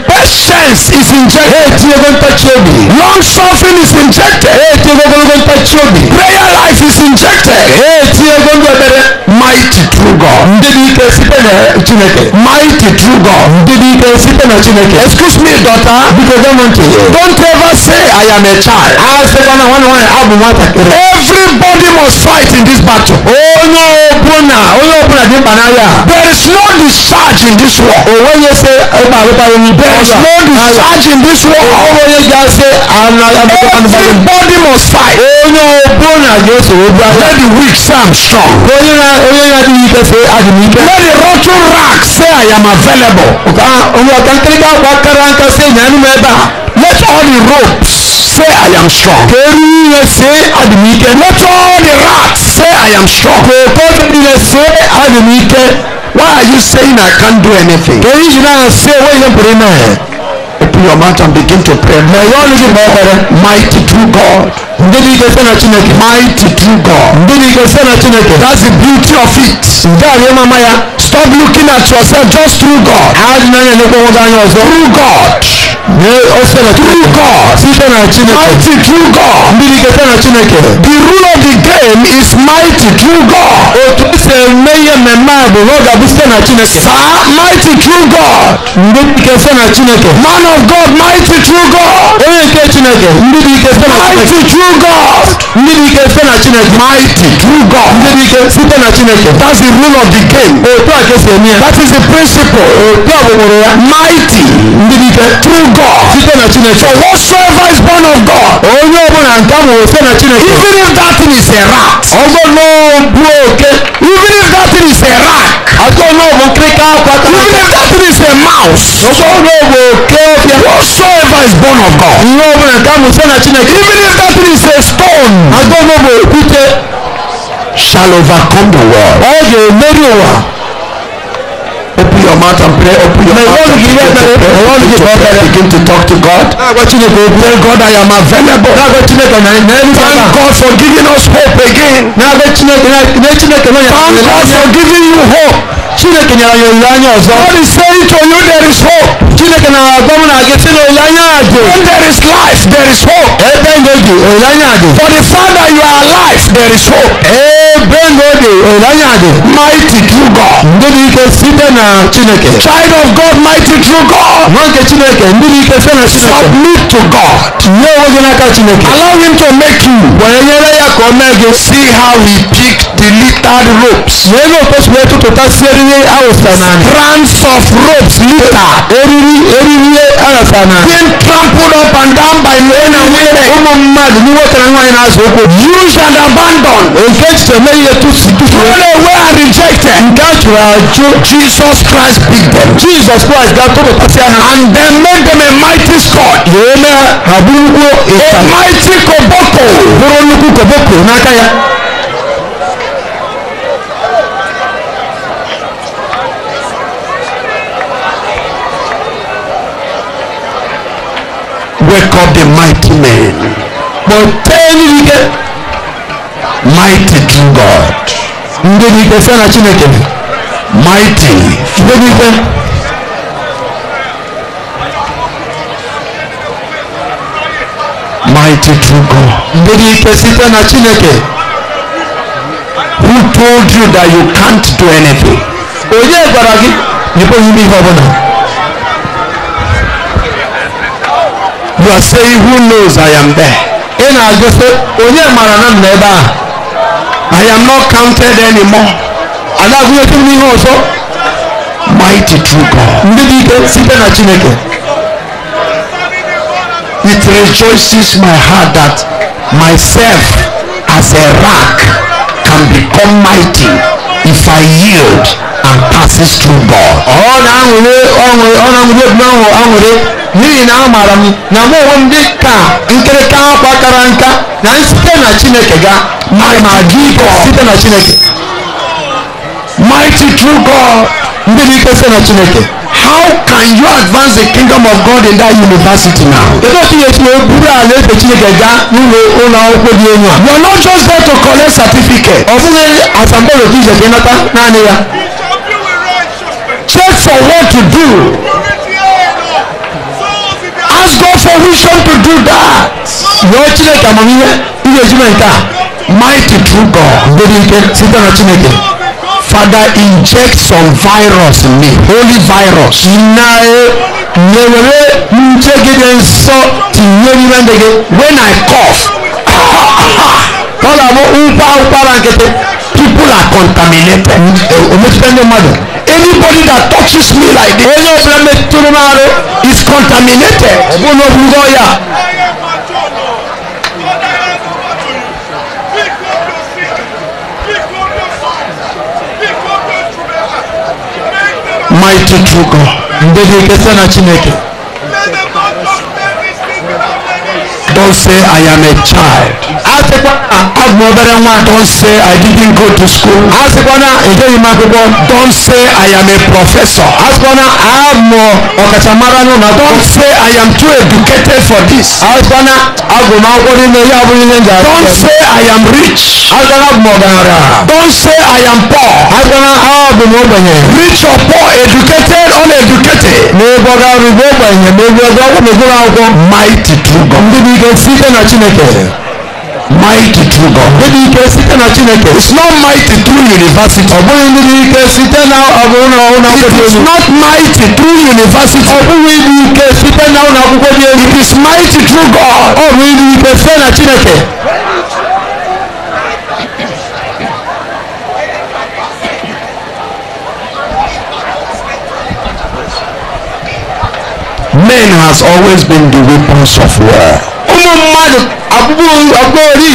patience is injected long suffering is injected prayer life is injected mighty true God mighty true God excuse me daughter don't ever say I am a child. everybody must fight in this battle. onye ọbụla onye ọbụla dị mkpa n'agha. there is no discharge in this war. onwere se ịkpa alụkpa onye bụ ọzọ. there is no discharge in this war. onwere ga-ase anaghị agbata anụmanụ. everybody must fight. onye ọbụla ga-eso obi agha. let the weak say I'm strong. onye na onye na dị ike sị adị m ike. let the rotten rag say I am available. ka onye ọka nkirika akwa kara nka sị nyanụ m ebe a. let all the ropes say I am strong. kedu Dieu say admitted. Not all the rats say I am strong. I'm say admitted. Why are you saying I can't do anything? Can you not say what you pray now? Open your mouth and begin to pray. My Lord is mighty true God. Mighty true God. That's the beauty of it. Stop looking at yourself just through God. Through God. ọsẹlẹ true God site na Chineke mighty true God mbilike site na Chineke the rule of the game is mighty true God otu esi eme ihe mmemme a bụ lọga bụ site na Chineke saa mighty true God mbilike site na Chineke man of God mighty true God onye nke Chineke mbilike site na Chineke mighty true God mbilike site na Chineke mighty true God mbilike site na Chineke that's the rule of the game otu a ka esi that is the principle otu a mighty mbilike true God. God. Site na Chineke. For whatsoever is born of God. Onye ọbụla nke ahụ site na Chineke. Even if that thing is a rat. Ọgbọ n'ogbu oke. Even if that thing is a rat. Ajọ n'ọbụ nkirika akwa. Even if that thing is a mouse. Ọgbọ n'ogbu oke ọbịa. Whatsoever is born of God. Ihe ọbụla nke ahụ site na Chineke. Even if that thing is a stone. Ajọ n'ogbu okwute. Shall overcome the world. Ọ ga-emeri ụwa open your mouth and pray open your mouth and pray to pray begin to pray begin to talk to God tell God I am available thank God for giving us hope again thank God for giving you hope chineke nyere ya olileanya ọzọ God is saying to you there is hope chineke na-agwa na gị sị na olileanya dị when there is life there is hope ebe ndụ dị olileanya dị for the fact that you are alive there is hope benode onanyade mighty true god ndị ike site na chineke child of god mighty true god nwa chineke ndị ike site chineke submit to god nye onwe gị n'aka chineke allow him to make you were nyere ya ka o mee see how he picked the littered ropes wee na okposi wee tụtụtasị eriri awụsa n'ala strands of ropes litter eriri eriri awụsa n'ala being trampled up and down by men and women ụmụ mmadụ ndị nwoke na nwaanyị na-azụ ụkwụ used and abandon. nke chineke eléyìí ètò sídùú. Truly we are rejected. Nga jùlọ àjò. Jesus Christ big them. Jesus Christ ga tó bàtà sí àná. And then make them a mighty sword. Yèé mẹ́ àbúrúgbó ìta. A mighty koboko. Bóró nnukwu koboko n'aka ya. Wake up the mighty men. Kpọtee n'ihe. Mighty mighty God. Ndị dị ikpe fena Chineke. Mighty. Ndị dị ikpe. Mighty true God. Ndị dị ikpe site Chineke. Who told you that you can't do anything? Onye gwara gị na ị pụghị ihe ọ You are saying who knows I am there. Ị na-agụ sị onye mara na m nọ ebe I am not counted anymore. Aláàgbéyẹ̀tì ní ìhàn also. Mighty true God. It rejoices my heart that myself as a rock can become mighty if I yield and passes through God. Oh, ọ na-aṅụrị ọṅụrị ọ na-aṅụrị ebu ahụ aṅụrị n'ihi na amaara m na mụ onwe m dị ka nkịrịka akwa kara nka na site na Chineke gaa. mighty God site na Chineke mighty true God ndị n'ike site na Chineke how can you advance the kingdom of God in that university now. Kedu otu ihe tinye buru ala efe Chineke gaa n'ụlọ ụlọ akwụkwọ dị elu a. You are not just there to collect certificate. Ọ bụghị asambodo ka ije ka ịnata naanị ya. Check for what to do. Ask God for wisdom to do that. Rịọ Chineke amamihe ị ga-eji mee nke a mighty true God lórí ike site na Chineke Father inject some virus in me holy virus na nyewere njegide nsọ tinyerire ndege when I cough *laughs* tọ́lá mú nkwa nkwara nkịtị people are contaminated ometụta ndị mmadụ anybody that touches me like this onye ọbụla metụtụrụ m arụ is contaminated ọ bụrụ na ọ bụrụ ọya mighty true God. Ndị dị ikpesa na Chineke. Don't say I am a child. agbọ̀nbẹ̀rẹ̀ wọn. don't say I didn't go to school. asikwana èdèyí máa gbogbo. don't say I am a professor. asikwana àmọ̀ ọ̀kàtàmárà ní don't say I am too educated for this. asikwana agbọ̀nmọ̀ akwọ́ nínú ẹ̀yà abúlé ní ẹ̀jẹ̀. don't say I am rich. asikwana agbọ̀nbẹ̀rẹ̀. don't say I am poor. asikwana agbọ̀nmọ̀ ọ̀gbẹ̀yẹ. rich or poor educated or uneducated. n'egbọdọ arúgbó ọgbẹ̀yẹ n'egbọdọ ọgbẹ̀yẹ n'egbọdọ akwụkwọ. mighty true God. ndị bụ ike site na Chineke. Mighty true God. It's not mighty through university. It's not mighty through university. It is mighty true God. Ọ bụ ndị Men has always been the weapons of war. ụmụ mmadụ abụbụ ori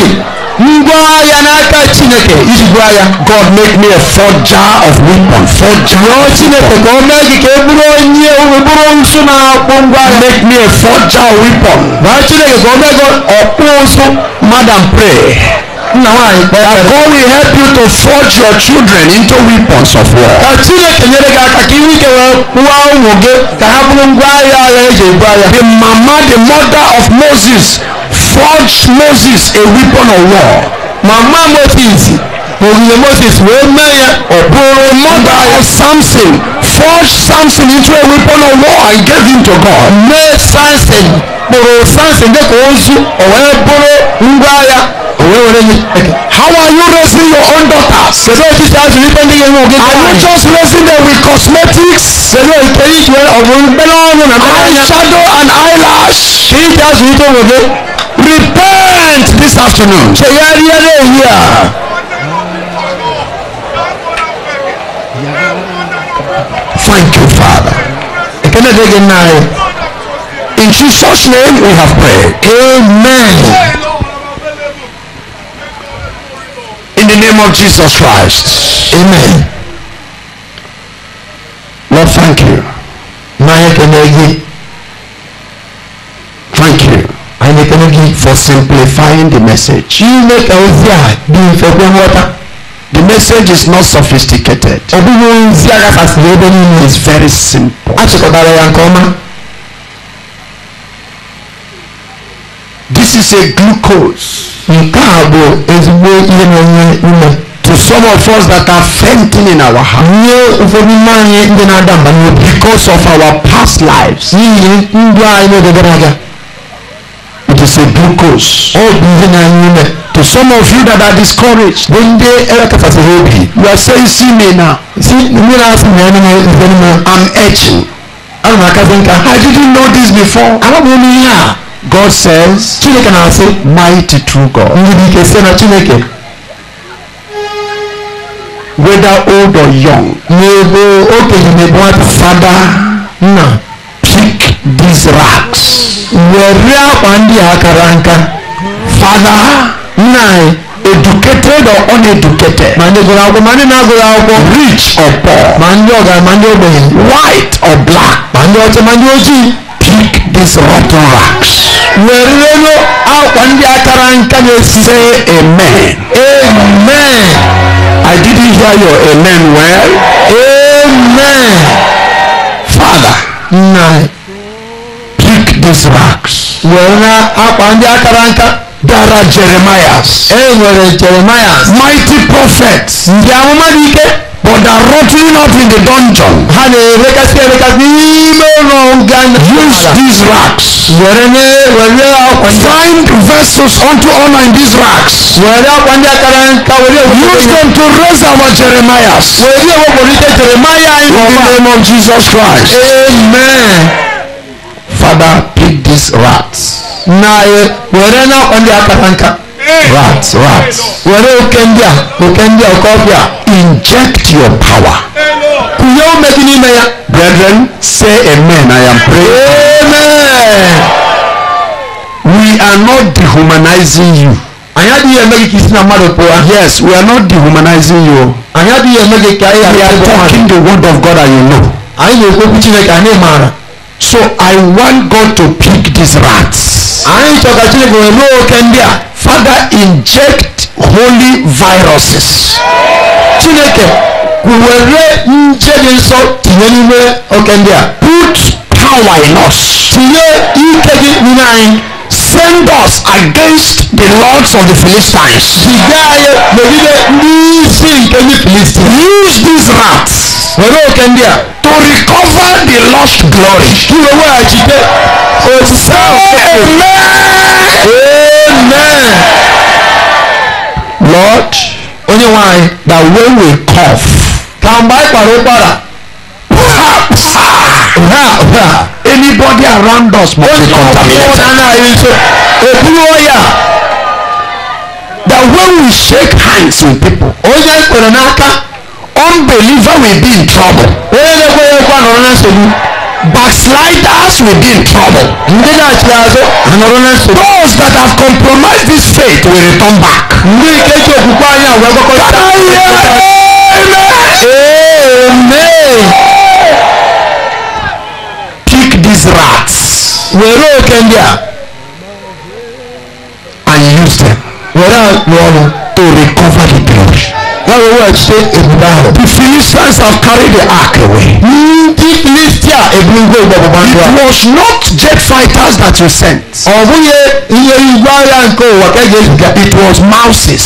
ngwaahịa n'aka chineke ijigbu agha god make me a forger of weapon forger rịọ chineke ka o mee gị ka e bụrụ onye e bụrụ nsụ na-akpụ ngwaahịa make me a forger of weapon rịọ chineke ka o mee gị ọkpụ nsụ madam pray That God will help you to forge your children into weapons of war. The mama, the mother of Moses, forged Moses a weapon of war. Mama Moses. Òrìlè Moses wèé mẹ́yẹ. Òbúrò mother ẹ̀ Samson forged Samson into a weapon of war and gave him to God. Mé Samson kpọ̀rọ̀ Samson dẹ́kun ozu ọ̀wẹ́ bụrụ ngwa ya òwe wẹrẹ yìí. how are you raising your own daughter. pẹ̀lú ètí tí a fi wípé ní ìwé ògì. are you just raising them with cosmetics. pẹ̀lú ètò ìṣe ọ̀gbìn gbẹ́lọ́ọ̀nù mẹ́kọ́. eye shadow and eyelash. kí tí a fi wípé ògì. repent this afternoon. ṣe yẹ́rì yẹ́rì èyí à. Thank you, Father. In Jesus' name we have prayed. Amen. of Jesus Christ. Amen. Lord, thank you. Thank you. I need energy for simplifying the message. The message is not sophisticated. It's very simple. This is a glucose. To some of us that are fainting in our heart. Because of our past lives. It is a glucose. To some of you that are discouraged. You are saying see me now. See, I'm etching. I didn't know this before. I God says, Chineke na-asị mighty true God. Ndị ike sị na Chineke whether old or young. N'ebe okenye na-ebu nwata fada nna pick these rags. Were akwa ndị a kara nka. Fada nna educated or uneducated. Ma ndị gụrụ akwụkwọ ma ndị na-agụrụ akwụkwọ. Rich or poor. Ma ndị ọgaranya ma ndị ogbenye. White or black. Ma ndị ọcha ma ndị ojii. Break these rotten racks. werelu akwa ndị akara nka na-esi. say amen. amen. I didn't hear your amen well. amen. father. now break these racks. were akwa ndị akara nka. there are jeremiahs. e eh, jeremiahs. mighty prophets. dị but are rotting up in the dungeon. Honey, let us na-erekasị erekasị n'ime ụlọ nga use these racks. were nye were akwa ndị find vessels unto honor in these racks. we akwa ndị akara nka were ewepụrụ use them to raise our jeremiahs. were ewepụrịta jeremiah in the name of jesus christ. amen. father pick these rats. na were na akwa ndị akara nka. rats rats were okembia okembia okobia inject your power kunye omegi n'ime ya brethren say amen i am praying amen we are not dehumanizing you anyị adịghị eme gị ka isi na mmadụ pụọ yes we are not dehumanizing you anyị adịghị eme gị ka anyị we are talking the word of god and you know anyị na-ekwekwu chineke anyị maara so i want god to pick these rats anyị chọrọ ka chineke wee ruo oke ndị a father inject holy viruses chineke were nje dị nsọ tinye n'ime oke ndị a put power in us tinye ike gị n'ime anyị defend us against the lords of the Philistines. Ìgbé ayé lòdìdé ní sí ìkéwì Philistines. Use these rats. Pẹ̀lú òkè ndí à. To recover the lost glory. Kí ló wá àjídé? Òṣìṣẹ́ òkè. Amen. Amen. Lord. Oníwọ̀n àyè. That when we cough. Kàmbá ìpàrọ̀ para. Perhaps. Perhaps anybody around us must be contaminated. Òkúrú ọ̀yà. That when we shake hands with people. Onye kwere n'aka. Unbeliever will be in trouble. Onye na-ekweghị ekwe anọrọ na nsogbu. Backsliders will be in trouble. Ndị na-achị azụ anọrọ na nsogbu. Those that have compromised this faith will return back. Ndị nke ji okwukwe anyị agwa gwakọta. Amen. Amen. These rats were oke ndị a and use them were rụọ ọrụ to recover the glory. That was what say ebube ahụ. The Philistines have carried the ark away. Ndị Filistia ebulugo igbe ndụ ahụ. It was not jet fighters that you sent. Ọ bụghị ihe igwe agha nke ụwa ka eji eziga. It was mouses.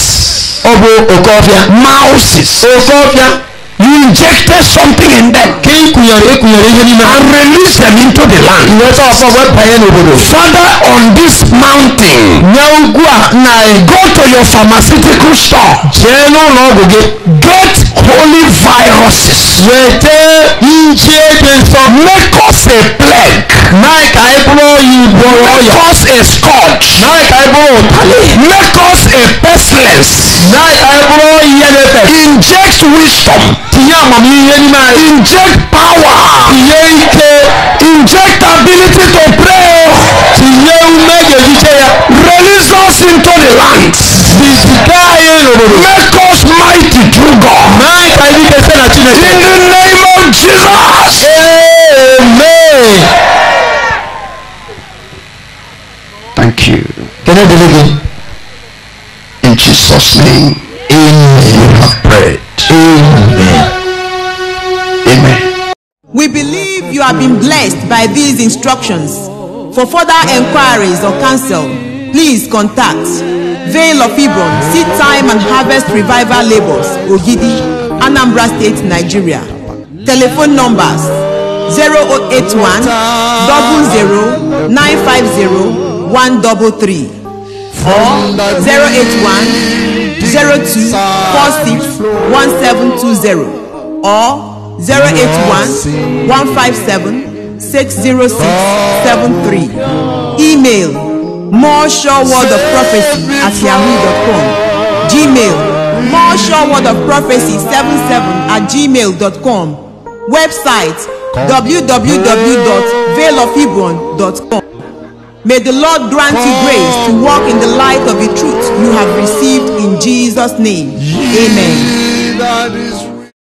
Ọ bụ oke ọfịa. Mouses. Oke ọfịa you injected something in them. kí n kùnyàrú ekùnyàrú ihe nínú. and release them into the land. ìwé sọ ọsọ wẹ pẹ̀yẹ n'obodo. father on this mountain. nye a na go to your pharmaceutical store. jee n'ụlọ get holy viruses. wete nje dị nsọ. make us a plague. mee ka anyị bụrụ oyi bụrụ make us a scourge. mee ka anyị bụrụ make us a pestilence. mee ka anyị bụrụ oyi ya inject wisdom tinye amamihe n'ime anyị. inject power. tinye ike. inject ability to pray. tinye ume ga-ejiche ya. release us into the land. bizite anyị n'obodo. make us mighty through God. mee ka anyị dị na Chineke. in the name of Jesus. amen. thank you. kene dele gị. in Jesus name. amen. you have prayed. amen. We believe you have been blessed by these instructions. For further inquiries or counsel, please contact Vale of Hebron Seed Time and Harvest Revival Labels, Ogidi, Anambra State, Nigeria. Telephone numbers 0881 00 950 or 081 02 or 081 157 60673. Email more sure word of prophecy at yahoo.com. Gmail more sure word of prophecy 77 at gmail.com. Website www.veilofhebron.com. May the Lord grant you grace to walk in the light of the truth you have received in Jesus' name. Amen.